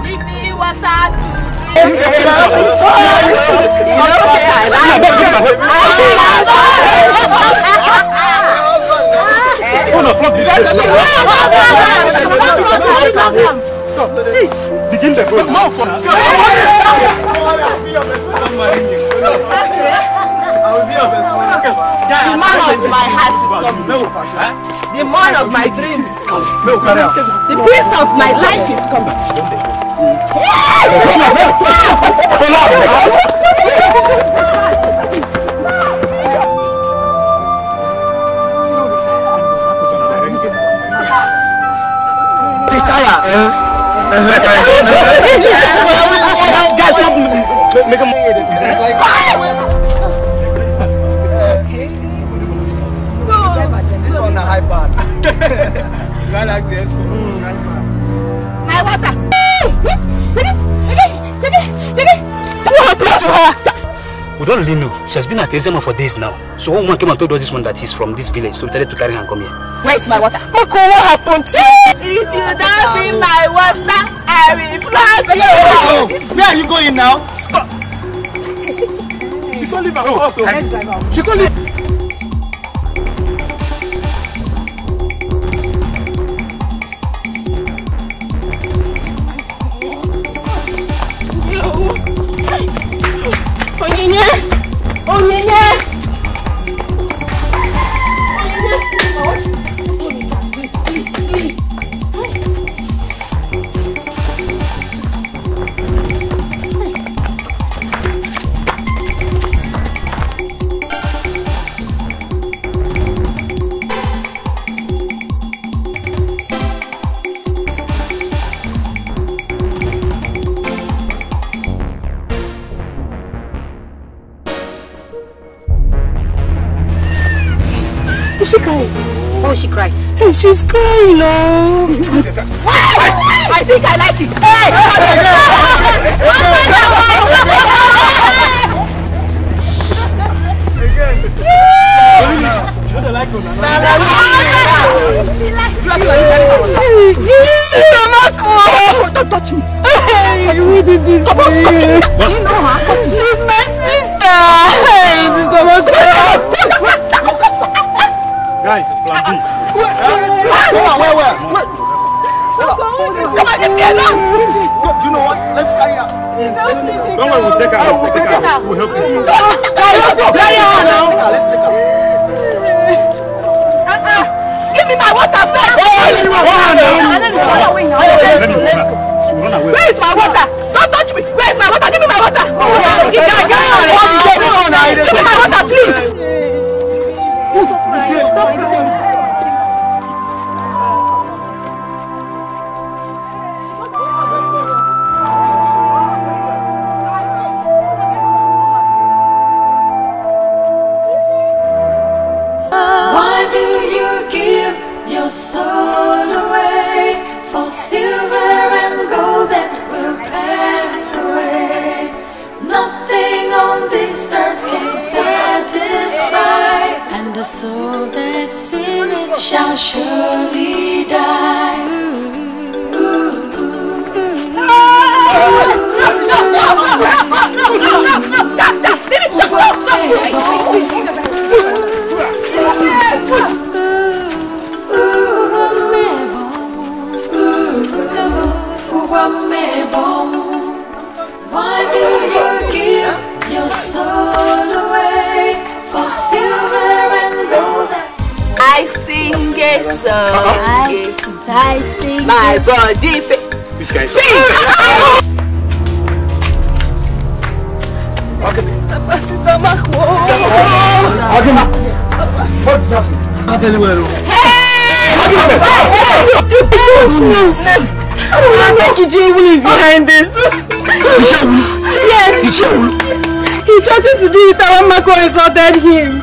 give me water to drink. Begin the go. Mouth for. The man of my heart is coming. The man of my dreams is coming. The prince of my life is coming. Retire. Guys, stop. Make a move. Galaxy S4. My water. We don't really know. She has been at Ezema for days now. So one woman came and told us this one that he's from this village. So we decided to carry her and come here. Where is my water? Mako, what happened to you? If you don't bring my water, I will flog you. Where are you going now? Stop. She can't leave her house. Oh. She can't leave. crying now. I think I like it. Hey! Again. Again. Again. we will take her. We will take her. We will help you. Let's go. Bury her now. Let's take her. Give me my water first. Oh, you want water now? Let's go. Let's go. Where is my water? Don't touch me. Where is my water? Give me my water. Give me my water, please. soul away for silver and gold that will pass away. Nothing on this earth can satisfy, and the soul that's in it shall surely die. Ooh, ooh, ooh, from me bone Why do you give your soul away For silver and gold I sing a song I, sing My body Which guy sing? Papa, sister, Marco. Agima, what is happening? Hey! Agima, what? What? What? What? What? What? What? What? I don't want to think Ichewulu is behind this. Ichewulu? Yes. Ichewulu? He threatened to do it when Mako insulted him.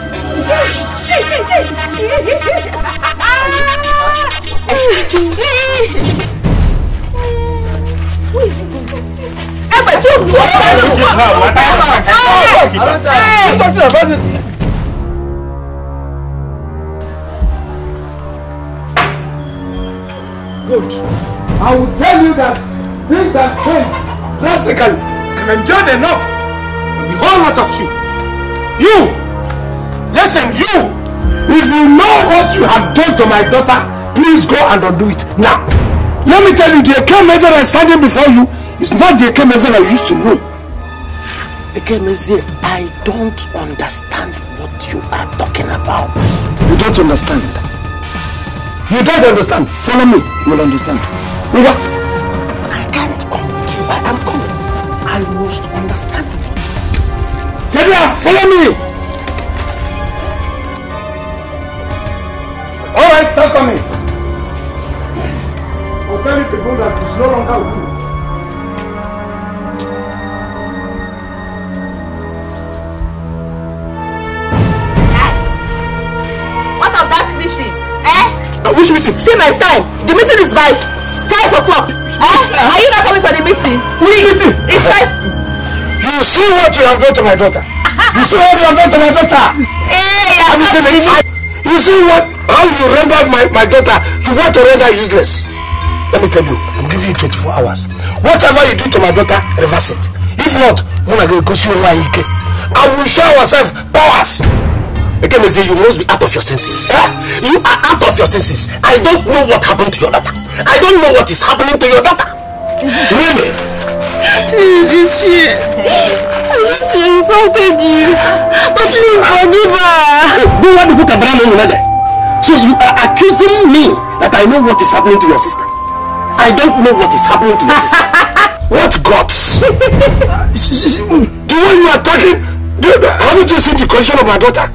Who is it? Emma, you go! Emma! Emma! Hey! Something about this. Good. I will tell you that things have changed drastically. I've endured enough. The whole lot of you. You! Listen, you! If you know what you have done to my daughter, please go and undo it now. Let me tell you, the Eke Mezera standing before you is not the Eke Mezera you used to know. Eke Mezera, I don't understand what you are talking about. You don't understand. You don't understand. Follow me, you will understand. Mira. I can't come to you. I am coming. I must understand you. follow me. All right, start coming. I'll tell you the good that it's no longer with you. What of that meeting? Eh? Uh, which meeting? See my time. The meeting is by five o'clock. Eh? Are you not coming for the meeting? Please. meeting? It's five. You see what you have done to my daughter. You see what you have done to my daughter. Hey, I'm not You see what how you rendered my, my daughter. You want to render useless. Let me tell you, I'm giving you 24 hours. Whatever you do to my daughter, reverse it. If not, when I go go see Ike, I will show myself powers. Again, say you must be out of your senses. You are out of your senses. I don't know what happened to your daughter. I don't know what is happening to your daughter. Really? Please, Ichi. I know she insulted you. But please forgive her. Don't want to book a brand on So you are accusing me that I know what is happening to your sister. I don't know what is happening to your sister. what gods? the way you are talking, dude, haven't you seen the condition of my daughter?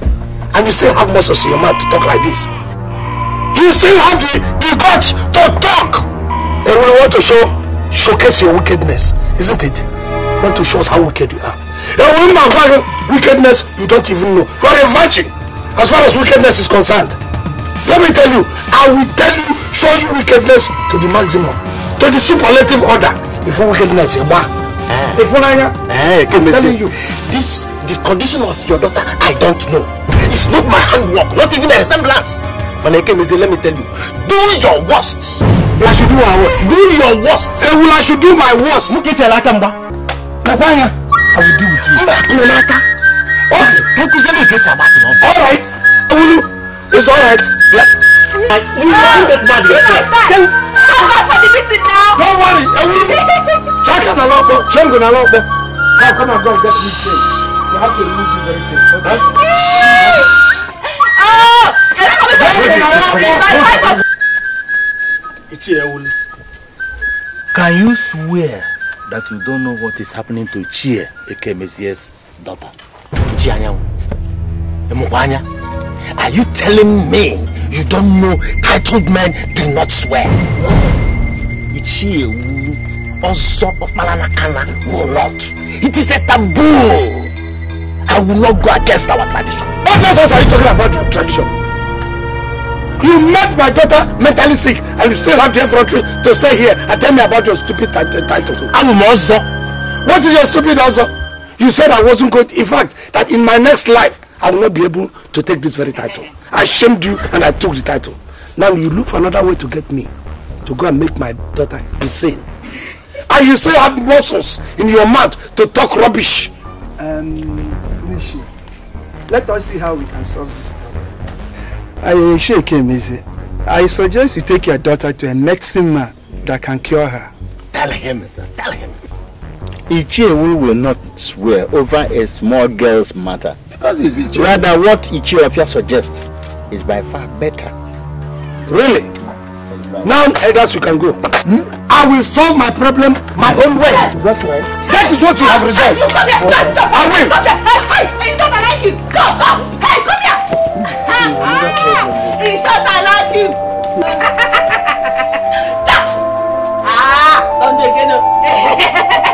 And you still have muscles in your mouth to talk like this. You still have the much to talk. And we want to show, showcase your wickedness, isn't it? We want to show us how wicked you are. A woman of wickedness you don't even know. You are a virgin as far as wickedness is concerned. Let me tell you, I will tell you, show you wickedness to the maximum, to the superlative order. If wickedness, you are. Eh. If you eh, I'm telling you, this, this condition of your daughter, I don't know. It's not my handwork, not even a resemblance. Manekemize, let me tell you, do your worst. I should do my worst. Do your worst. Ewu, I should do my worst. Look Mukete laka mba. Nakwanya, eh? I will deal with you. Mba, kuna oh. laka. you kakuze me kesa about it. All right. Ewulu, it's all right. Yeah. You are not mad yourself. I'm not for the Don't worry, Ewulu. Chaka na lopo, chengo na lopo. Come, come and go get me change. You have to remove this very thing, okay? Can you swear that you don't know what is happening to Chie, aka Messiah's daughter? Chianyangu. Are you telling me you don't know titled men do not swear? Chie also will not. It is a taboo. I will not go against our tradition. What nonsense are you talking about your tradition? You made my daughter mentally sick and you still have the effrontery to stay here and tell me about your stupid title. I'm also. What is your stupid also? You said I wasn't good. In fact, that in my next life, I will not be able to take this very title. I shamed you and I took the title. Now you look for another way to get me to go and make my daughter insane. And you still have muscles in your mouth to talk rubbish. Um, Nishi, let us see how we can solve this problem. I shake him easy. I suggest you take your daughter to a medicine man that can cure her. Tell him, tell him. Ichie will not swear over a small girl's matter. Because it's Ichie. Rather, what Ichie Ofia suggests is by far better. Really? Now, elders, you can go. Hmm? I will solve my problem my own way. That's right. That is what you have resolved. You come here, come, come, I will. Come here. Hey, hey, it's not like you. Go, go, hey, go. He shot! I like you. ah, don't again.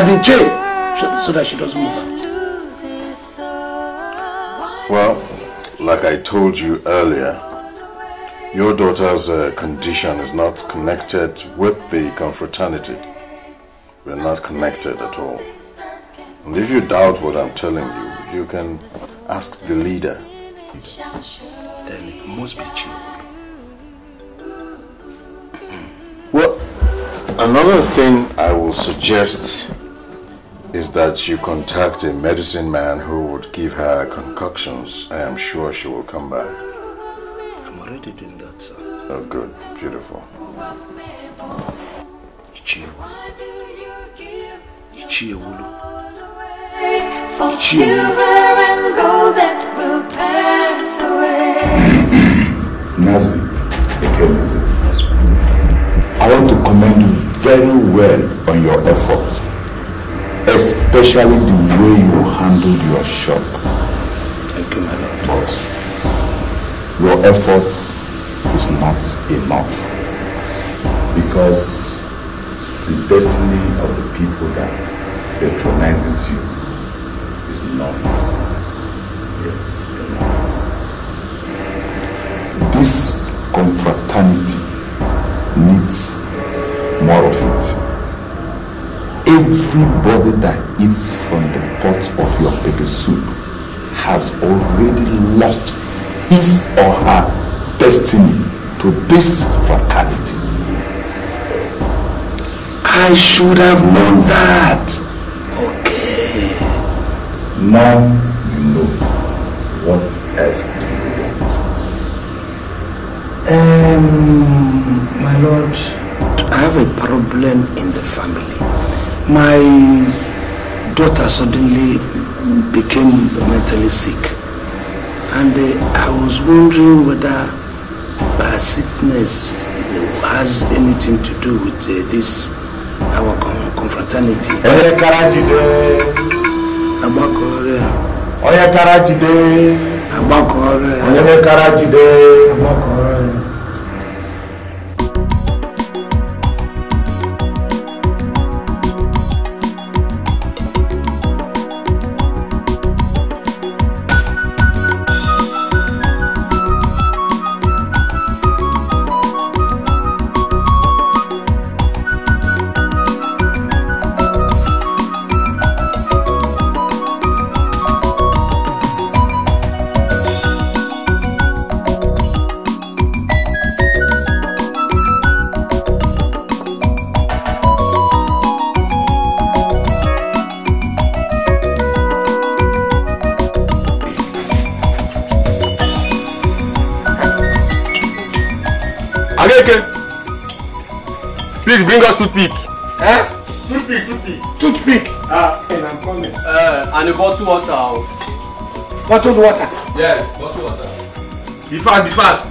has been trained so that she doesn't move out. Well, like I told you earlier, your daughter's uh, condition is not connected with the confraternity. We're not connected at all. And if you doubt what I'm telling you, you can ask the leader. Then it must be true. Hmm. Well, another thing I will suggest is that you contact a medicine man who would give her concoctions. I am sure she will come back. I'm already doing that, sir. Oh, good. Beautiful. Ichiewu. Ichiewulu. For silver and gold that will pass away. Nazi, again, Nazi. I want to commend you very well on your efforts especially the way you handled your shop. Thank you, my lord. But your effort is not enough because the destiny of the people that patronizes you is not yet enough. This confraternity needs more of it. Everybody that eats from the pot of your baby soup has already lost his or her destiny to this fatality. I should have known that. Okay. Now you know what else do you want. Um, my lord, I have a problem in the family. My daughter suddenly became mentally sick. And uh, I was wondering whether her sickness has anything to do with uh, this our confraternity. Ẹyẹ Karajide. Agbakọrẹ. Ọyẹ Karajide. Agbakọrẹ. Ọyẹ Karajide. Agbakọrẹ. and a bottle water. Bottled water? Yes, bottled water. Be fast, be fast.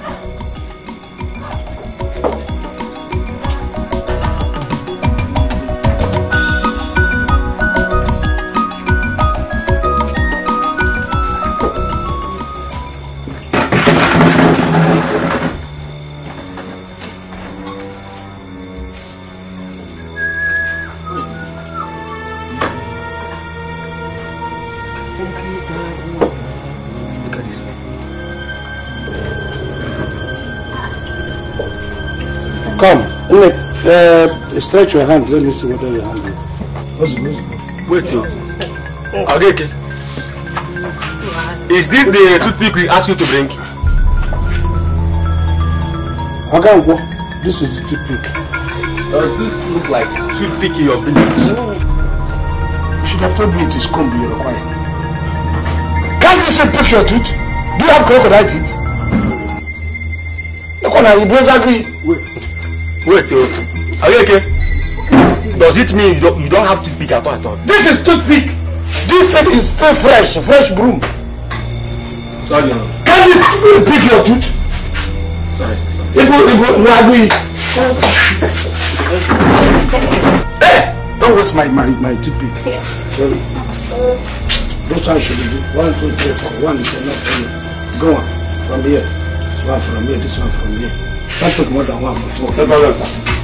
Uh, stretch your hand. Let me see whether your hand is. Wait. Yeah. Okay, okay. Is this the toothpick we asked you to bring? Ogango, this is the toothpick. Does this look like toothpick in your village? You should have told me it is comb you require. Can't you say pick your tooth? Do you have crocodile teeth? Look on, you both agree. Wait. Wait, wait. Are you okay? Does it mean you don't, you don't have toothpick at all at all? This is toothpick! This thing is still fresh, fresh broom. Sorry. Can this pick your tooth? Sorry, sir. Sorry. It will, it will, it will Hey! Don't waste my, my, my toothpick. Yeah. Sorry. That's how should do. One, two, three, four. One is enough for you. Go on. From here. One from here, this one from here. Don't take more than one before. No problem, sir.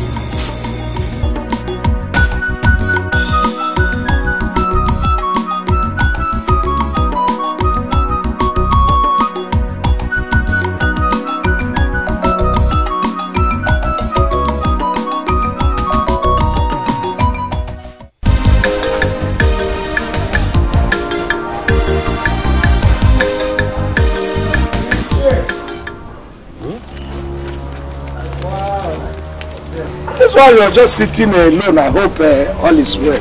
while you're just sitting alone, I hope uh, all is well.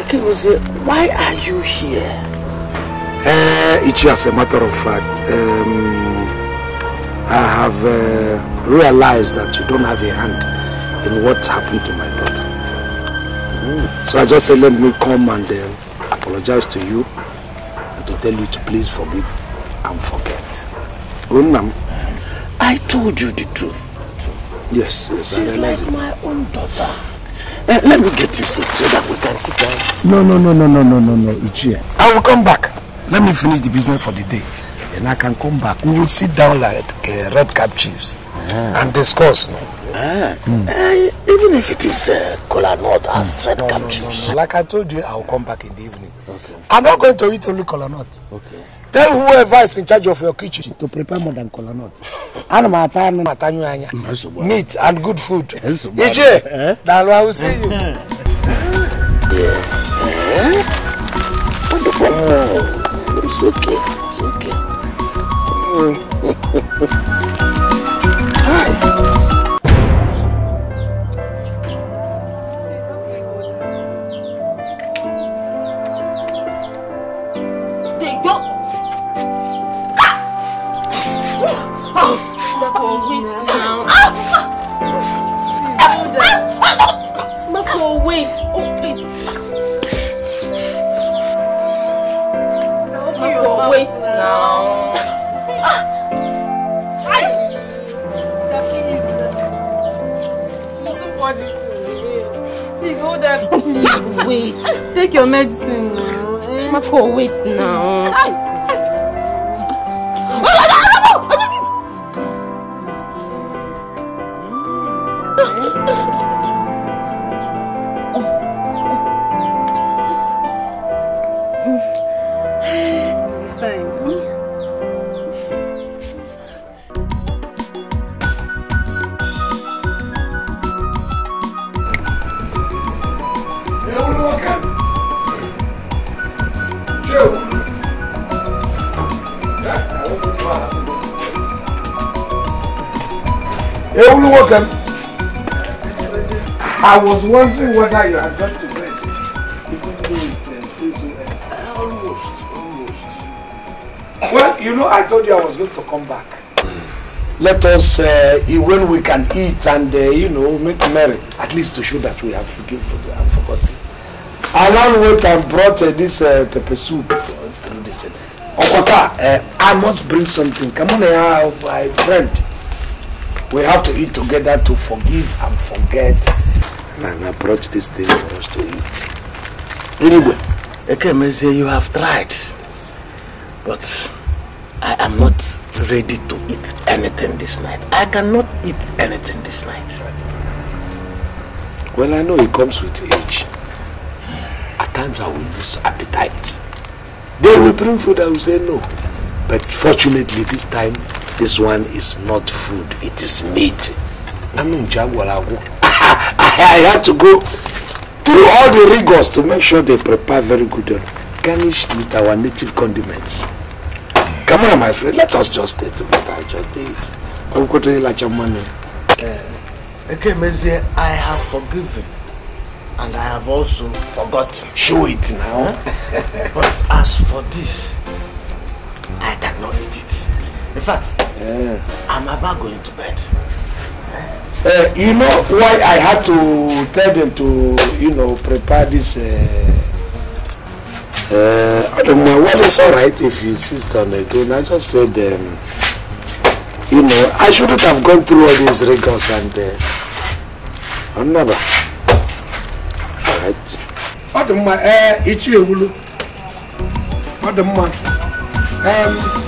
Okay, Ekegose, why are you here? Uh, it's just a matter of fact. Um, I have uh, realized that you don't have a hand in what happened to my daughter. Mm. So I just said, let me come and uh, apologize to you and to tell you to please forgive and forget. Unnam. I told you the truth. Yes, yes, She's I realize like my own daughter. Uh, let me get you seat so that we can sit down. No, no, no, no, no, no, no, no, Ichie. I will come back. Let me finish the business for the day. And I can come back. We will sit down like uh, red cap chiefs ah. and discuss. No? Ah. Mm. Uh, even if it is uh, cola nut as mm. red no, cap no, chiefs. No, no, no. Like I told you, I will come back in the evening. Okay. I'm not going to eat only cola nut. Okay. Tell whoever is in charge of your kitchen to prepare more than kola nut. Ana m ata anụ ata nyụ anya. Meat and good food. Eh, Iche, eh? daalụ I will see you. Eh. Oh. It's okay. It's okay. Oh. I was wondering whether you had got to bed, even though it uh, stays so early. Almost, almost. Well, you know, I told you I was going to come back. Let us, uh, when we can eat and, uh, you know, make merry, at least to show that we have forgiven and forgotten. Alan went and brought uh, this uh, pepper soup uh, through this. Okota, oh, uh, I must bring something. Come on here, uh, my friend. We have to eat together to forgive and forget. and I brought this thing for us to eat. Anyway, Ekemeze, you have tried, but I am not ready to eat anything this night. I cannot eat anything this night. Well, I know it comes with age. At times I will lose appetite. They will bring food, I will say no. But fortunately this time, this one is not food, it is meat. I'm Jaguar, I had to go through all the rigors to make sure they prepare very good and garnished with our native condiments. Come on, my friend, let us just stay together. Just eat. I'm going to like your money. Okay, Mezie, I have forgiven and I have also forgotten. Show it now. Eh? but as for this, I cannot eat it. In fact, yeah. I'm about going to bed. Uh, you know why I had to tell them to, you know, prepare this. Uh, uh, I don't know. Well, it's all right if you insist on again. I just said, um, you know, I shouldn't have gone through all these rigors and. Uh, I'm never. All right. What the man? Eh, uh, it's you, What the man? Um.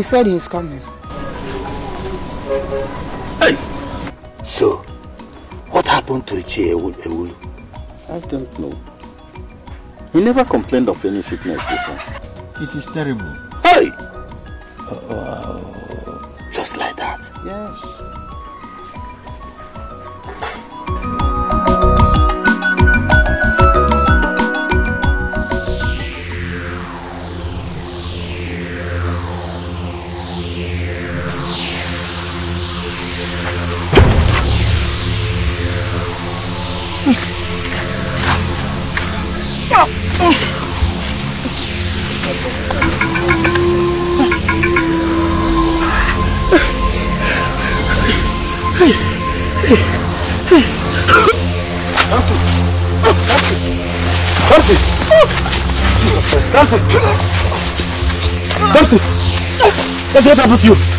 He said he's coming. Hey! So, what happened to Ichie Ewulu? I don't know. He never complained of any sickness before. It is terrible. up with you?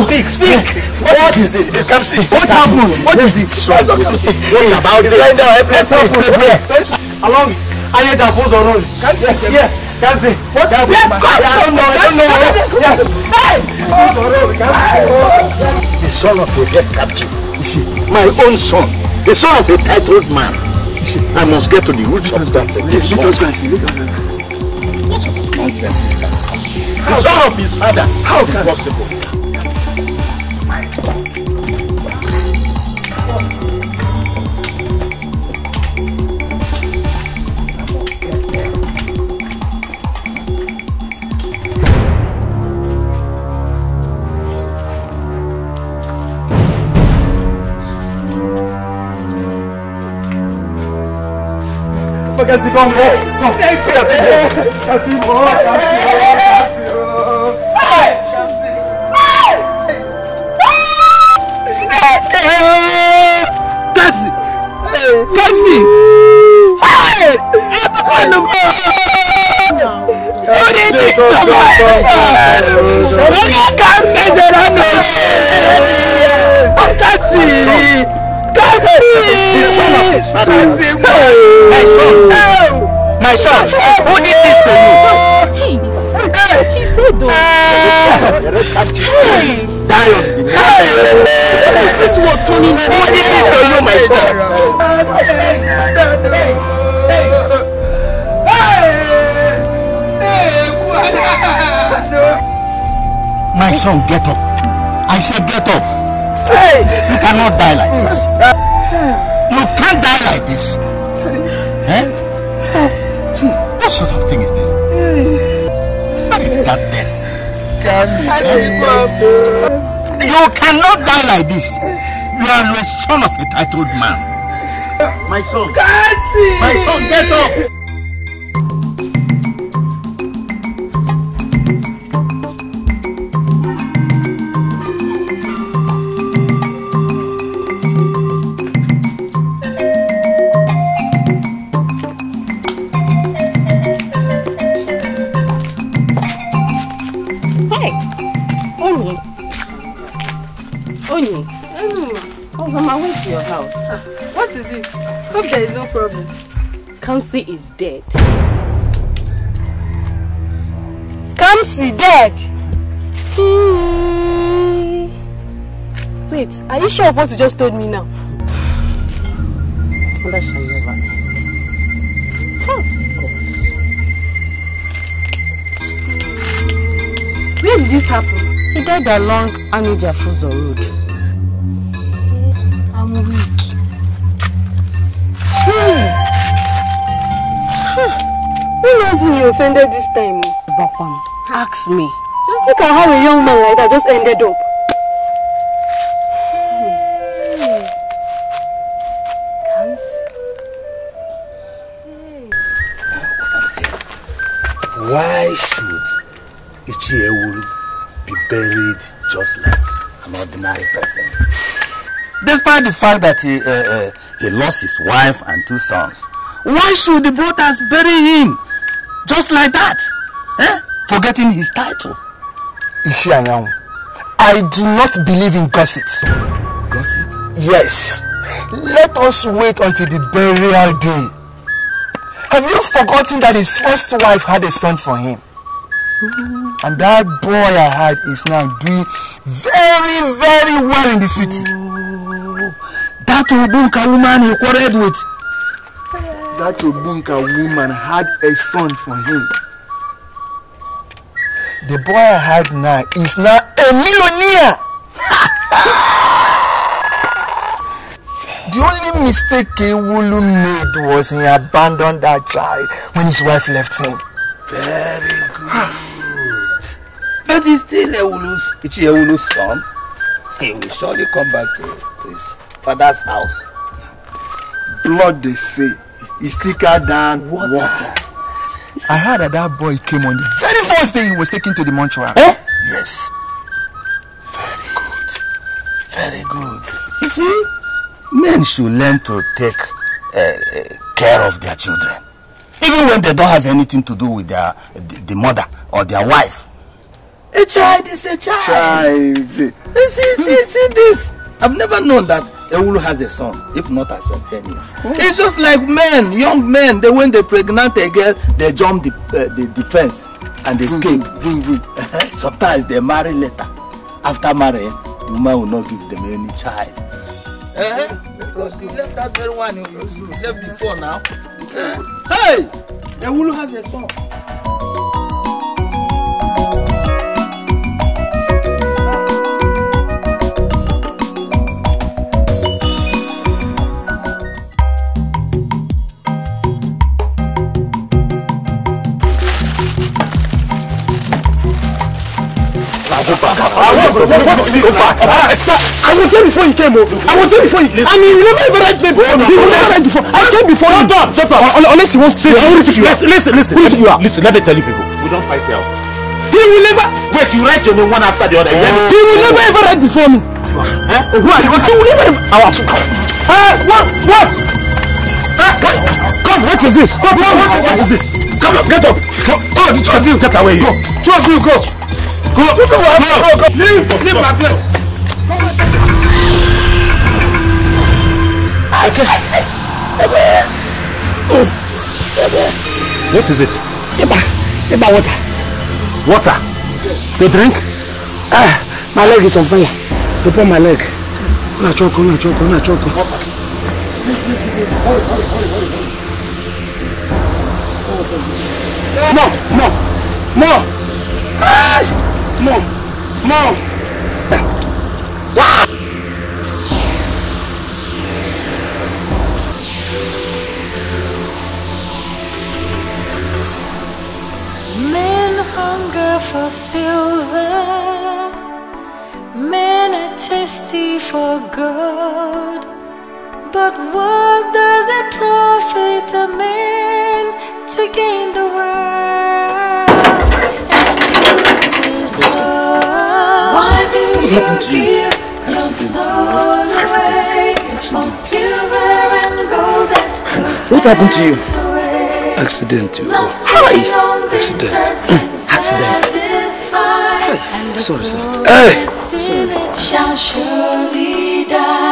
Speak, speak. What, what is it? It's Kamsi. What happened? What is it? What's up, Kamsi? What about it? It's lying down. Let's help him. Where? Along. I need to pose on Yes. Yes. Yes. Yes. What happened? I don't know. I don't know. Yes. The son of a dead captive. My own son. The son of a titled man. I must get to the roots of that. Let us go and see. What's us go see. nonsense is The son of his father. How can possible? pragas e bombons. attitude. Hey. Die on Hey. Is this what Tony did? Who did this to you, my son? My son, get up. I said get up. You cannot die like this. You can't die like this. Eh? What sort of thing is You cannot die like this. You are the son of a titled man. My son. My son, get up. Kamsi is dead. Kamsi dead? Wait, are you sure of what you just told me now? That shall never end. Where did this happen? He died along Anija Fuzo Road. I'm weak. Who knows who you offended this time? Bakwam, ask me. Just look at how a young man like that just ended up. why should Ichiewu be buried just like an ordinary person? Despite the fact that he, uh, uh, he lost his wife and two sons, why should the brothers bury him just like that eh? forgetting his title. iṣẹ́ àyàwó I do not believe in gossips. Gossip? Yes. Let us wait until the burial day. Have you forgotten that his first wife had a son for him? Mm. And that boy I had is now doing very, very well in the city. Mm. That Obunka woman he quarreled with that Obunka woman had a son for him. The boy I had now is now a millionaire. the only mistake Ewolu made was he abandoned that child when his wife left him. Very good. but he's still Ewolu's, it's Ewolu's son. He will surely come back to, to his father's house. Blood they say. is thicker than water. water. I heard that that boy came on the very first day he was taken to the mortuary. Eh? Yes. Very good. Very good. You see, men should learn to take uh, care of their children. Even when they don't have anything to do with their the, the mother or their wife. A child is a child. Child. See, see, see, see this. I've never known that Ewulu has a son, if not as your senior. Oh. It's just like men, young men, they when they pregnant a girl, they jump the, uh, the, defense and they escape. Vroom, vroom. Sometimes they marry later. After marrying, the woman will not give them any child. Eh? eh because you left that very one you, you left before now. Eh, hey! Ewulu has a son. I will go was there before you came. Oh. I was there before you. I mean, you never even read me before. You never read before. I came before you. Shut up. Shut up. Unless you want to say, I will listen. Listen, listen, listen. Who you are? Listen, let me tell you people. We don't fight here. He will never. Wait, you write your name one after the other. He will never ever write before me. Huh? Who are you? will never. Our. what? What? Come, what is this? What is this? Come up, get up. Come, two of you get away. Go, two of you go. Go, go, go, Leave, leave my place. What is it? Eba, Eba water. Water? The drink? Ah, my leg is on fire. You put my leg. Una choco, una choco, una choco. More, more, more. Men hunger for silver. Men are thirsty for gold. But what does it profit a man to gain the world? what happened to you? Accident. Accident. What happened to you? Accident. Hi. Accident. Mm, accident. Hi. Sorry, sir. Hey. Sorry.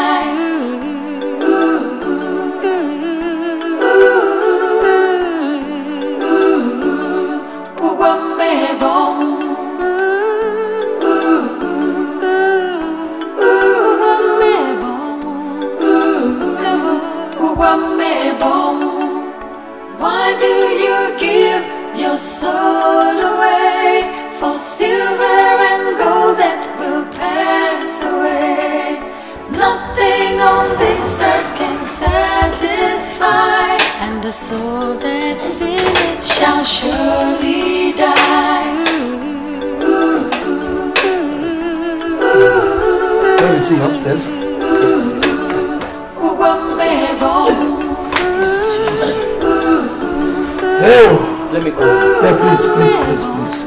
you give your soul away for silver and gold that will pass away? Nothing on this earth can satisfy, and the soul that's in it shall surely die. Ooh, ooh, ooh, he upstairs? Hey. Oh, Let me go. Hey, please, please, please, please.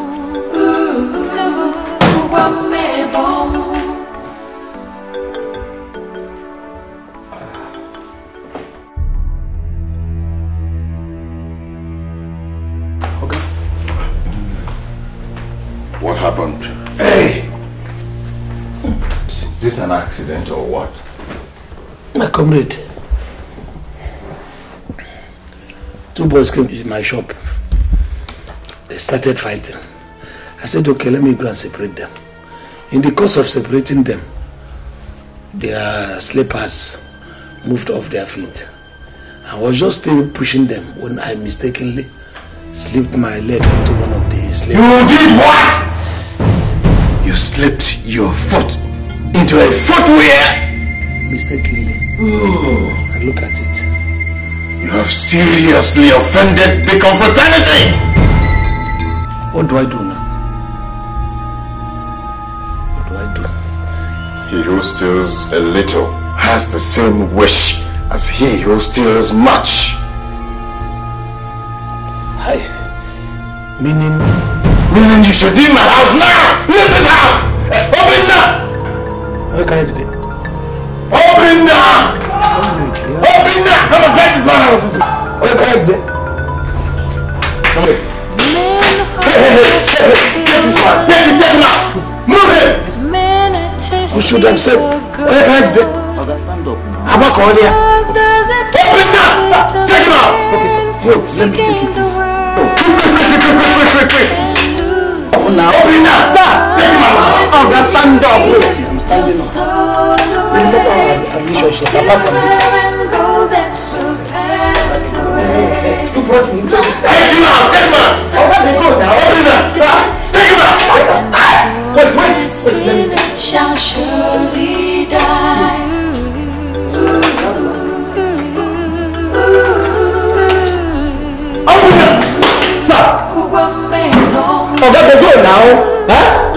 Okay. What happened? Hey! Is this an accident or what? My comrade, Two boys came to my shop. They started fighting. I said, okay, let me go and separate them. In the course of separating them, their slippers moved off their feet. I was just still pushing them when I mistakenly slipped my leg into one of the slippers. You did what? You slipped your foot into a footwear? Mistakenly. Oh. look at it have seriously offended the confraternity! What do I do now? What do I do? He who steals a little has the same wish as he who steals much. I Meaning? Meaning you should leave my house now! Leave this house! Open now! Where can I do Open now! Come on, drag this man out of this room. Okay, correct there. Come here. Hey, hey, hey, hey, hey, take this man. Take him, take him out. Move him. We should have said, okay, correct there. Eh? Okay, stand up now. How about Cordia? here. Open now, sir. Take him out. Okay, sir. Wait, let me take it easy. Oh, quick, quick, quick, quick, quick, quick. Open now. Open now, sir. Take him out. Oga, stand up. Wait, I'm standing up. Remember, uh, I'm sure she's a person shall pass away. You brought me to Take him out! Take him out! Open the door now! Open it up! Take him out! Wait, wait! See that shall Open it up! Sir! Ọ̀gá gbogbo ìlà o.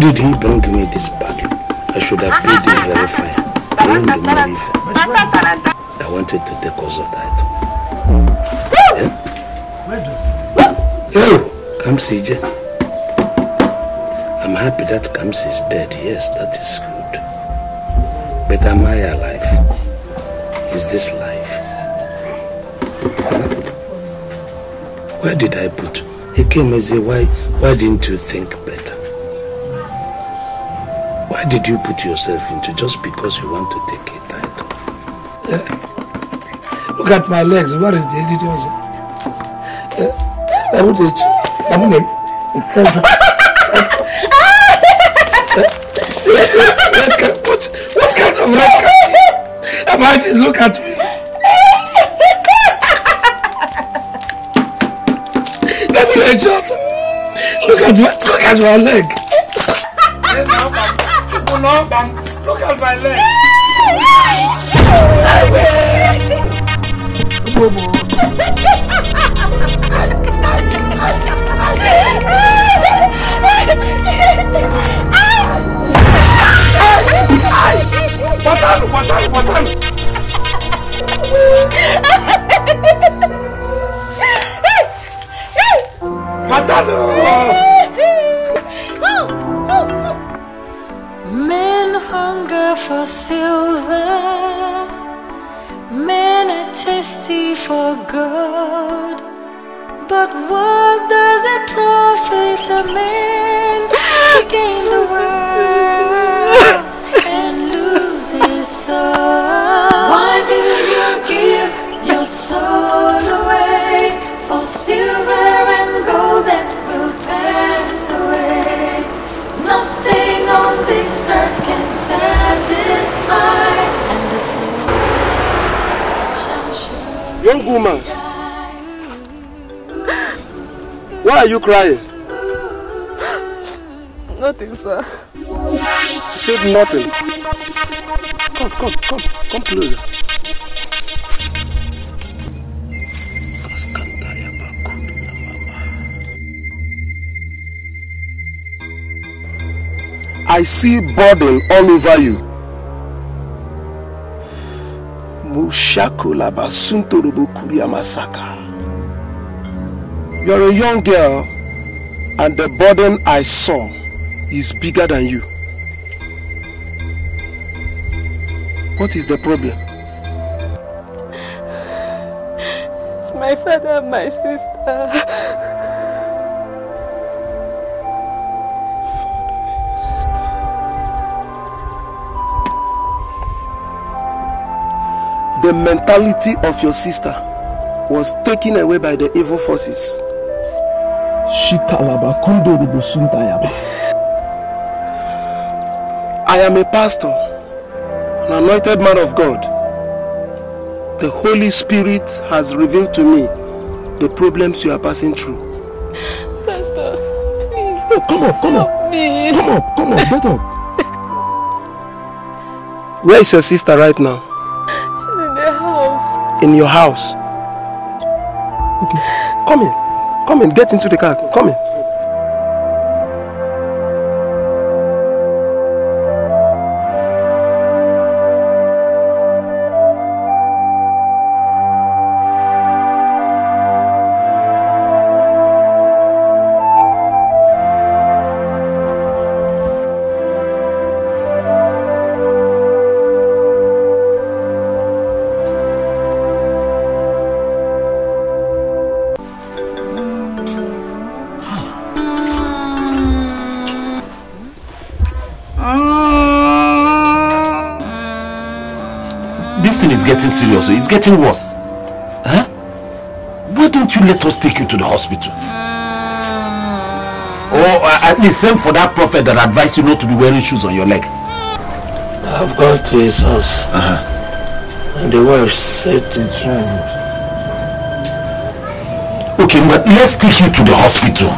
Why did he bring me this bag? I should have paid him very fine. I wanted to take also title. Yeah? Where does he? Yo, come I'm happy that Kamsi is dead. Yes, that is good. But am I alive? Is this life? Huh? Where did I put? He came as a why? Why didn't you think why did you put yourself into just because you want to take a title? Uh, look at my legs. What is the idiocy? I eh? eh, would it. I'm going to. What, what kind of red Am I just look at me? Let me just look at my, look at my leg. Look at my leg. Patan, patan, patan. for good. But what does it profit a man to gain the world and lose his soul? Why do you give your soul away for silver and gold that will pass away? Nothing on this earth can satisfy. Young woman, why are you crying? Nothing, sir. said nothing. Come, come, come, come closer. I see burden all over you. Mushakulaba You're a young girl, and the burden I saw is bigger than you. What is the problem? It's my father and my sister. the mentality of your sister was taken away by the evil forces. I am a pastor, an anointed man of God. The Holy Spirit has revealed to me the problems you are passing through. Pastor, please. Oh, come on, come on. Me. Come on, come on. get up. Where is your sister right now? in your house. Okay. Come in. Come in. Get into the car. Come in. It's getting worse. Huh? Why don't you let us take you to the hospital? Hmm. Or uh, at least send for that prophet that advised you not to be wearing shoes on your leg. I've got to his house. Uh -huh. And the wife said the truth. Okay, but let's take you to the hospital.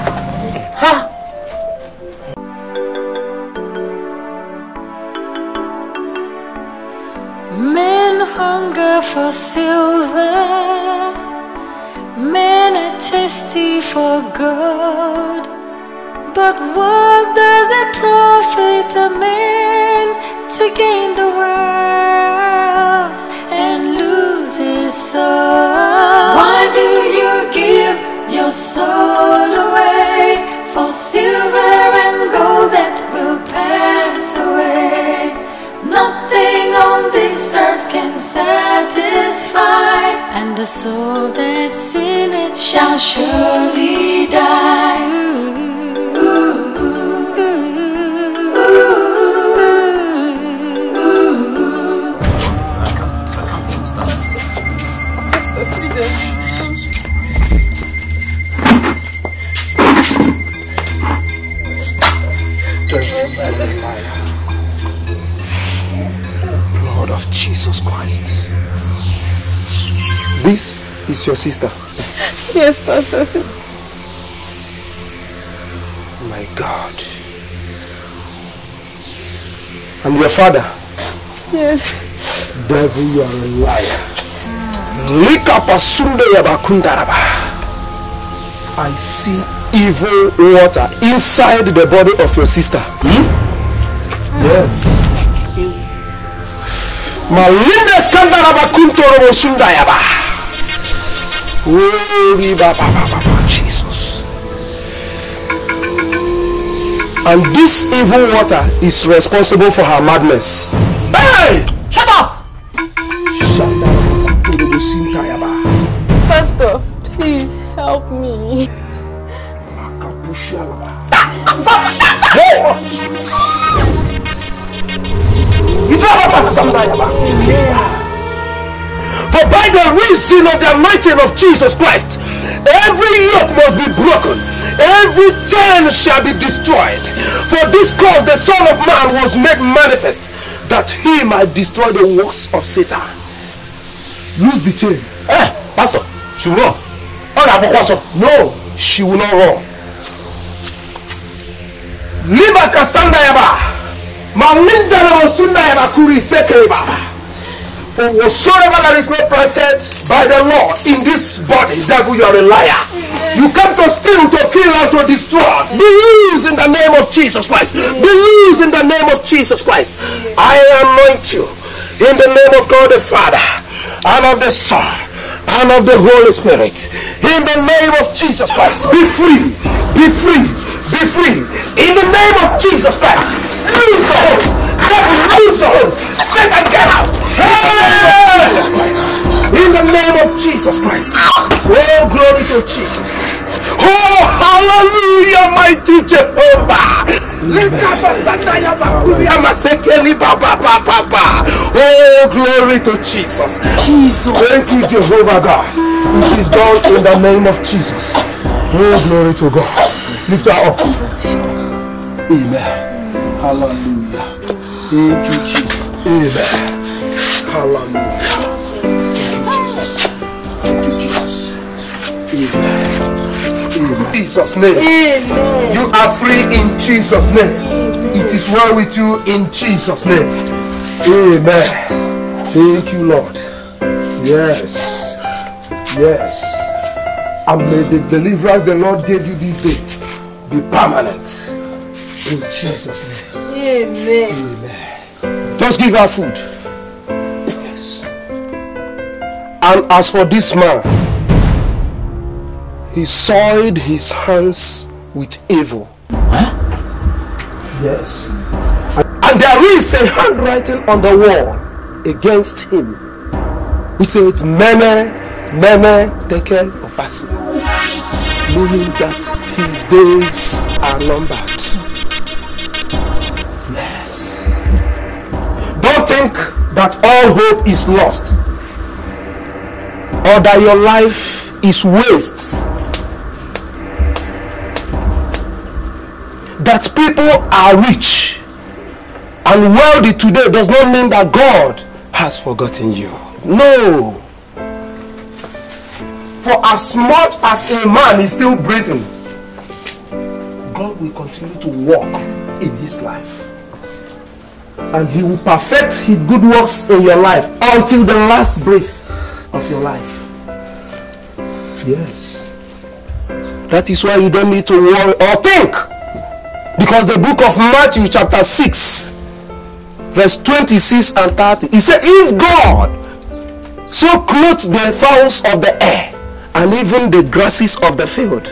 for silver, men are testy for gold. But what does it profit a man to gain the world and lose his soul? Why do you give your soul away for silver and gold that will pass away? Nothing on this earth can sell satisfied, and the soul that's in it shall surely die. This is your sister. Yes, Pastor. My God. And your father? Yes. Devil, you are a liar. Lika pasunde yabakundaraba. I see evil water inside the body of your sister. Hmm? Yes. Malinda skandaraba kuntoro sundayaba. Glory Baba Jesus. And this evil water is responsible for her madness. Hey! Shut up! Pastor, please help me. You don't have Yeah. For by the reason of the anointing of Jesus Christ, every yoke must be broken, every chain shall be destroyed. For this cause the Son of Man was made manifest, that he might destroy the works of Satan. Lose the chain. Eh, Pastor, she will run. No, she will not run. Liba kasanda yaba. Malinda na yaba kuri seke Whatsoever that is not protected by the law in this body, devil, you are a liar. You come to steal, to kill, and to destroy. Believe in the name of Jesus Christ. Believe in the name of Jesus Christ. I anoint you in the name of God the Father and of the Son and of the Holy Spirit. In the name of Jesus Christ, be free, be free, be free. In the name of Jesus Christ, lose the host devil, loose Satan, get out. In the name of Jesus Christ. Oh, glory to Jesus Oh, hallelujah, mighty Jehovah. Oh, glory to Jesus. Jesus. Thank you, Jehovah God. It is done in the name of Jesus. All oh, glory to God. Lift her up. Amen. Hallelujah. In Jesus. Amen. Hallelujah. Thank Jesus. Thank Jesus. Jesus' name. Amen. You are free in Jesus' name. Amen. It is well with you in Jesus' name. Amen. Thank you, Lord. Yes. Yes. And may the deliverance the Lord gave you this day be permanent. In Jesus' name. Amen. Amen. Just give her food. Yes. And as for this man, he soiled his hands with evil. Huh? Yes. And there is a handwriting on the wall against him which says, Mene, Mene, of us. Meaning that his days are numbered. think that all hope is lost or that your life is waste. That people are rich and wealthy today does not mean that God has forgotten you. No. For as much as a man is still breathing, God will continue to walk in his life and he will perfect his good works in your life until the last breath of your life. Yes. That is why you don't need to worry or think. Because the book of Matthew chapter 6 verse 26 and 30 he said if God so clothes the fowls of the air and even the grasses of the field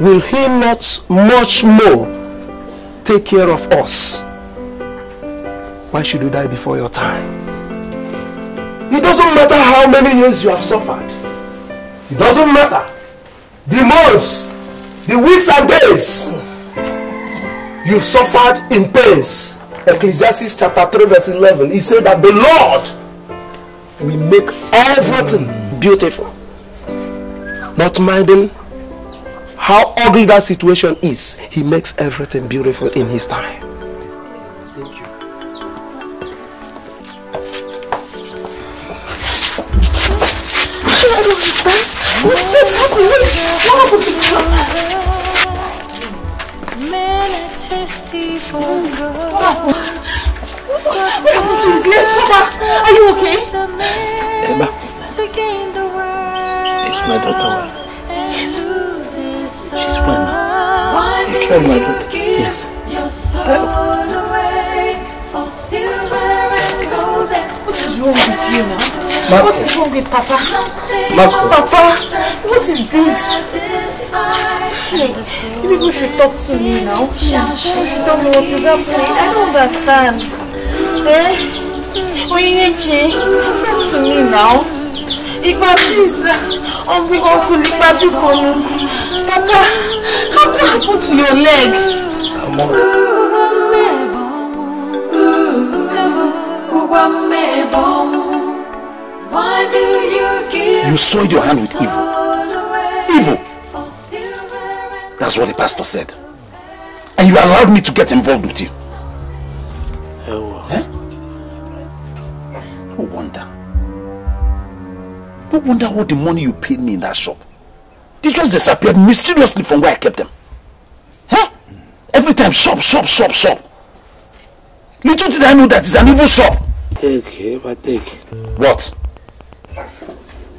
will he not much more take care of us why should you die before your time? It doesn't matter how many years you have suffered. It doesn't matter. The months, the weeks and days you've suffered in pains. Ecclesiastes chapter 3 verse 11. He said that the Lord will make everything beautiful. Not minding how ugly that situation is, he makes everything beautiful in his time. What's happening? What happened? What happened to his leg, Papa? Are you okay? Emma. it's my daughter Yes. She's fine. now. Why I my daughter. Yes. Your soul away for silver What is wrong with you now? Marco. What is wrong with Papa? Marco. Papa, what is this? Hey, you people should talk to me now. Please. Hmm. You should tell me what is happening. I don't understand. Eh? Oyenechi, come to me now. Ipa, please. I'm being awful. Ipa, Papa, how what happened to your leg? I'm alright. You soiled your hand with evil. Evil! That's what the pastor said. And you allowed me to get involved with you. Eh? No wonder. No wonder all the money you paid me in that shop. They just disappeared mysteriously from where I kept them. Huh? Eh? Every time, shop, shop, shop, shop. Little did I know that it's an evil shop. Take, but take. What?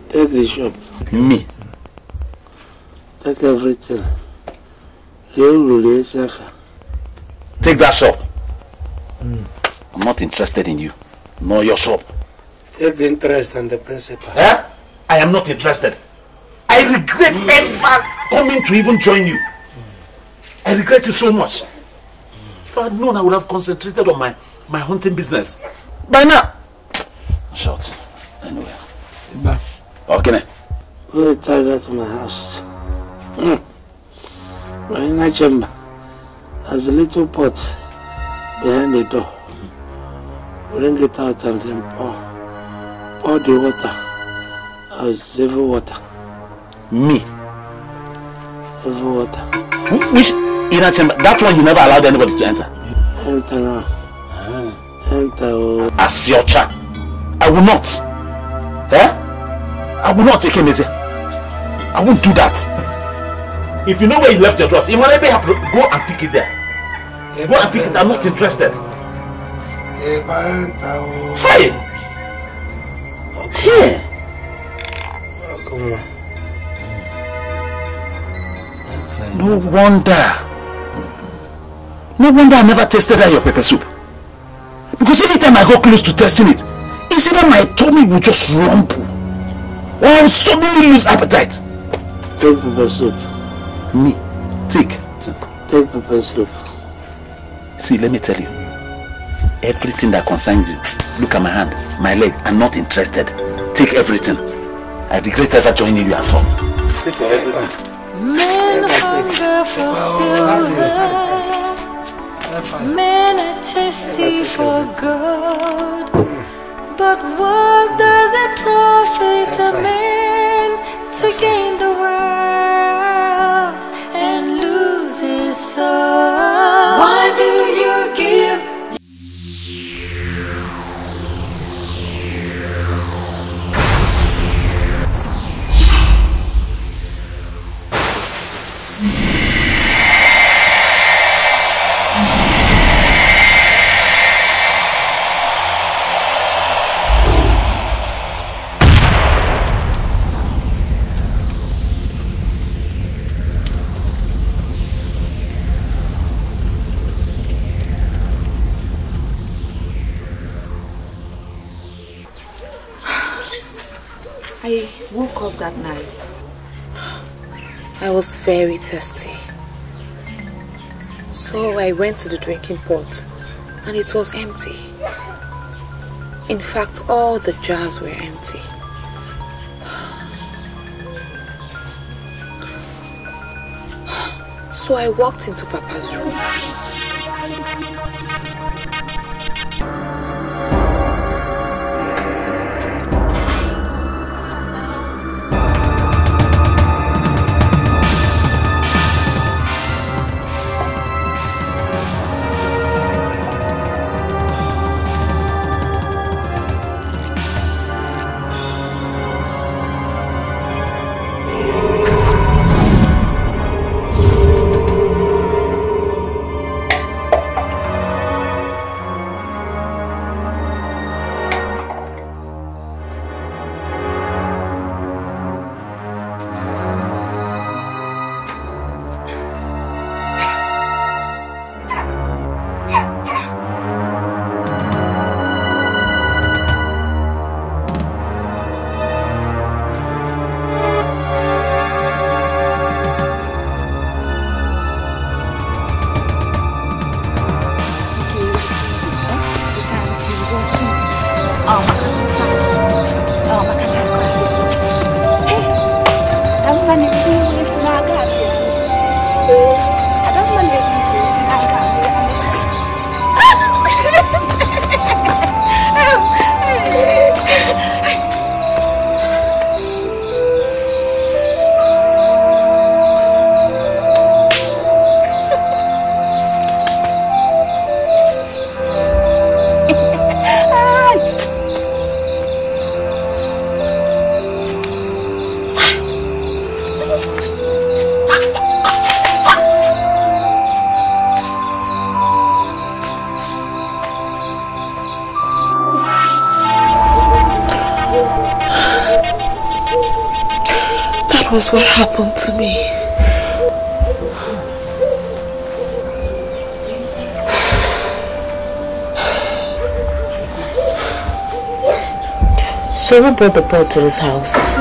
Take the shop. Me? Take everything. Take that shop. Mm. I'm not interested in you, nor your shop. Take the interest and the principal. Eh? I am not interested. I regret mm. ever coming to even join you. Mm. I regret you so much. Hmm. If I had known, I would have concentrated on my, my hunting business by now. shots Anyway. Bye. Okay. Go tie that to my house. Mm. My inner chamber has a little pot behind the door. Bring it out and then pour. Pour the water. I'll save water. Me? Save water. Which inner chamber? That one you never allowed anybody to enter? Enter now. As your child, I will not. Eh? I will not take him, easy. I won't do that. If you know where you left your dress, it might be happy. Go and pick it there. Go and pick it. I'm not interested. Hey! Hey! No wonder. No wonder I never tasted that your pepper soup. Because anytime I got close to testing it, it's either my tummy would just rumble or I would suddenly lose appetite. Take the soup. Me? Take. Take the soup. See, let me tell you. Everything that concerns you, look at my hand, my leg, I'm not interested. Take everything. I regret ever joining you at all. Take everything. Men hunger for silver. Men are thirsty for gold, but what does it profit a man to gain the world and lose his soul? Why do you give? that night. I was very thirsty. So I went to the drinking pot and it was empty. In fact, all the jars were empty. So I walked into Papa's room. was what happened to me. So who brought the bird to this house?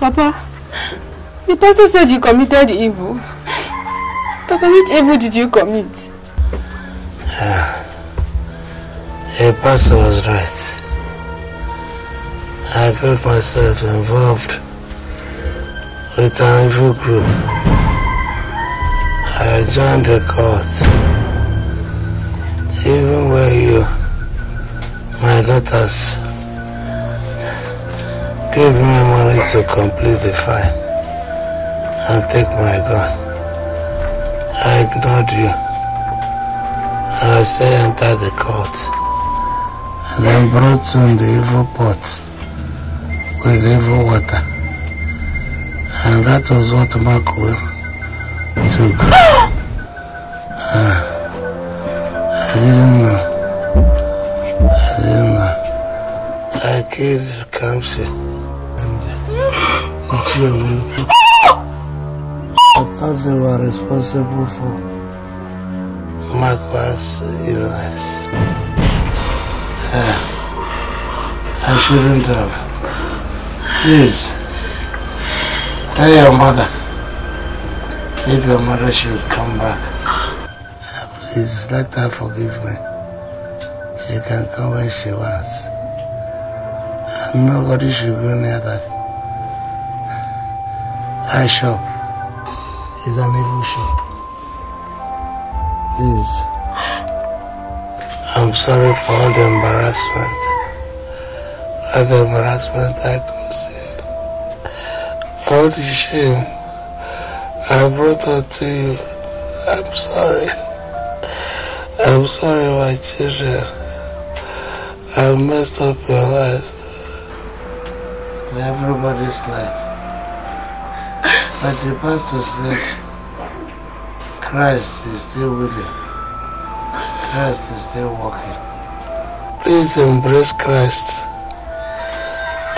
Papa, the pastor said you committed evil. Papa, which evil did you commit? Yeah. The pastor was right. I got myself involved with an evil group. I joined the cult. Even where you, my daughters, gave me me to complete the file and take my gun. I ignored you. And I say enter the court. And then brought on the evil pot with evil water. And that was what Mark will took. uh, I didn't know. I didn't know. I killed Kamsi. I thought they were responsible for my Marquar's illness. Uh, I shouldn't have. Please, tell your mother. If your mother should come back, ah, please let her forgive me. She can come when she wants. And nobody should go near that eye shop is an evil shop. Is I'm sorry for all the embarrassment. All the embarrassment I caused All the shame I brought on to you. I'm sorry. I'm sorry, my children. I've messed up your life. And everybody's life. But the pastor said, Christ is still willing. Christ is still working. Please embrace Christ.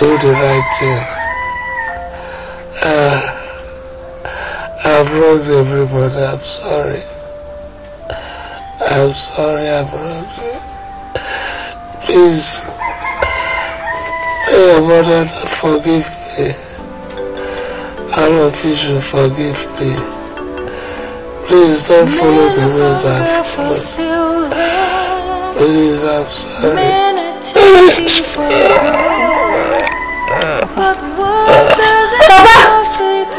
Do the right thing. Uh, I've wronged everybody. I'm sorry. I'm sorry I've wronged you. Please, tell your mother to forgive me all of you should forgive me. Please don't follow the ways I've followed. Please, I'm sorry. But what does it profit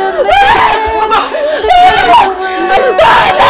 a man to be